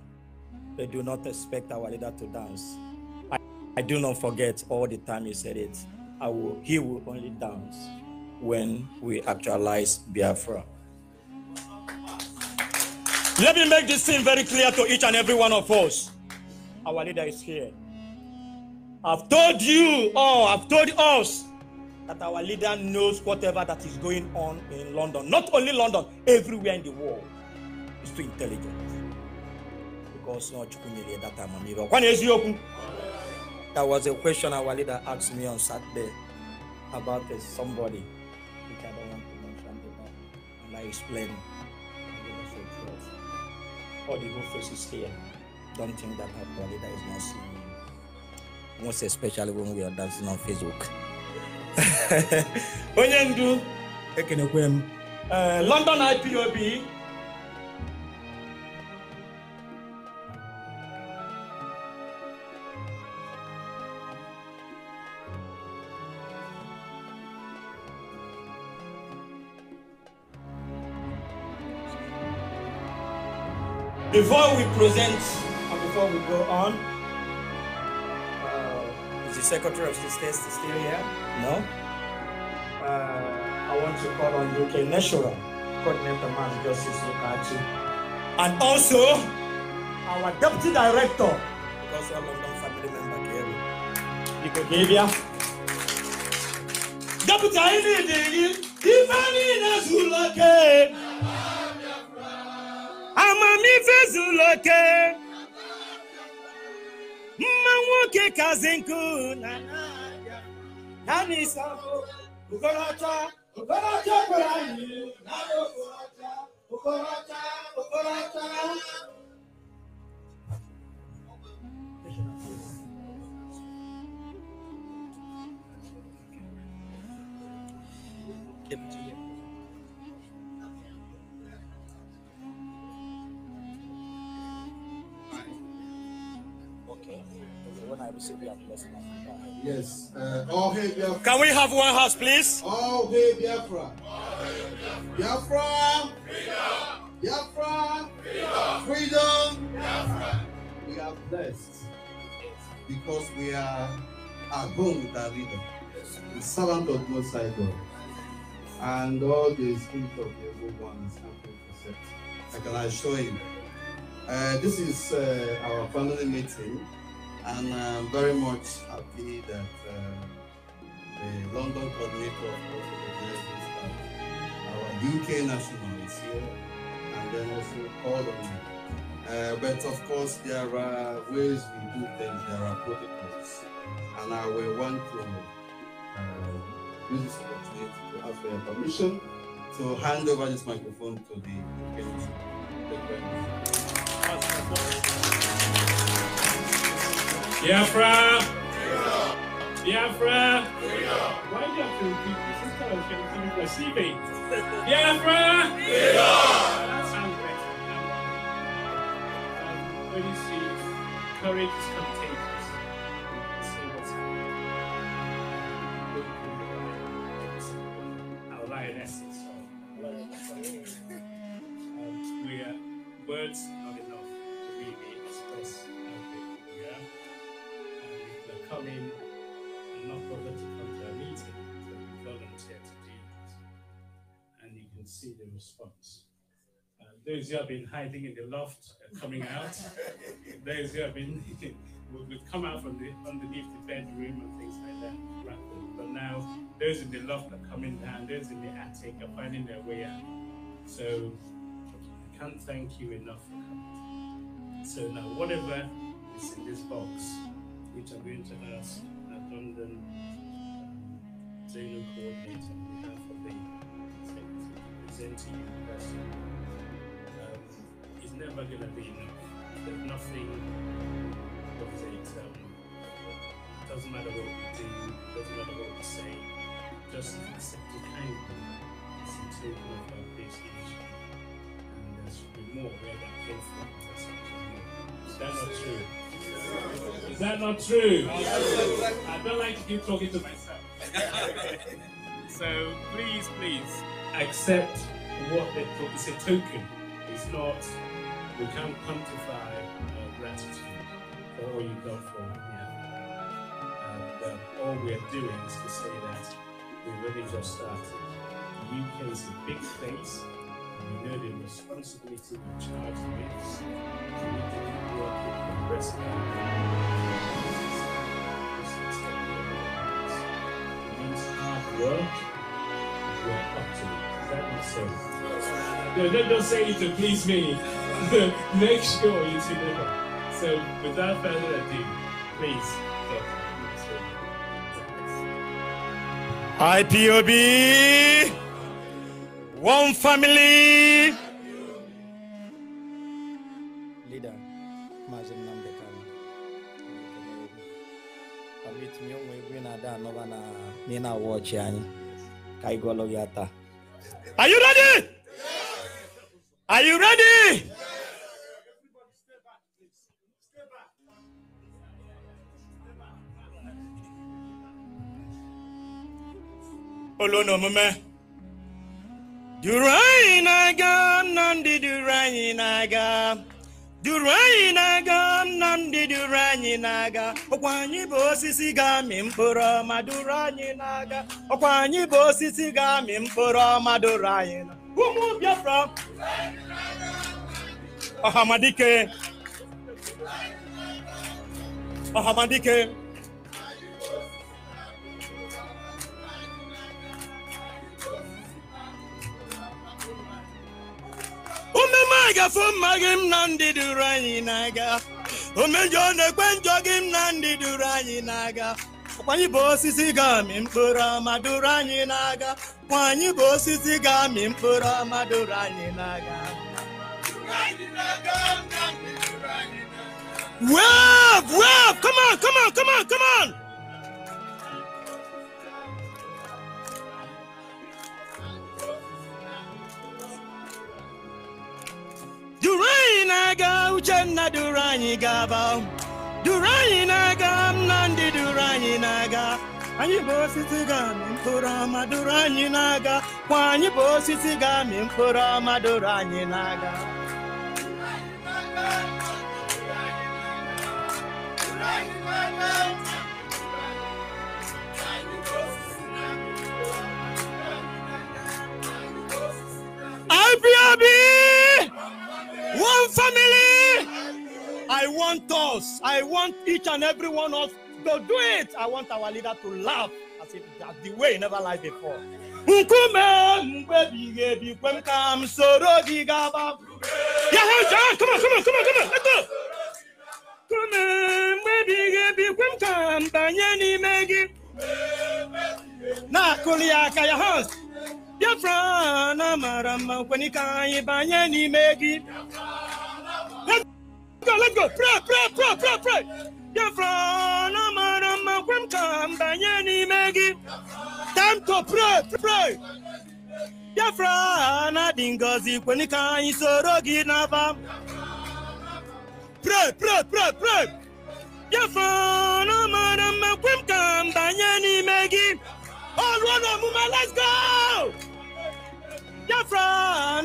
They do not expect our leader to dance. I, I do not forget all the time he said it. I will, he will only dance when we actualize Biafra. Let me make this thing very clear to each and every one of us. Our leader is here. I've told you all, I've told us that our leader knows whatever that is going on in London. Not only London, everywhere in the world. He's too intelligent. Because not Chukwunyele that time Amiro. When is you was a question our leader asked me on Saturday about uh, somebody which I don't want to mention about. And I explained. All the whole faces here don't think that our leader is not seeing. Moi, especially when we are dancing on Facebook. onye ndu ekenekwe m London IPOB Before we present and before we go on, The Secretary of State is still here? No. Uh, I want to call on UK National Coordinator Mass Justice Lukachi. And also, our Deputy Director, because one a them family member came. You could Deputy Director, Ifeanyi Zulake. Amamife Zulake nwoke kazi nkụ na na n'isa okorocha okorocha gwara anyị na Thank you. Yes. Uh, all oh, hail Biafra. Can we have one house, please? All oh, hail Biafra. Biafra. Freedom. Biafra. Freedom. Freedom. Biafra. We are blessed because we are, at home with our leader, the servant of Most High God, and all the spirit of the evil one is happy to I can assure you. Uh, this is uh, our family meeting. And uh, I'm very much happy that uh, the London coordinator of addressed our UK national is here, and then also all of me. Uh, but of course, there are ways we do things, there are protocols, and I will want to uh, use this opportunity to ask for your permission to hand over this microphone to the Kenyan. Biafra! Biafra! Why do you have to repeat this? This kind of thing is receiving. Biafra! That sounds better. when um, you see courage is contagious, see what's happening. Our lionesses. Um, we are words. see the response. Uh, those who have been hiding in the loft are uh, coming out. [LAUGHS] those who have been [LAUGHS] would, would come out from the underneath the bedroom and things like that. But now those in the loft are coming down. Those in the attic are finding their way out. So I can't thank you enough for coming. So now whatever is in this box, which I'm going to ask our London um, Zeno coordinator gives you that um, is never going to be enough. nothing of it. Um, doesn't matter what we do, doesn't matter what we say, just accept it kindly. Seems to enough about this And there should be more where that came from. Is that not true? Is that not true? I don't like to keep talking to myself. [LAUGHS] So please, please accept what they put. It's a token. It's not. We can't quantify uh, gratitude for all you've done for Biafra. Uh, but all we're doing is to say that we've really just started. The UK is a big space. We know the responsibility we charge with. we need to keep working the rest of the minds, hard work, you are up to so. No, don't, don't say it to please me. [LAUGHS] Make sure you see the So, without further ado, please. IPOB, one family. Leader, Mazin Namdekan. Permit me, we're not done, na na-awa ọchị anyị ka anyị Are you ready? Are you ready? olu na omume duru anyị na-aga na ndị aga duru anyị na-aga ndị duru anyị na-aga ọkwa anyị bụ osisi ga-amị mkpụrụ ọma duru anyị na-aga ọkwa anyị bụ osisi ga-amị mkpụrụ ọma duru anyị na ụmụ Biafra ọhamadike ọhamadike ememe a gafe mma gị m na ndị duru anyị na-aga omejọ na-ekwe njọ gị m na ndị duru anyị na-aga kwanyị bụ osisi ga-amị mkpụrụ ọma duru anyị na-aga kwanyị bụ osisi ga-amị mkpụrụ ọma duru anyị na-aga Wave, wave, come on, come on, come on, come on! duru anyị na-aga uchenna duru anyị gaba duru anyị na-aga nnamdị duru anyị na-aga anyị bụ osisi ga-amị mkpụrụ ọma duru anyị na-aga kwa anyị bụ osisi ga-amị mkpụrụ ọma duru anyị na-aga IPRB! One family. I want us. I want each and every one of us to do it. I want our leader to laugh as if that's the way he never lied before. Nkume mgbe bikwe m m soro gị gaba. come on, come on, come on, come on, let's go. Nkume mgbe bikwe m m banye n'ime gị. Na-akụli aka ya hands. biafra na mara mma nkwenye ka anyị banye n'ime gị let's go pray pray pray pray pray biafra na mara mma kwe ka m banye n'ime gị time pray pray biafra na dị ngọzi kwenye ka anyị soro gị n'aba pray pray pray pray biafra na mara mma kwe ka m banye n'ime gị ọlụọ na let's go Biafra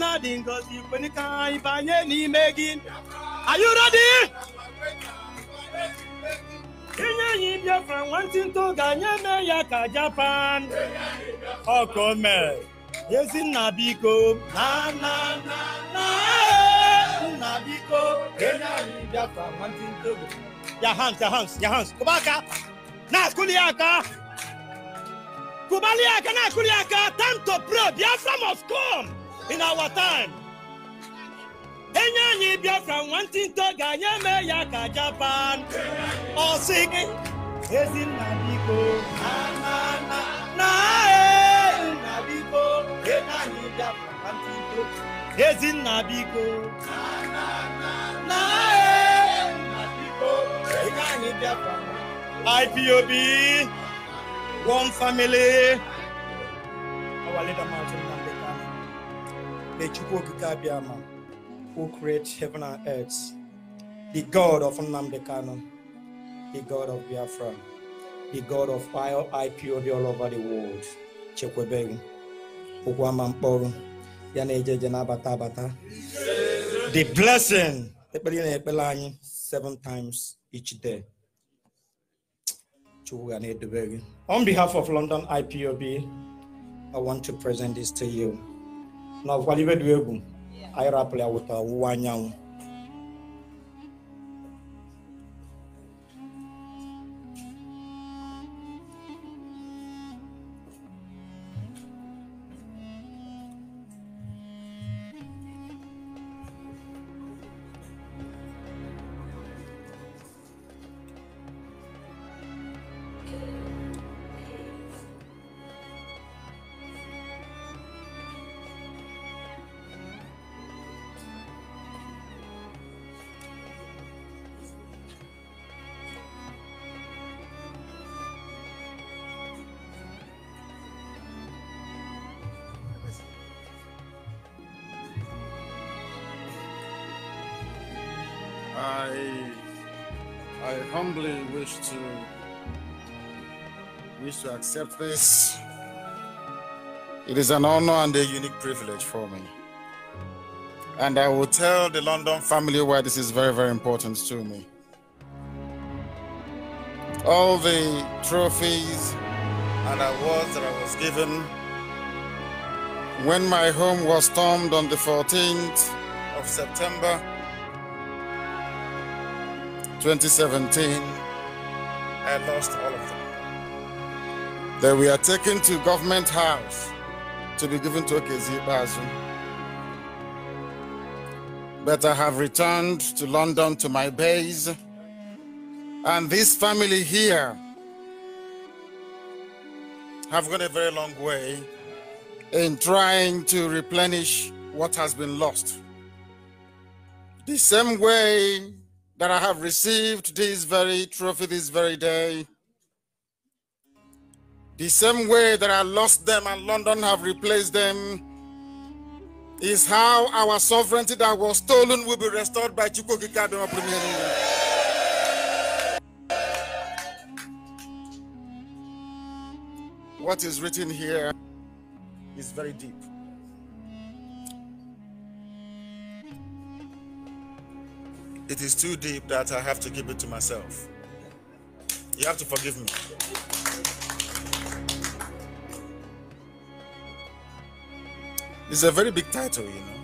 na-adị ngọzi kwenika anyị banye n'ime gị Are you ready? inye anyị Biafra nwantịntụ ga-anye ya ka Japan ọkọ oh, mee Ezinna biko na na na nna biko enye anyị Biafra nwantịntụ ya hans ya hans ya hans kụba aka na-akụli aka Kubaliaka na Kuriaka, time to pray. Biafra must come in our time. Enye anyị Biafra nwantinto ga-anye eme ya ka Japan. Ọ sị gị, Ezinna biko, na e, e na na, e, na ee, nna biko, enye anyị Biafra nwantinto. Ezinna biko, na na na, na ee, nna biko, enye anyị Biafra. IPOB. one family. Our leader, Martin Mandekana, the Chukwokikabiyama, who creates heaven and earth, the God of Namdekano, the God of Biafra, the God of all IPOD all over the world, Chekwebegu, Ukwamamporo, Yanejeje Nabata Bata. The blessing, seven times each day. Chukwu ga na-edobe on behalf of London IPOB, I want to present this to you. Now, Waliwe Dwebu, I rapple out with to wish to accept this. It is an honor and a unique privilege for me. And I will tell the London family why this is very, very important to me. All the trophies and awards that I was given when my home was stormed on the 14th of September 2017 I lost all of them. Then we are taken to government house to be given to Okezi Bazu. But I have returned to London to my base. And this family here have gone a very long way in trying to replenish what has been lost. The same way that I have received this very trophy this very day. The same way that I lost them and London have replaced them is how our sovereignty that was stolen will be restored by Chukwuka Kadoma Premier. What is written here is very deep. it is too deep that I have to keep it to myself. You have to forgive me. It's a very big title, you know.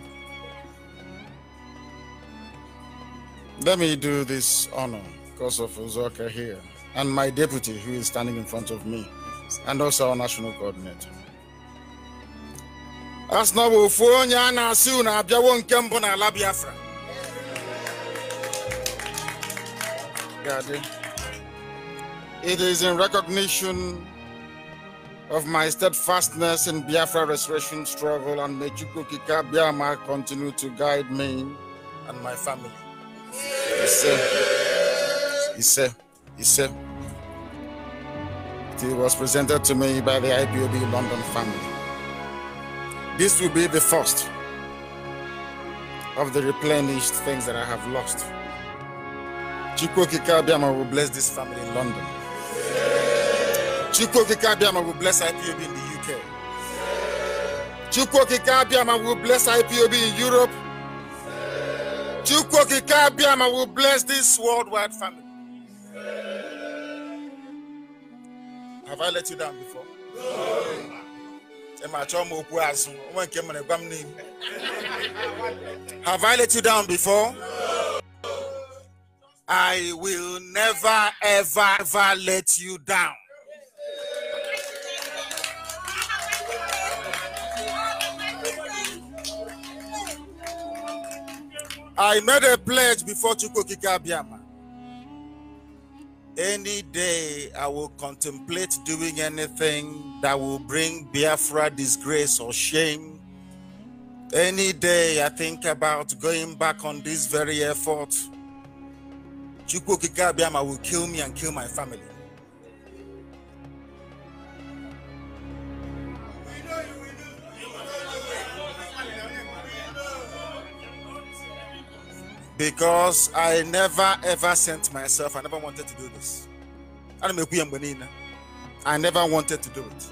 Let me do this honor because of Uzoka here and my deputy who is standing in front of me and also our national coordinator. Gadi. It is in recognition of my steadfastness in Biafra restoration struggle and may Chukwukika Biama continue to guide me and my family. Ise, Ise, Ise. It was presented to me by the IPOB London family. This will be the first of the replenished things that I have lost. Chikwoki Kabiama will bless this family in London. Chikwoki Kabiama will bless IPOB in the UK. Chikwoki Kabiama will bless IPOB in Europe. Chukwoki Kabiama will bless this worldwide family. Have I let you down before? Have I let you down before? No. I will never, ever, ever let you down. I made a pledge before Chukukika Abiyama. Any day I will contemplate doing anything that will bring Biafra disgrace or shame. Any day I think about going back on this very effort Chukwu Kikabiama will kill me and kill my family. Because I never ever sent myself, I never wanted to do this. I never wanted to do it.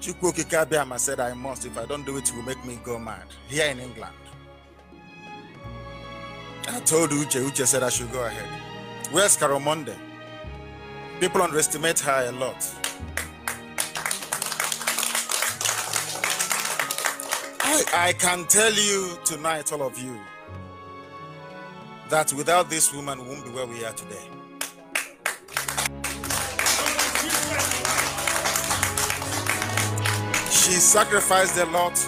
Chukwu Kikabiama said, I must. If I don't do it, you will make me go mad here in England. And I told Uche, Uche said I should go ahead. Where's Carol People underestimate her a lot. I, I can tell you tonight, all of you, that without this woman, we won't be where we are today. She sacrificed a lot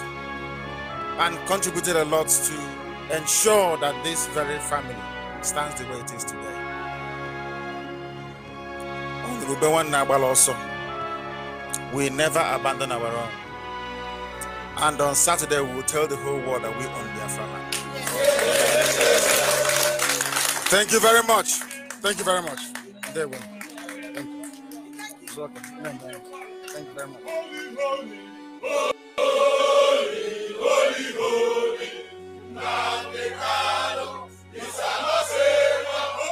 and contributed a lot to ensure that this very family stands the way it is today. also, we never abandon our own. And on Saturday, we will tell the whole world that we own their family. Thank you very much. Thank you very much. There we Thank you. It's okay. Thank you very much. Holy, holy, holy, y San serlo.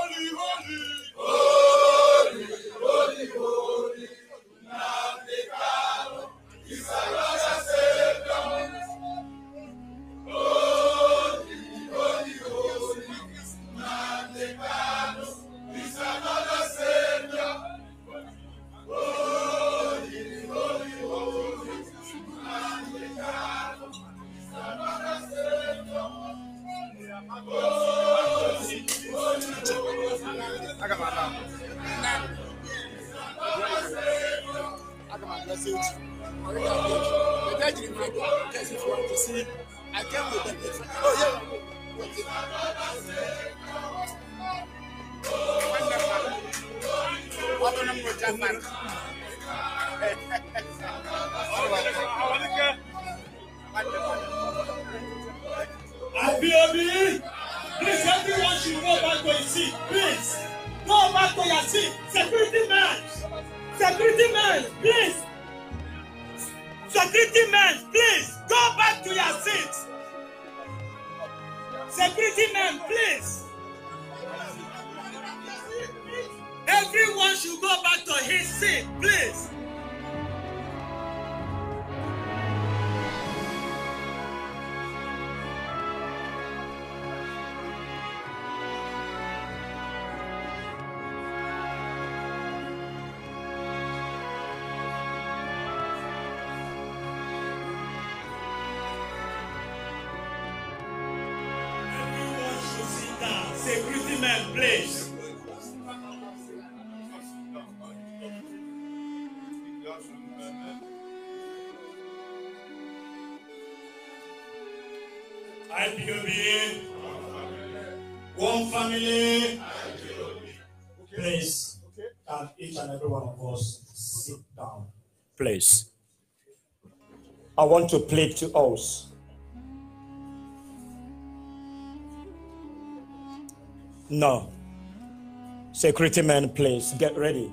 want to plead to us. No. Security men, please get ready.